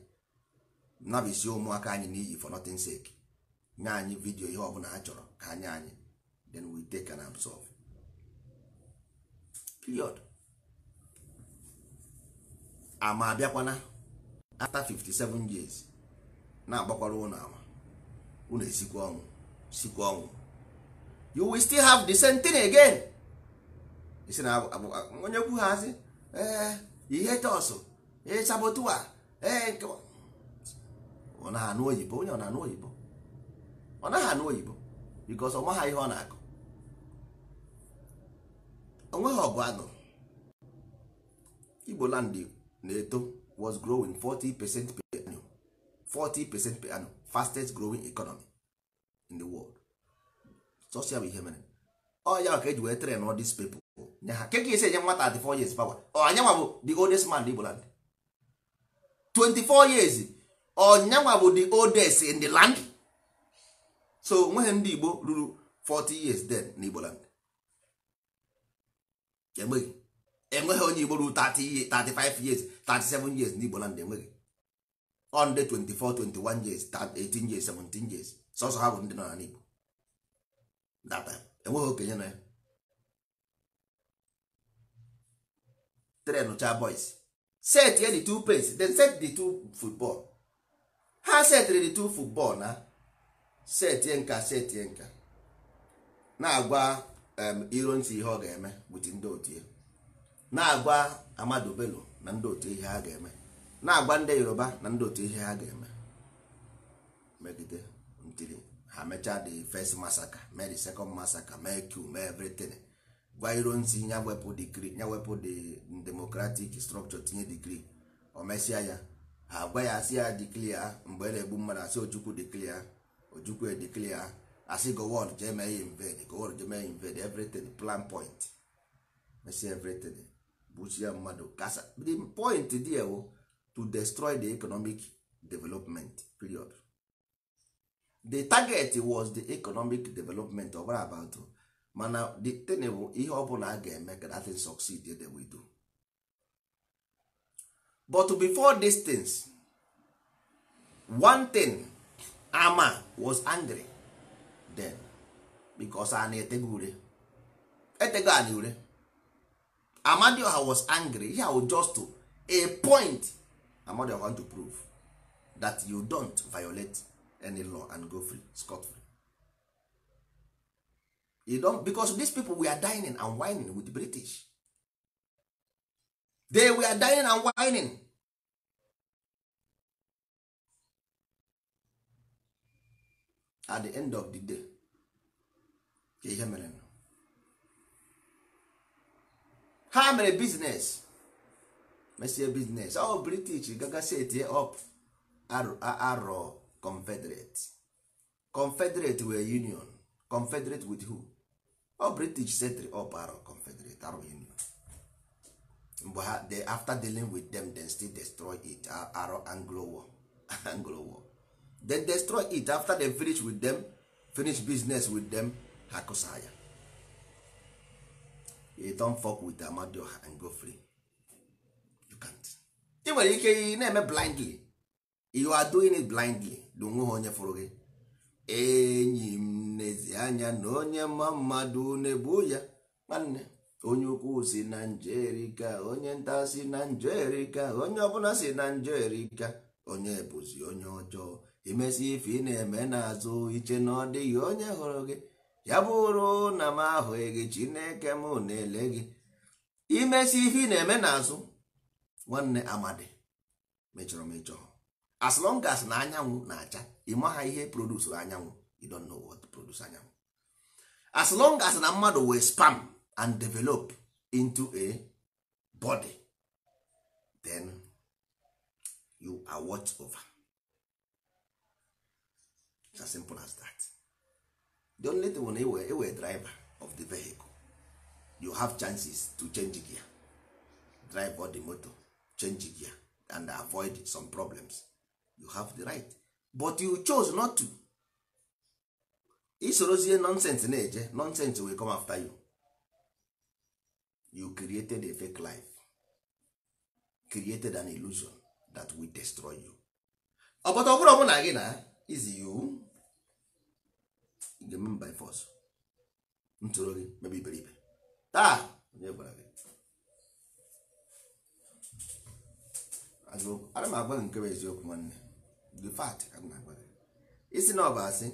nabisi ụmụaka anyị n'iyi for nothing sake nye anyị vidio ihe ọbụla ha chọrọ ka anyị anyị then we take and absorb period ama abịakwana after 57 years na-agbakwara ụlọ ama ụlọ esikwa ọnwụ sikwa ọnwụ you will still have the same thing again isi na onye kwu ha asị ee ihe tọsụ ee sabotua ee nke ọ naghị anụ oyibo onye ọ oyibo ọ naghị anụ oyibo because ọ ihe ọ na-akụ onweghị ọgụ anụ igbo land igbo na-eto was growing 40 percent per annum 40 percent per annum fastest growing economy in the world sọsia bụ ihe mere ọ ya ka eji wee tren all these people nye ha keke esi enye nwata 24 years power ọ anyanwa bụ the oldest man in Igboland 24 years ọnyanwa bụ the oldest in the land so nweghị ndị Igbo ruru 40 years then na Igboland enweghị onye Igbo ruru 30 35 years 37 years ndị n'Igbo land enweghị onde 24 21 years 18 years 17 years sọsọ ha bụ ndị nọ n'Igbo data enweghị okenye na ya tren cha boys set ye the two pace then set the two football ha setịrị dị two football na set ye nka set ye nka na-agwa um, ironsi ihe ọ ga-eme with ndị otu ya na-agwa Amadu Bello na ndị otu ihe ha ga-eme na-agwa ndị Yoruba na ndị otu ihe ha ga-eme megide ntiri ha mechaa the first massacre mee the second massacre mee Q mee everything gwa iro nsi ya wepụ digrii ya wepụ the democratic structure tinye digrii o mesịa ya ha agwa ya asị ya diklia mgbe e na-egbu mmadụ asị Ojukwu diklia Ojukwu ediklia asị gowon jee mee ya invade gowon jee mee ya invade everything plan point mesịa everything gbuchie mmadụ kasa the point there oh, wo to destroy the economic development period the target was the economic development of about oh. mana the thing bụ ihe ọbụla a ga-eme ka that thing succeed they we do but before these things one thing ama was angry then because anyị na-etego ure etego anyị ure amadioha was angry ya was just to a point i want to prove that you don't violate any law and go free scot free you don't because these people were dining and whining with the british they were dining and whining at the end of the day ihe mere ha mere biznes mesie biznes ọ british gagasi etie up arọ confederate confederate were union confederate with who ọ british setri up arọ confederate arọ union mgbe ha after dealing with them then still destroy it arọ anglo war anglo war then destroy it after they finish with them finish business with them ha kụsa ya don't fuck with and go you can't ị nwere ike ị na-eme blindly you are doing it blindly onwe onye fụrụ gị enyi m n'ezi anya na onye mma mmadụ na-ebu ya nwanne onye ukwu si na njerika onye nta si na njerika onye ọbụla si na njerika onye bụzi onye ọjọọ imesi ife ị na-eme n'azụ iche na ọ dịghị onye hụrụ gị ya bụrụ na m ahụghị gị chineke m na-ele gị imesi ihe ị na-eme n'azụ nwanne amadi mechọrọ mechọ as na anyanwụ na-acha ịmaha ihe produs anyanwụ you know what produce anyanwụ as na mmadụ wee spam and develop into a body then you are watch over. It's as simple as that. the only thing na ewe driver of the vehicle you have chances to change gear drive all the motor change gear and avoid some problems you have the right but you chose not to isorozie nonsense na-eje nonsense will come after you you created a fake life created an illusion that will destroy you ọbọta ọbụrụ ọbụla na gị na izi you njem by force ntụrụ gị mebe iberibe taa onye gwara gị ana m agwa gị nke bụ eziokwu nwanne the fact ka m agwa gị isi na ọ bụ asị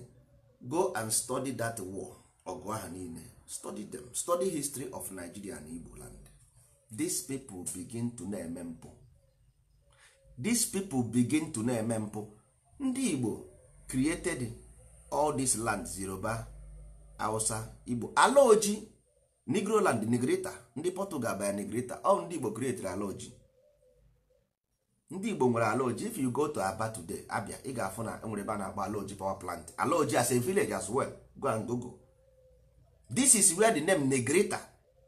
go and study that war ọgụ ahụ niile study them study history of Nigeria na Igbo land these people begin to na-eme mpụ these people begin to na-eme mpụ ndị Igbo created all this land Yoruba Hausa Igbo ala oji Negroland negrita ndị Portugal baya negrita all ndị Igbo creatire oji ndị Igbo nwere ala oji if you go to Aba today Abia ị ga-afụ na nwere ebe a na-agba ala oji power plant ala oji as a village as well go and google this is where the name negrita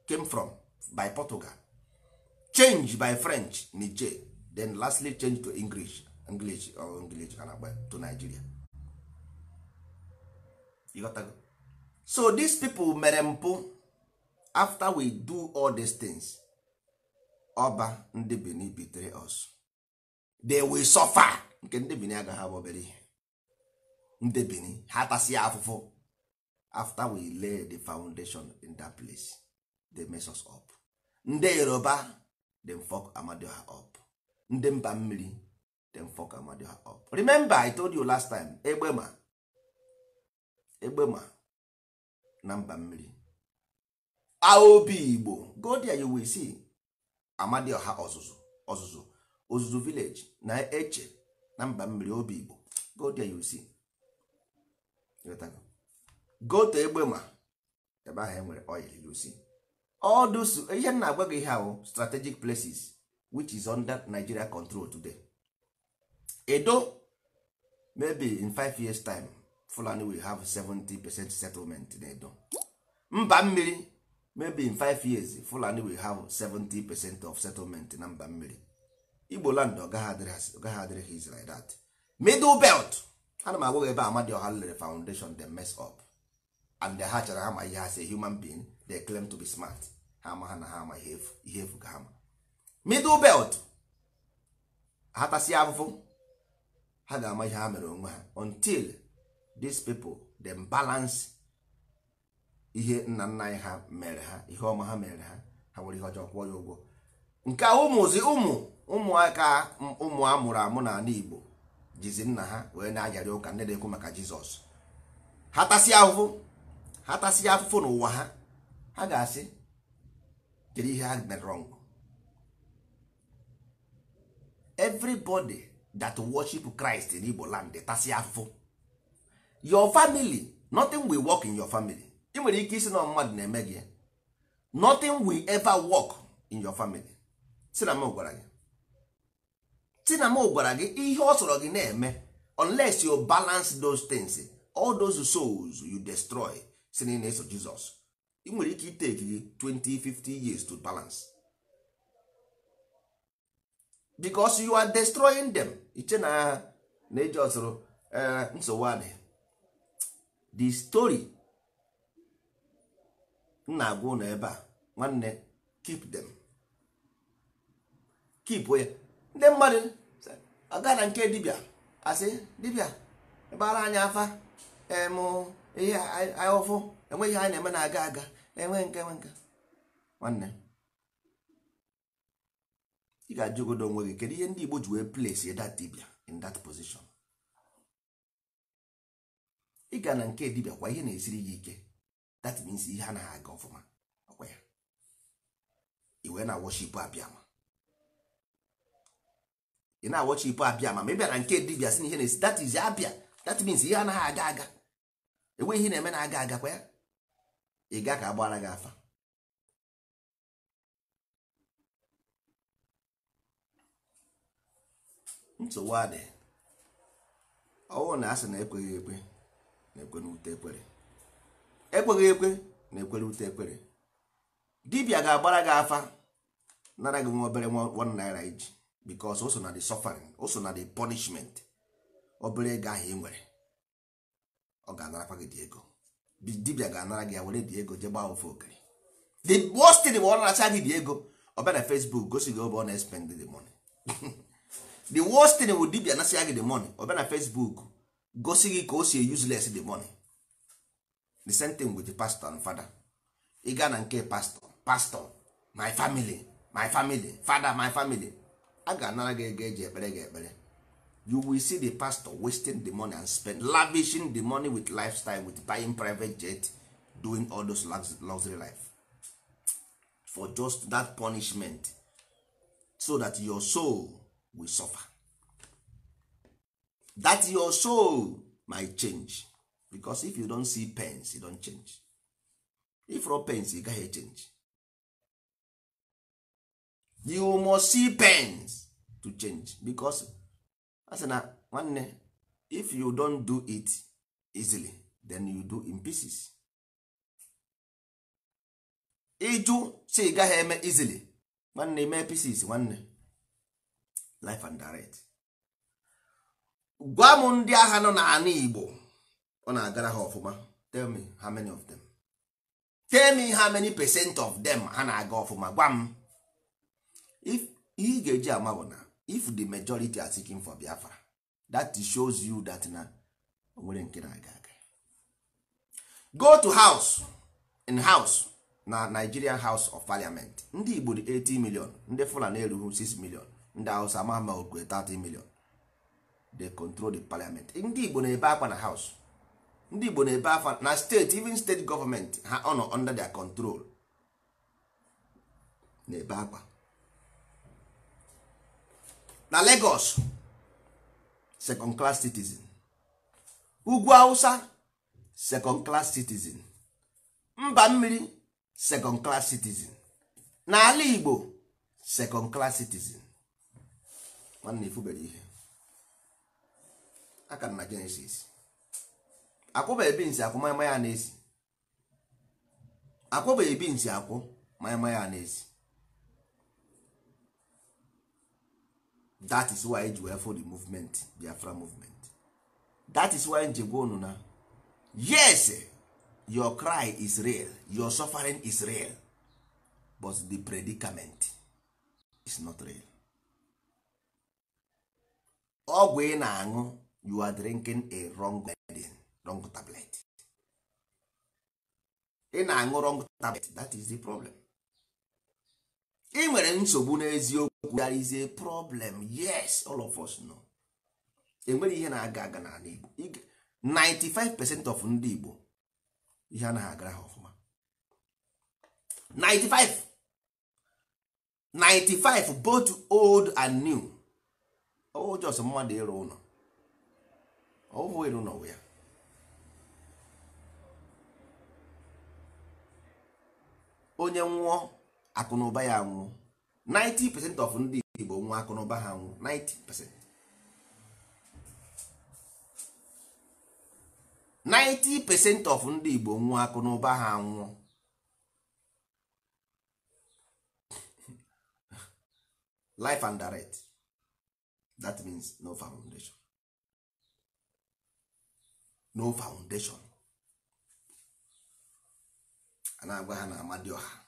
came from by Portugal change by French Niger then lastly change to English English or English to Nigeria ịghọtago so these people mere mpụ after we do all these things ọba ndị benin bitere us they will suffer nke ndị benin agaghị abụ obere ihe ndị benin ha tasịa afụfụ after we lay the foundation in that place they mess us up ndị yoruba dem fuck amadioha up ndị mba mmiri dem fuck amadioha up remember i told you last time Egbema. egbe ma na mba mmiri aobi igbo godia there you si see ọha ọzụzụ ọzụzụ village na eche na mba mmiri obi igbo godia there you will see egbe ma ebe ahụ enwere oil you see all those ihe na agwa gị ihe ahụ strategic places which is under Nigeria control today edo maybe in five years time fulani we have 70 percent settlement in edo mba mmiri maybe in 5 years fulani will have 70 percent of settlement na mba mmiri igbo land ọgaghị adịrị his like that middle belt ana m agwa gị ebe ọha lere foundation they mess up and ha hachara ha ma ihe ha si human being they claim to be smart ha ma ha na ha ama ihe efu ka ha ma middle belt ha tasi afụfụ ha ga-ama ihe ha mere onwe ha until these people dem balance ihe nna nna anyị ha mere ha ihe ọma ha mere ha ha nwere ihe ọjọọ kwụọ ya ụgwọ nke a ụmụzi ụmụ ụmụaka ụmụ a mụrụ amụ n'ala Igbo jizi nna ha wee na-ayarị ụka nne na-ekwu maka Jizọs ha tasịa ahụfụ ha tasịa afụfụ n'ụwa ha ha ga-asị kedu ihe ha mere wrong everybody that worship Christ in Igbo land tasị afụfụ your family nothing will work in your family ị nwere ike isi na mmadụ na-eme gị nothing will ever work in your family si na m gwara gị si na m gwara gị ihe ọ sọrọ gị na-eme unless you balance those things all those souls you destroy si na ị na-eso Jizọs ị nwere ike iteki gị 20 years to balance because you are destroying them iche na na eji ọsụrụ eh, nsogbu adịghị the story nna agwa ụlọ ebe a nwanne keep them keep ya ndị mmadụ aga na nke dibịa asị dibịa ebara anyị afa ihe ahụfụ enweghị anyị na-eme na aga aga enwe nke enwe nke nwanne ị ga-ajụgodo onwe gị kedu ihe ndị Igbo ji wee place that dibịa in that position ị ga na nke dibịa kwa ihe na-esiri gị ike that means ihe anaghị aga ọfụma ọkwa ya iwe na worship abịama ị na-awọchipụ abịama ma ị bịara nke dibịa si na ihe na-esi that is abịa that means ihe anaghị aga aga enweghị ihe na-eme na-aga aga kwa ya ị ga ka agbara gị afa nsogbu adị ọwụ na asị na ekweghị ekwe na-ekwe ekwere ekweghị ekwe na-ekwere ute ekwere dibia ga-agbara gị afa nara gị nwa obere nwa naira iji because o so na the suffering o so na the punishment obere ego ahụ ị nwere ọ ga-anarakwa gị dị ego dibia ga-anara gị ya were dị ego jee ofe okere the worst thing bụ ọ naracha gị dị ego ọ bịa na Facebook gosi gị obe ọ na espend the money the worst thing bụ dibia nasị ya gị the money ọ bịa na Facebook gosi gị ka o si useless the money the same thing with the pastor and father ị gaa na nke pastor pastor my family my family father my family a ga-anara gị ego eji ekpere gị ekpere you will see the pastor wasting the money and spend lavishing the money with lifestyle with buying private jet doing all those luxury life for just that punishment so that your soul will suffer that your soul might change because if you don see pens you don change if no pens you gaghị change you must see pens to change because asị na nwanne if you don do it easily then you do in pieces ịjụ si gaghị eme easily nwanne mee pieces nwanne life and direct gwa m ndị agha nọ n'ala Igbo ọ na-agara ha ọfụma tell me how many of them tell me how many percent of them ha na-aga ọfụma gwa m if ihe ị ga-eji ama bụ na if the majority are seeking for Biafra that shows you that na nwere nke na-aga aga go to house in house na Nigerian House of Parliament ndị Igbo di 80 million ndị Fulani erughị 6 million ndị Hausa ama ama okwe 30 million they control the parliament ndị igbo na-ebe akwa na house ndị igbo na-ebe akwa na steeti even state government ha ọ nọ under their control na-ebe akwa na Lagos second class citizen ugwu Hausa second class citizen mba mmiri second class citizen na Ala Igbo second class citizen nwanne ifubere ihe aka na Genesis ebi binsi akwụ maịma ya na-esi akwụbeghị binsi akwụ maịma ya na that is why ji wee for the movement Biafra movement that is why nji gwa na yes your cry is real your suffering is real but the predicament is not real ọgwụ ị na-aṅụ you are drinking a wrong medicine wrong tablet ị na-aṅụ wrong tablet that is the problem ị nwere nsogbu n'eziokwu there is a problem yes all of us know enwere ihe na-aga aga n'ala Igbo 95 percent of ndị Igbo ihe anaghị agara ha ọfụma 95 95 both old and new o just mmadụ ịrụ ụlọ ọwụ elu n'ụwa ya onye nwụọ akụnụba ya nwụọ 90% of ndị Igbo nwụọ akụnụba ha nwụọ 90% 90% of ndị Igbo nwụọ akụnụba ha nwụọ life and direct that means no foundation no foundation a na-agwa ha na amadioha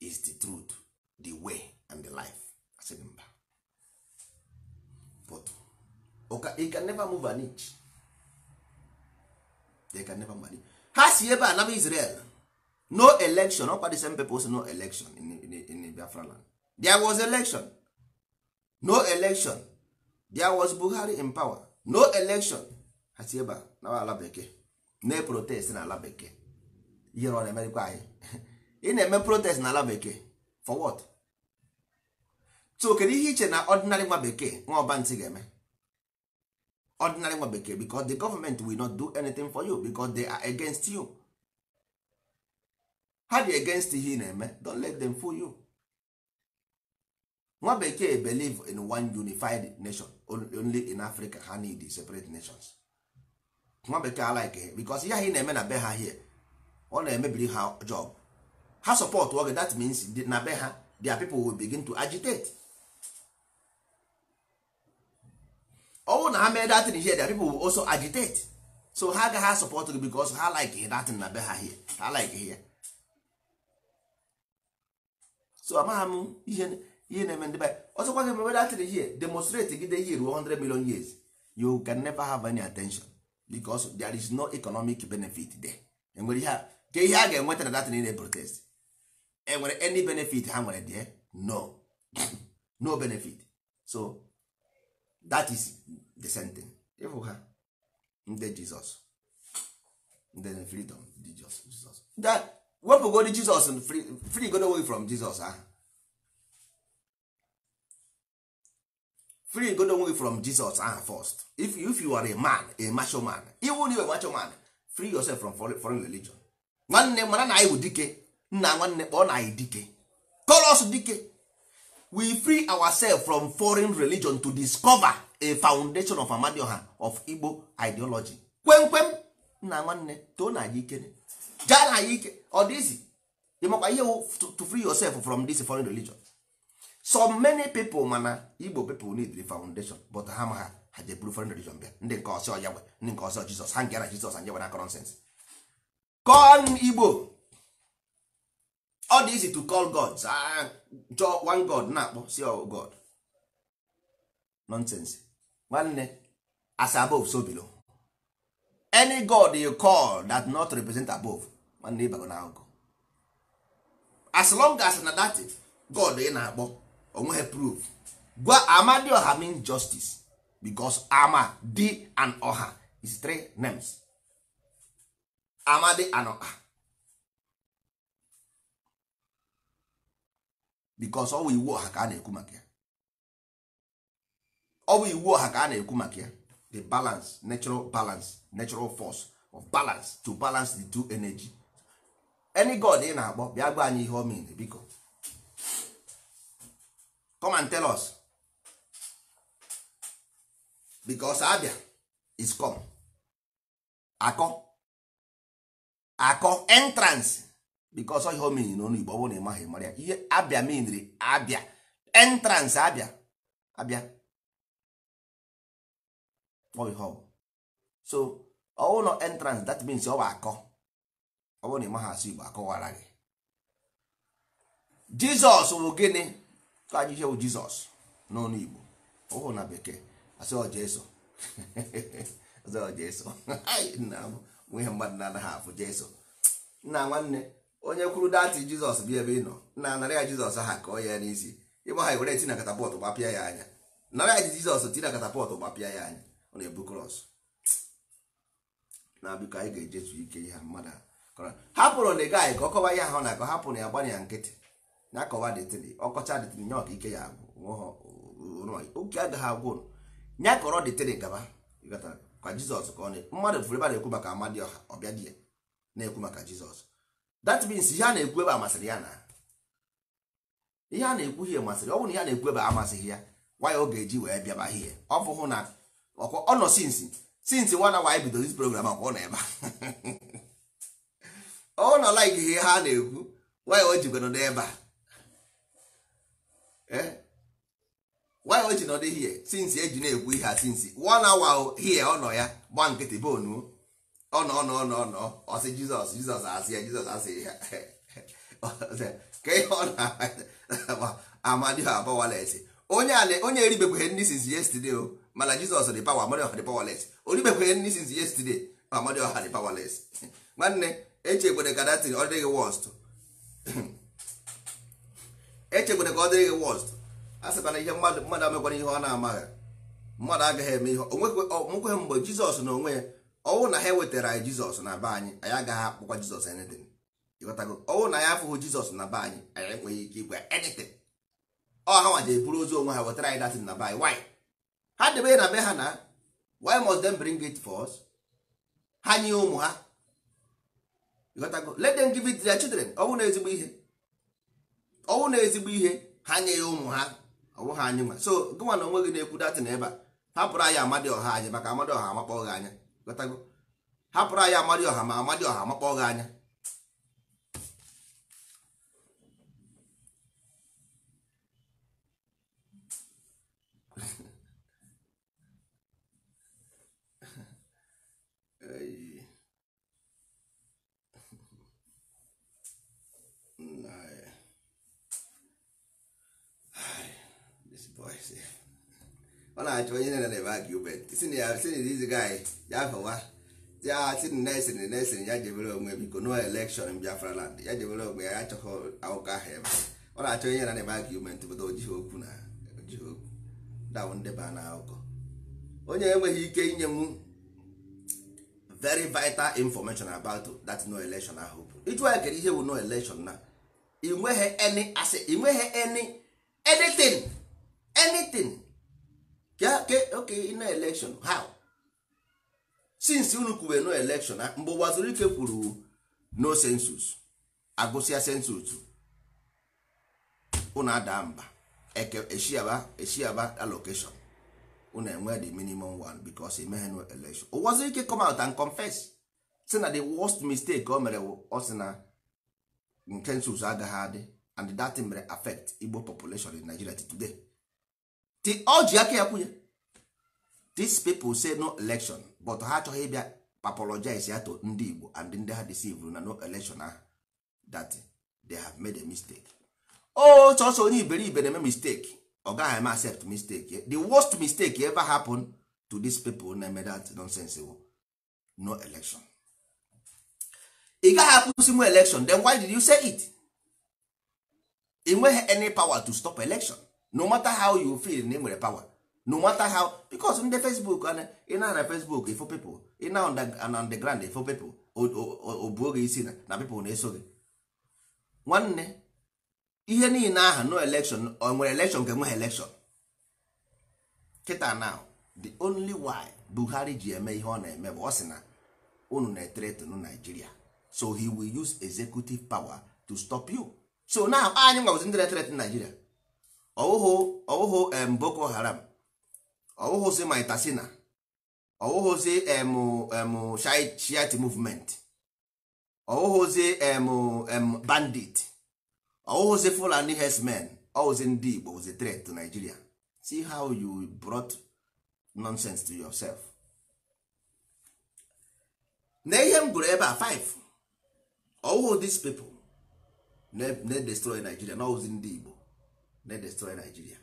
is the truth the way and the life asịrị mba but you can never move an inch they can never move an inch ha si ebe a Israel no election ọkwa the same people say no election in, in, in Biafra land there was election no election there was Buhari in power no election ha ebe na ala bekee na protest na ala bekee ihere ọ na-emerikwa anyị ị na-eme protest na ala bekee for what so kedu ihe iche na ọdịnarị nwa bekee nwa ọba ntị ga-eme ordinary nwa bekee because the government will not do anything for you because they are against you ha dị against ihe ị na-eme don't let them fool you nwa bekee believe in one unified nation only in Africa ha need separate nations nwa bekee alaike because ihe ị na-eme na be ha hie ọ na-emebiri ha job ha support oge that means na be ha their people will begin to agitate ọnwụ na ha mee datin ihe their people will also agitate so ha agaghị asọpọtụ gị because ha like datin na be ha hie ha like ya so amagha m ihe na-eme ndị be ọzọkwa gị mebe datin ihe demonstrate gide ihe ruo 100 million years you can never have any attention because there is no economic benefit there enwere ihe ka ihe a ga-enweta na datin na protest enwere any benefit ha nwere there no no benefit so that is the sentence ịfụ ha ndị jizọs ndị freedom jizọs jizọs wepụgodi jizọs free godo away from jizọs ahụ free go onwe gị from Jesus aha first if you, if you are a man a macho man iwu na a macho man free yourself from foreign, religion nwanne mara na anyị bụ dike nna nwanne kpọọ na anyị dike us dike we free ourselves from foreign religion to discover a foundation of amadioha of Igbo ideology kwemkwem nna nwanne too na anyị ikere jaa na anyị ike ọ dịzi ịmakwa ihe to free yourself from this foreign religion so many people mana igbo people need the foundation but ha ha ha je buru foreign religion bịa ndị nke ọsọ ya ndị nke ọsọ jizọs ha ngara jizọs anyị nwere nonsense call igbo ọ dị easy to call gods jọ one god na-akpọ si god nonsense nwanne as above so below any god you call that not represent above nwanne ịbago na agụgụ as long as na that god ị na-akpọ onwe onweghị proof gwa amadioha mean justice because ama di an oha is three names amadi and oha because ọ bụ iwu ọha ka a na-ekwu maka ya ọ iwu ọha ka a na-ekwu maka ya the balance natural balance natural force of balance to balance the two energy any god ị na-akpọ bịa gwa anyị ihe ọ mean biko come and tell us because abia is come akọ akọ entrance because ihe o na n'ọnụ Igbo ọ na ị maghị mara ya ihe abia meanri abia entrance abia abia ọ so ọ na entrance that means ọ bụ akọ ọ bụ na ị maghị asụ Igbo akọwara gị Jizọs bụ gịnị ajụjụ wu jizọs n'ọnụ igbo ụhụ na bekee asọjeso asọjeso nwe ihe mmadụ na-anaghị afụ jeso nna nwanne onye kwuru datị jizọs bịa ebe ị nọ na narị ya jizọs ha kọọ ya n'isi ịgba ha were tina katapọtụ gbapịa ya anya narị ya jizọs tina katapọtụ gbapịa ya anya ọ na-ebu krọs na biko anyị ga-ejetu ike ihe mmadụ hapụrụ na ị gaghị ka ọ kọwa ihe ahụ na akọ hapụrụ ya gbanye nkịtị na-akọwa detini ọkọcha detini nye ọka ike ya agwụ oke agaghị agwụ nye kọrọ detini gaba ka jizọs ka ọ na mmadụ fụrụ ebe a na-ekwu maka amadi ọha ọbịa di ya na-ekwu maka jizọs that ihe a na-ekwu ebe amasịrị ya na ihe a na-ekwu ihe masịrị ọ bụrụ na ihe a na-ekwu ebe amasịghị ya nwa ya ọ ga-eji wee bịa ba ihe ọ fụhụ na ọkwa ọ nọ sinsi sinsi nwa na bidoro isi program akwa ọ nọ ebe ọ nọ like ihe ha na-ekwu nwa o jikwa n'ebe a Eh? why o ji nọ dị hie since eji na-ekwu ihe a sinsi. one hour hie ọ nọ ya gba nkịtị bonu ọ nọ ọnọ ọnọ ọnọ, ọsị jizọs jizọs asị ya jizọs asị ya ka ihe ọ na amadiho abawales onye ala onye eribekweghị ndị since yesterday o mana jizọs dị pawa amadioha dị pawales oribekweghị ndị since yesterday amadioha dị pawales nwanne echegbere ka datin ọ dịghị worst echegbere ka ọ dịrị gị wọst a sịkwa na ihe mmadụ mmadụ amekwara ihe ọ na-amaghị mmadụ agaghị eme ihe onwekweghị mgbe jizọs na onwe ya ọnwụ na ha ewetara anyị jizọs na be anyị anyị agaghị akpụkwa jizọs anything ịghọtago ọnwụ na ya afụghị jizọs na be anyị anyị enweghị ike igwe anything ọ ha nwaje eburu ozu onwe ha wetara anyị datin na be anyị why ha debe na be ha na why must them bring it for us ha nye ụmụ ha ịghọtago let them give it their children ọ bụrụ na ezigbo ihe ọnwụ na ezigbo ihe ha nye ya ụmụ ha ọwụ ha anyị nwa so gụnwa na onwe gị na-ekwu na ebe a hapụrụ anyị amadị ọha anyị maka amadị ọha amakpọ gị anya hapụrụ anyị amadi ọha ma amadị ọha amakpọ gị anya ọ na-achọ onye na-eme argument si na ya si na iziga anyị ya fawa ya si na nesin nesin ya jebere onwe biko no election Biafra land ya jebere onwe ya achọghị akụkọ ahụ ebe ọ na-achọ onye na-eme argument pụta ojighị okwu na ojighị okwu dawụ ndeba na akụkọ onye enweghị ike inye m very vital information about that no election ahụ bụ ịjụ anyị kere ihe bụ no election na ị nweghị any asị ị nweghị any anything anything ke oke na election how since unu kwube no election ah, mgbe ụwa ike kwuru no census agụsịa census unu ada mba eshiaba eshiaba allocation unu enwe the minimum one because emeghe no election ụwa ike come out and confess si na the worst mistake o mere ọ na nke census agaghị adị and that mere affect Igbo population in Nigeria today ọjị ji aka ya kwunye these say no election but ha achọghị ịbịa apologize ya to ndị Igbo and ndị ha deceive na no election ahụ that they have made a mistake oh chọsọ onye iberibe na-eme mistake ọ gaghị eme accept mistake the worst mistake ever happen to dis people na-eme that nonsense wo no election ị gaghị akwụsị nwe election then why did you say it ị nweghị any power to stop election no matter how you feel na ị nwere power no matter how because ndị facebook ị na na facebook ifo pipo ị na underground ifo people obuo gị isi na pipo na-eso gị nwanne ihe niile ahụ no election o nwere election ka enweghị election kịta na the only why Buhari ji eme ihe ọ na-eme bụ ọ sị na unu na-eteretunu Nigeria so he will use executive power to stop you so now anyị nwagozi ndị na-eteretunu ọwụhụ ọwụhụ em boko haram ọwụhụzi maitasina ọwụhụzi em em shiat movement ọwụhụzi em em bandit ọwụhụzi fulani herdsmen ọwụzi ndị igbo wụzi threat to nigeria see how you brought nonsense to yourself na ihe m gụrụ ebe a five ọwụhụ dis people na-destroy nigeria na ọwụzi ndị igbo they destroy nigeria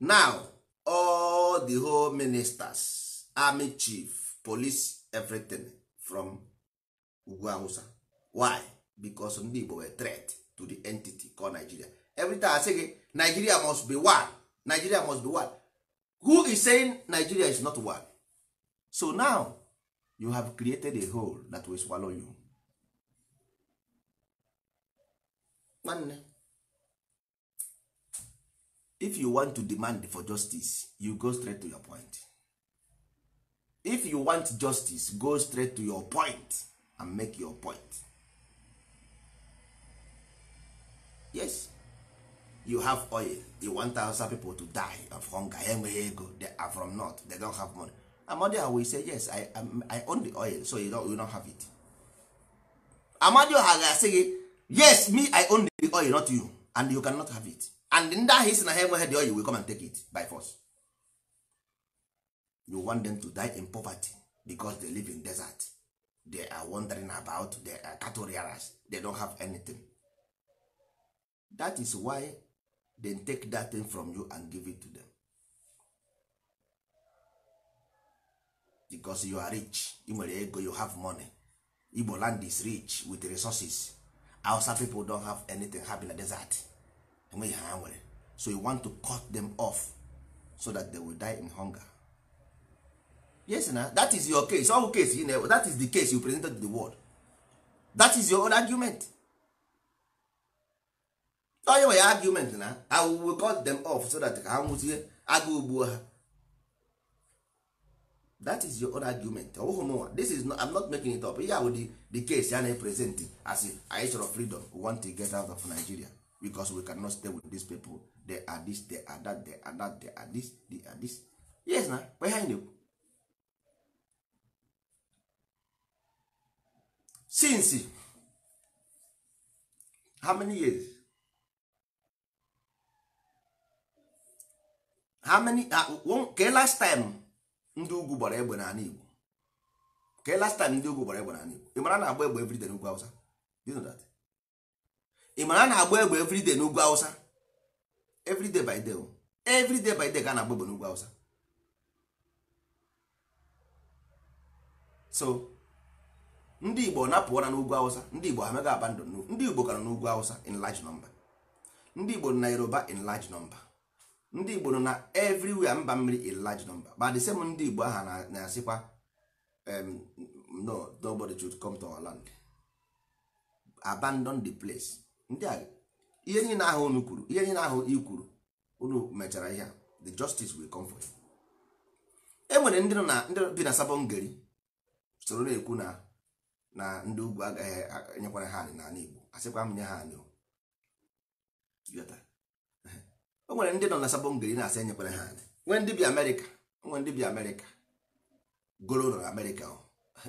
now all the whole ministers army chief police everything from ugwu hausa why because ndị igbo were threat to the entity called nigeria everytime i say gị nigeria must be one nigeria must be one who is saying nigeria is not one so now you have created a hole that will swallow you nwanne if you want to demand for justice you go straight to your point if you want justice go straight to your point and make your point yes you have oil you want thousand people to die of hunger enweghị ego they are from north they don't have money amadioha will say yes I, I, I own the oil so you don't, you don't have it amadioha ga say, yes me i own the oil not you and you cannot have it and ndị ahụ isi na ha enweghị dị oyi will come and take it by force you want them to die in poverty because they live in desert they are wondering about they are cattle rearers they don't have anything that is why they take that thing from you and give it to them because you are rich ị nwere ego you have money Igbo land is rich with resources Hausa people don have anything ha in desert enweghị ha nwere so you want to cut them off so that they will die in hunger yes na that is your case ọwụ case you know, that is the case you presented to the world that is your own argument onye nwe ya argument na i will cut them off so that ha nwụzie agụ ugbuo ha that is your own argument ọwụghị oh, mụnwa this is not, I'm not making it up ihe ahụ the, the case ya na-epresent as anyị chọrọ freedom we want to get out of Nigeria because we cannot stay with these people they are this they are that they are that they are this they are this yes na kwa ihe na-ekwu since how many years how many ke uh, last time ndị ugwu gbara egbe na Igbo ke last time ndị ugwu gbara egbe na Igbo ị mara na-agba egbe everyday n'ugwu Hausa you know that ị mara na-agba egbe everyday n'ugwu awụsa everyday by day everyday by day ka a na-agba egbe n'ugwu awụsa so ndị igbo napụọra n'ugwu awụsa ndị igbo amaghị aba ndụ ndị igbo ka n'ugwu awụsa in large number ndị igbo nọ na yoruba in large number ndị igbo nọ na everywhere mba mmiri in large number but the same ndị igbo aha na-asịkwa um, no nobody should come to our land abandon the place ndị a ihe niile ahụ unu kwuru ihe niile ahụ i kwuru unu mechara ihe the justice will come for you e nwere ndị nọ na ndị bi na sabongeri soro na-ekwu na na ndị ugwu agaghị e, enyekwara ha anị n'ala Igbo asịkwa m nye ha anị o nwere ndị nọ na sabongeri na-asị enyekwara ha anị nwee ndị bi Amerịka nwee ndị bi Amerịka goro nọ na Amerịka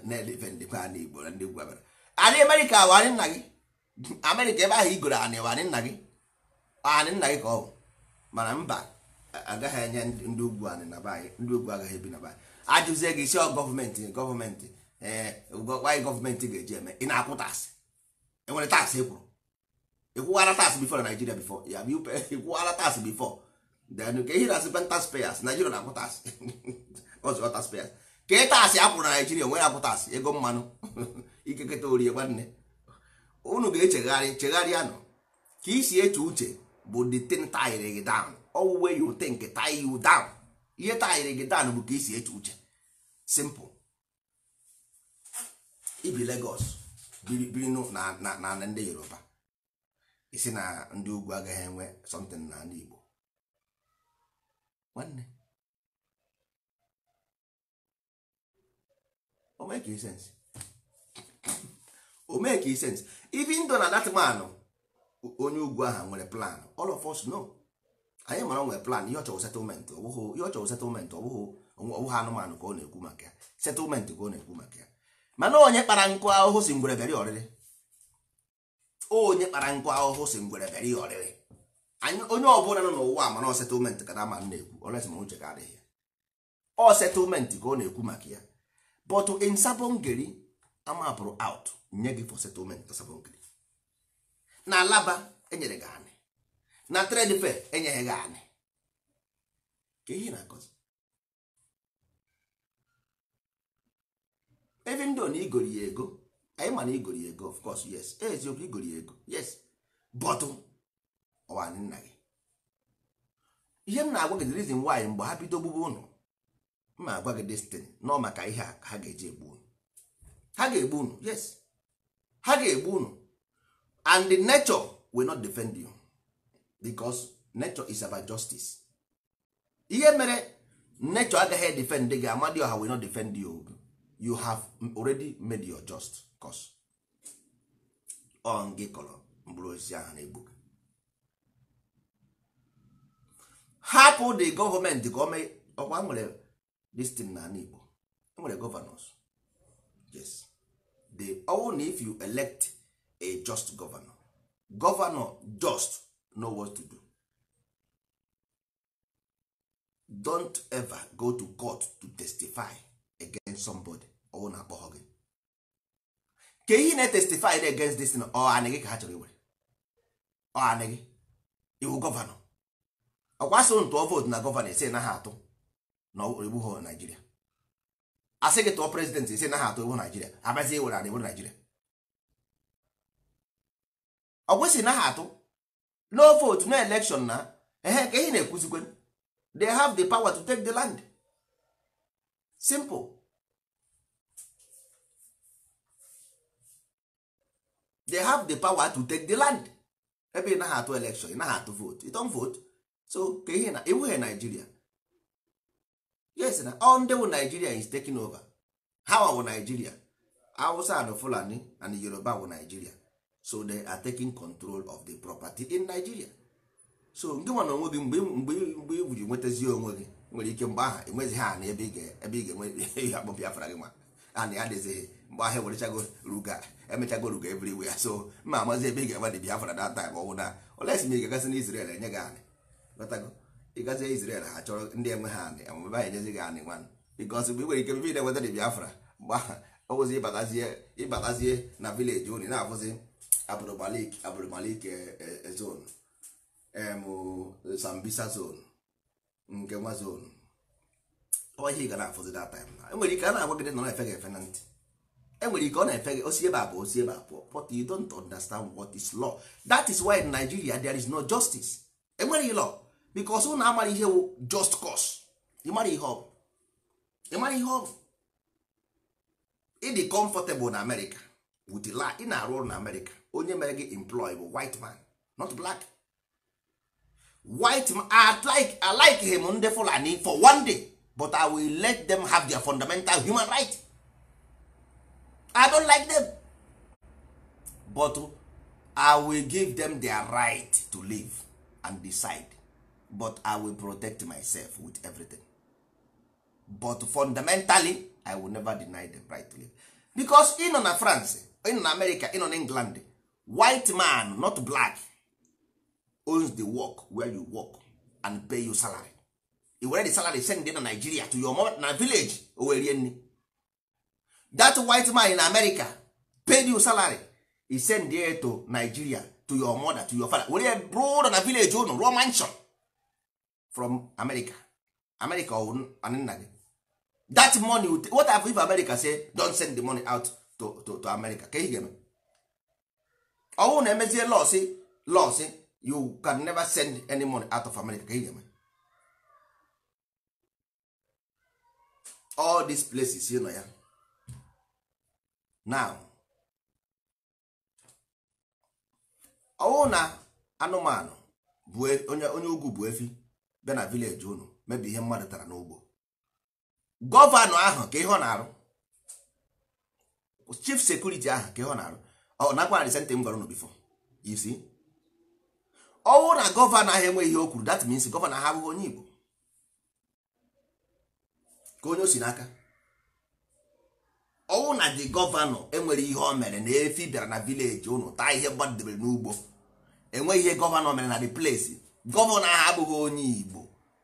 na-eleve ndị kwa ala Igbo na ndị ugwu Amerịka ala Amerịka wa anyị nna gị amerịka ebe ahụ igoro anị anị nna gị anị nna gị ka ọ bụ mana mba agaghị enye ndị ugwu anị na baanyị ndị ugwu agaghị ebi na baanyị ajụzie gị isi gọọmenti gọọmenti ee anyị gọọmenti ga-eji eme ị na-akwụ taksị enwere taksị ekwuru ịkwụwara taksị bifọ na naijiria bifọ ya ịkwụwara taksị bifọ then ka ehi na pentas taxpayers naijiria na-akwụ taksị ọzọ taxpayers ka e taksị akwụrụ na naijiria onwere akwụ taksị ego mmanụ ikeketa orie nwanne unu ga-echegharị chegharịa nọ ka isi eche uche bụ the thing tire gị down owuwe you think tie you down ihe tire gị down bụ ka isi eche uche simple ibi Lagos biri na na ndị Yoruba isi na ndị ugwu agaghị enwe something na ndị Igbo nwanne o make sense o make sense even though na that man onye ugwu aha nwere plan all of us know anyị mara nwere plan ihe ọ chọrọ settlement ọbụghị ihe ọ chọrọ ọbụghị ọbụghị anụmanụ ka ọ na-ekwu maka ya settlement ka ọ na-ekwu maka ya mana onye kpara nkụ ahụhụ si ngwere bịara ọrịrị onye kpara nkụ ahụhụ si ngwere bịara ya ọrịrị onye ọbụla nọ n'ụwa mana settlement ka na ma na-ekwu ọlesima uche ka adịghị ya ọ settlement ka ọ na-ekwu maka ya but in sabongeri amapụrụ out nye gị for settlement tasabongiri na alaba enyere gị anị na trade fair e enyeghị gị anị ka ihe na-akọzi even though na igori ya ego anyị ma na igori ya ego of course yes e, eziokwu igori ya ego yes but ọwanị nna gị ihe m na-agwa gị the reason why mgbe ha bido gbugbu ụnụ m na-agwa gị destin nọ maka ihe a ha ga-eji egbu ha ga-egbu unu yes ha ga-egbu unu and the nature will not defend you because nature is about justice ihe mere nature agaghị defend gị ọha wey not defend you you have already made your just cause O gị kọrọ mkpụrụ osisi ahụ na-egbu gị hapụ the gọọmenti ka ọkwa nwere destin na ala Igbo nwere gọvanọs yes the only if you elect a just governor governor just know what to do don't ever go to court to testify against somebody ọwụ na akpọghọ gị ka ihe na testify against this ọ anị ka ha chọrọ iwere ọ anị gị iwu gọvanọ ọkwasịrị ntụọ vootu na gọvanọ ise na ha atụ na egbughị naijiria asị gị tụọ prezidentị ise naghị atụ ewu naijiria abazie ewere ala iwu naijiria ọ kwesị naghị atụ no vote no election na ehe ka ihe na-ekwuzikwe they have the power to take the land simple they have the power to take the land ebe ị naghị atụ election ị naghị atụ vote ị tọn vote so ka ihe na iwughe naijiria yes na all ndị wụ Nigeria is taking over ha wụ Nigeria Hausa and Fulani and Yoruba wụ Nigeria so they are taking control of the property in Nigeria so nke nwa na onwe gị mgbe mgbe iji nwetazi onwe gị nwere ike mgbe aha enwezighị ha na ebe ị ga-enwe akpọ Biafra gị ma a na ya dịzighị mgbe ahụ ewerechago ruga emechago ruga ya so ma amazi ebe ị ga-enwe dị Biafra data ma ọ bụ na olesi ma ị ga-agasị na Israel enye gị anị ịgazie Izrel ha chọrọ ndị enwe ha anị amụmebe ha gị anị nwanne bikos mgbe nwere ike mebe na-enweta dị Biafra mgbe ọwụzi ịbatazie na vileji unu na-abụzi abụrụmalik abụrụmalik e, e, e zon sambisa zon nke nwa zon ọhịa ga na-afụzi that time na enwere ike a na-agwa gị nọ na-efe gị efe na ntị enwere ike ọ na-efe gị osi ebe abụọ bụ osi ebe abụọ but you don't understand what is law that is why in Nigeria there is no justice enweghị law because na amara ihe just cause ịmara ihe ọ bụ ịmara ihe ọ ịdị comfortable na America with la ị na-arụ ọrụ na America onye mere gị employ bụ white man not black white man I like I like him ndị Fulani for one day but I will let them have their fundamental human right I don't like them but I will give them their right to live and decide but i will protect myself with everything but fundamentally i will never deny the right to live because ị na france ị na america ị nọ na england white man not black owns the work where you work and pay you salary you were the salary send na nigeria to your mom na village owerie nri that white man in america paid you salary he send there to nigeria to your mother to your father were bro na village unu rụọ mansion from america america nna gị that money what have if america say don send the money out to, to, to america ka ga-eme ọwụ na emezie lọsị lọsị you can never send any money out of america ka ga-eme all these places you know ya yeah. now ọwụ na anụmanụ e, onye ugwu bụ efi bịa na vileji unu mebi ihe mmadụ tara n'ugbo gọvanọ ahụ ka ihe na-arụ chief sekuriti ahụ ka ihe na-arụ ọ nakwa na disente m gwara unu bifo isi ọnwụ na gọvanọ ahụ enweghị ihe o kwuru that means gọvanọ ahụ abụghị onye Igbo ka onye o si n'aka ọnwụ na the gọvanọ enwere ihe o mere na efi bịara na vileji unu taa ihe mmadụ gbadebere n'ugbo enweghị ihe gọvanọ mere na the place gọvanọ ahụ abụghị onye Igbo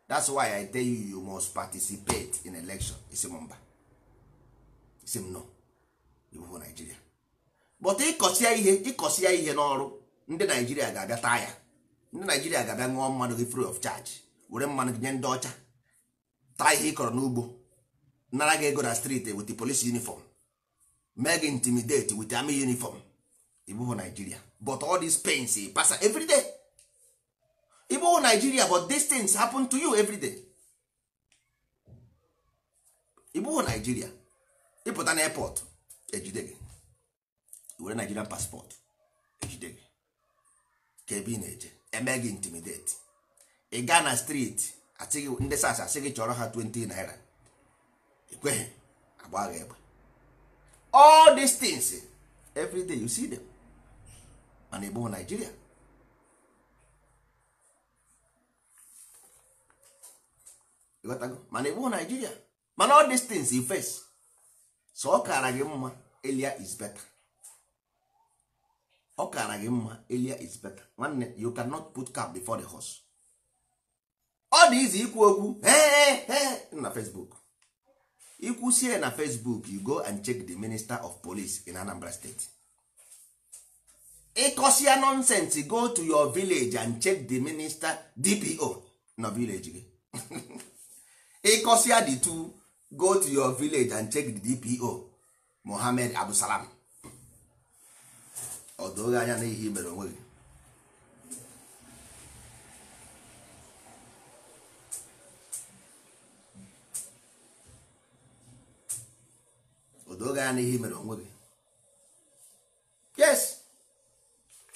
that's why I tell you you must participate in election isi mba isi nọ ịbụbụ Naijiria but ịkọsịa ihe ịkọsịa ihe n'ọrụ ndị Naijiria ga-abịa taa ya ndị Naijiria ga-abịa ṅụọ mmanụ gị free of charge were mmanụ gị nye ndị ọcha taa ihe ị kọrọ n'ugbo nara gị ego na street wit the police uniform mee gị intimidate wit army uniform ịbụbụ Naijiria but all these pains pasa every day. igbo naijiria but these things happen to you everyday. day igbo naijiria ịpụta na airport ejide gị were nigerian passport ejide gị ka ebe ị na-eje eme gị intimidate ị gaa na street asị ndị sas asị gị chọrọ ha 20 naira ekweghị agba egbe all these everyday you see them mana igbo Naijiria. mana ịbụ naijiria mana all these things face so ọ kara gị mma elia is better ọ kara gị mma elia is better nwanne you cannot put cap before the horse ọ dị izi ikwu okwu na facebook ikwusie na facebook you go and check the minister of police in anambra state ịkọsia nonsense go to your village and check the minister dpo na village gị ya the two go to your village and check the dpo mohammed abdusalam ọdụghị anya n'ihi mere onwe gị odoge anya n'ihe mere onwe gị yes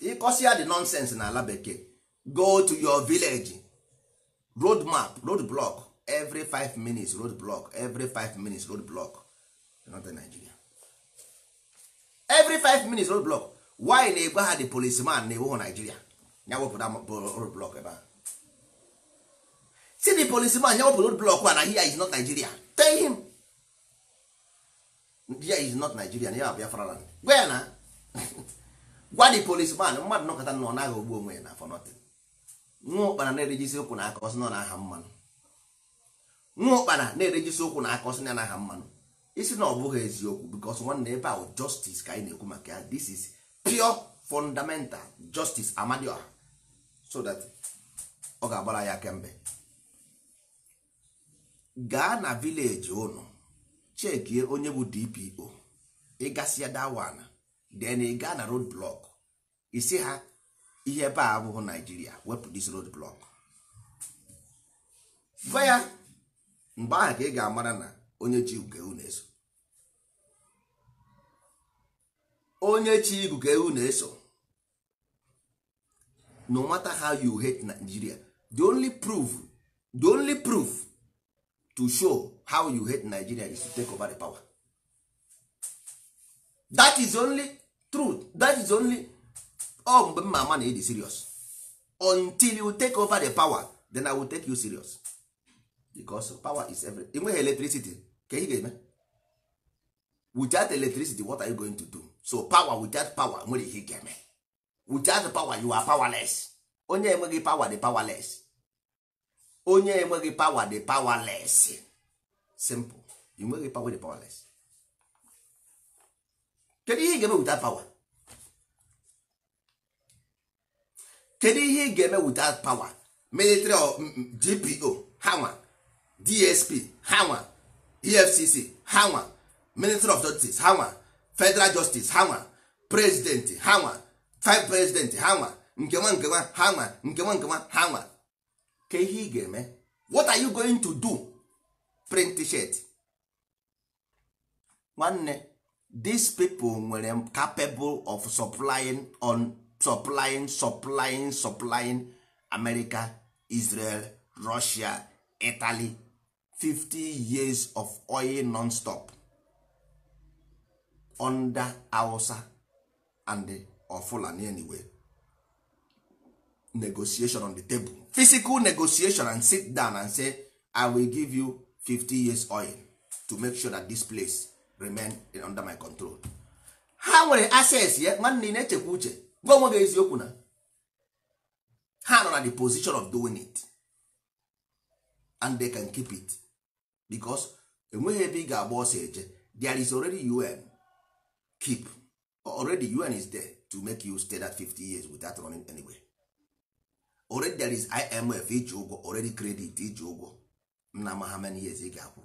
ịkọsịa the nonsense n'ala bekee go to your village road map road block every five minutes road block every five minutes road block northern nigeria every five minutes road block why na-egwe ha the policeman na-ewu nigeria ya wepụta road block ebe a see the policeman ya wepụta road block na here is not nigeria tell him here is not nigeria na ya biafra land gwa ya na gwa the policeman mmadụ nọkọta nọ ọ naghị ogbu onwe ya na for nothing nwa ụkpana na-erejisi ụkwụ na aka ọsọ nọ na aha mmanụ nwa ụkpana na-erejisi ụkwụ na aka ọsị ya mmanụ isi na ọ bụghị eziokwu because nwanne ebe ahụ justice ka anyị na-ekwu maka ya this is pure fundamental justice amadioha so that ọ ga-agbara ya kemgbe gaa na vileji ụnụ chekie onye bụ dpo ịgasịa dawana then ị gaa na road block isi ha ihe ebe a abụghị naijiria wepụ dis road block gwa ya mgbe ahụ ka ị ga-amara na onye ji ka ewu na-eso onye chi ka ewu na-eso no matter how you hate Nigeria the only proof the only proof to show how you hate Nigeria is to take over the power that is only truth that is only ọ oh, mgbe mma ama na ịdị serious until you take over the power then I will take you serious. because power is everything. enweghị electricity ka ị ga-eme without electricity what are you going to do so power without power nwere ihe ga-eme without power you are powerless onye enweghị power dị powerless onye enweghị power dị powerless simple you enweghị power dị powerless kedu ihe ị ga-eme without power kedu ihe ị ga-eme without power military or mm, mm, gpo ha nwa dsp ha efcc ha minister of justice ha federal justice ha nwa president ha five president ha nwa nke nwa nke nwa ha nke nwa nke nwa ha ka ihe ị ga-eme what are you going to do print shirt nwanne these people nwere capable of supplying on supplying supplying supplying america israel russia italy 50 years of oil non-stop under Hausa and Fulani anyway negotiation on the table physical negotiation and sit down and say I will give you 50 years oil to make sure that this place remain under my control ha nwere access ya nwanne na-echekwa uche gwa onwe gị eziokwu na ha nọ na the position of doing it and they can keep it because enweghị ebe ị ga-agba ọsọ eje there is already un keep already un is there to make you stay that 50 years without running anywhere already there is imf iji ụgwọ already credit iji ụgwọ nna ma how many years ị ga-akwụ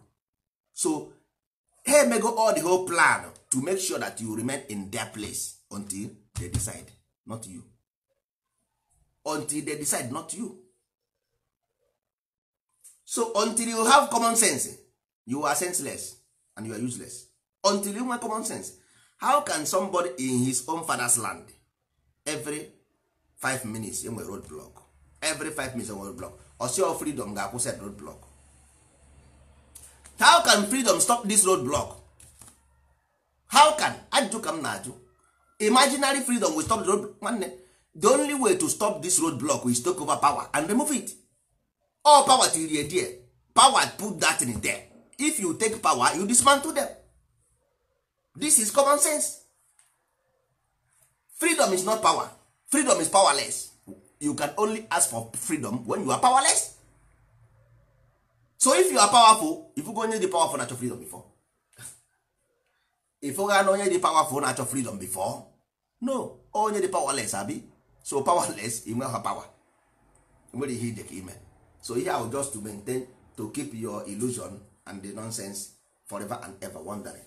so ha emego all the whole plan to make sure that you remain in their place until they decide not you until they decide not you so until you have common sense you are senseless and you are useless until you have common sense how can somebody in his own father's land every five minutes enwere road block every five minutes enwere road block osi of freedom ga-akwụsị road block how can freedom stop this road block how can ajụjụ ka m na-ajụ imaginary freedom will stop the road nwanne the only way to stop this road block is take over power and remove it all power till you there power put that in there if you take power you dismantle them this is common sense freedom is not power freedom is powerless you can only ask for freedom when you are powerless so if you are powerful if you go onye dị powerful na-achọ freedom before if ga na onye dị powerful na-achọ freedom before no onye dị powerless abi so powerless inwe ha power nwere ihe ide ka ime so ihe ahụ just to maintain to keep your illusion and the nonsense forever and ever wandering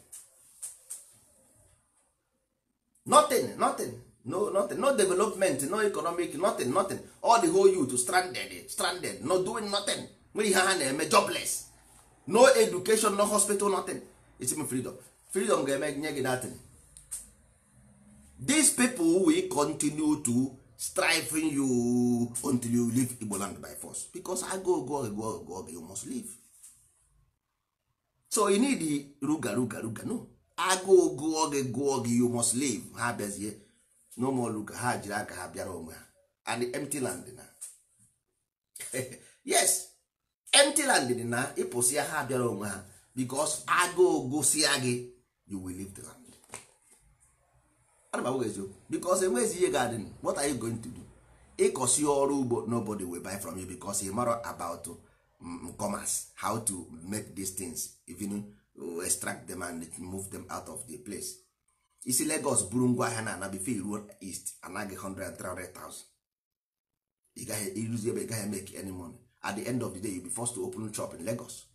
nothing nothing no nothing no development no economic nothing nothing all the whole youth stranded stranded no doing nothing nwere ihe ha na-eme jobless no education no hospital nothing it's me freedom freedom ga-eme nye gị nothing these people will continue to striving you until you leave igbo land by force because agụụ go go go you must leave so you need ruga ruga ruga no agụụ gụọ gị gụọ gị you must leave ha bezie no more ruga ha jiri aka ha bịara onwe ha and empty land na yes empty land dị na ịpụsịa ha bịara onwe ha because agụụ gụsịa gị you will leave the land ana m agwa eziokwu because enweghị ihe ga-adị what are you going to do ịkọsi ọrụ ugbo nobody will buy from you because you mara about mm, commerce how to make these things even uh, extract them and move them out of the place isi Lagos buru ngwa ahịa na anabife e ruo east anaghị 100,000 ị gaghị iruzi ebe ị gaghị make any at the end of the day you be forced to open shop in Lagos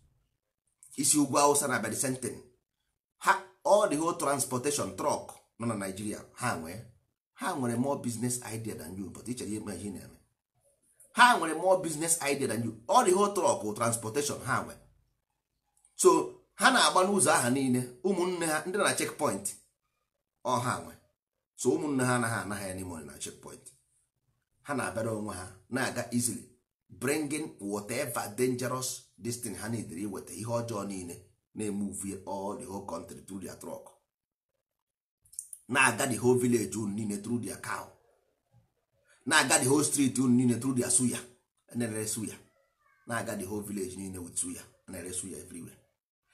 isi ugwu Hausa na abịa the ha all the whole transportation truck nọ na naijiria ha nwee ha nwere more business idea than you but ichere ihe ihe na-eme ha nwere more business idea than you ọ dị ho trọk transportation ha nwee so ha na-agba n'ụzọ aha niile ụmụnne ha ndị na checkpoint ọ ha nwe so ụmụnne ha anaghị anaghị ya n'ime na point ha na-abịara onwe ha na-aga easily bringing whatever dangerous this ha na-edere iweta ihe ọjọọ niile na-eme uvie all the whole country through their truck na-aga the whole village unu niile through dia cow na-aga the whole street unu niile through dia suya na suya na-aga the whole village niile with suya na suya everywhere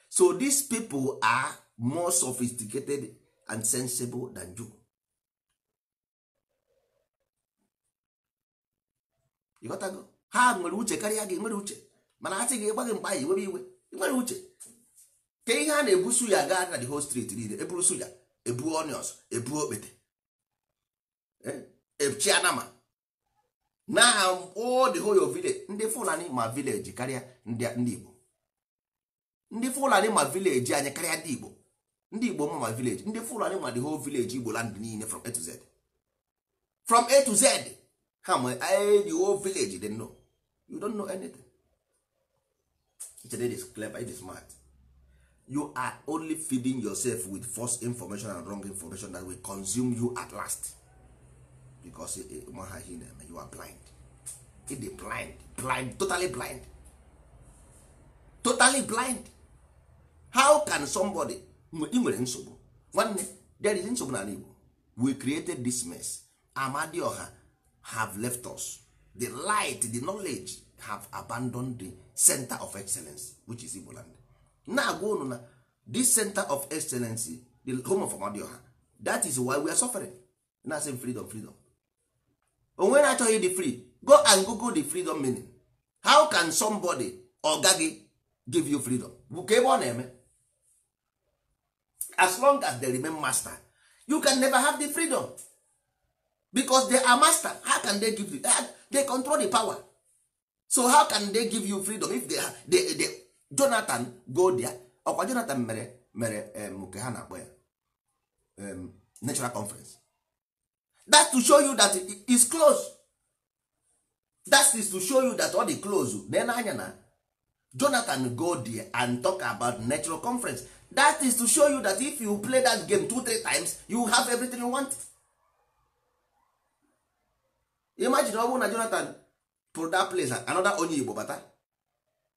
so these people are more sophisticated and sensible than you. ịghọtago ha nwere uche karịa gị nwere uche mana asị gị gba gị mkpa ya iwere iwe nwere uche ka ihe a na ebu suya gaa na the whole street niile eburu suya ebuo onions ebuo okpete echi eh, anama na all the whole village ndị fulani ma village karịa ndị igbo ndị fulani ma village anyị karịa ndị igbo ndị igbo ma ma village ndị fulani ma the whole village igbo land niile from a to z from a to z ha ma eh, the whole village they know you don't know anything it is clever it is smart you are only feeding yourself with false information and wrong information that will consume you at last because eh, eh, maha ihe na-eme you are blind it blind blind totally blind totally blind how can somebody ị nwere nsogbu nwanne there is nsogbu n'ala Igbo we created this mess Amadioha have left us the light the knowledge have abandoned the center of excellence which is Igbo land na-agwa unu na this center of excellency the home of amadioha that is why we are suffering na same freedom freedom onwe na-achọghị the free go and google the freedom meaning how can somebody oga gị give you freedom bụ ka ebe ọ na-eme as long as they remain master you can never have the freedom because they are master how can they give you they control the power so how can they give you freedom if they, are, they, they jonathan goldia ọkwa jonathan mere mere nke ha na-akpọ ya natural conference that's to show you that is close that is to show you that all the close na nanya na jonathan goldia and talk about natural conference that is to show you that if you play that game two three times you have everything you want imagine ọ bụrụ na jonathan pụrụ that place another onye igbo bata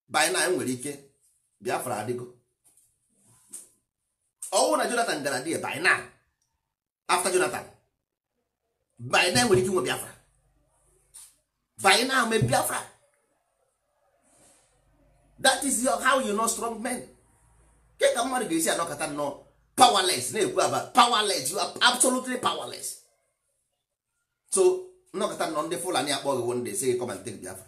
by na nwere ike biafra adịgo ọnwụ oh, na jonathan gara dị by na after jonathan by na nwere ike nwe biafra by na me biafra that is your, how you know strong men ke ka mmadụ ga-esi anọkọta nnọọ powerless na-ekwu aba powerless you are absolutely powerless so nnọkọta nnọọ ndị fulani akpọghị wo ndị si gị come biafra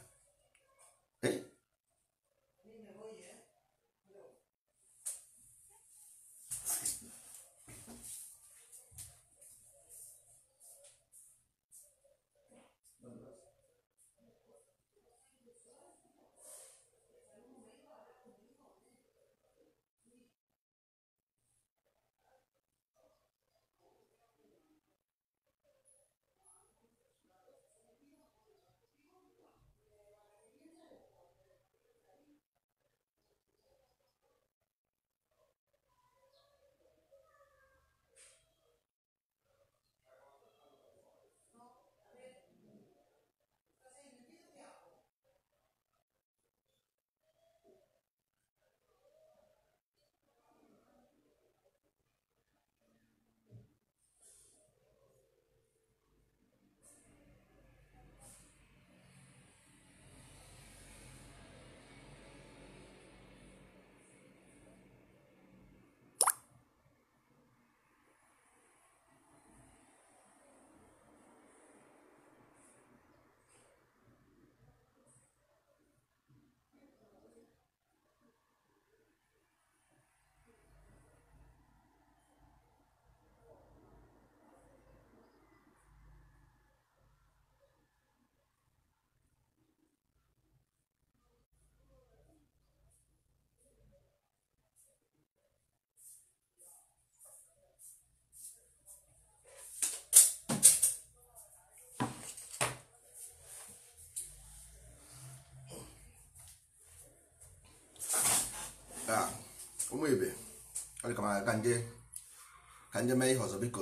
ka nje mee ihe ọzọ biko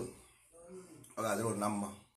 ọ ga-adịrụ na mma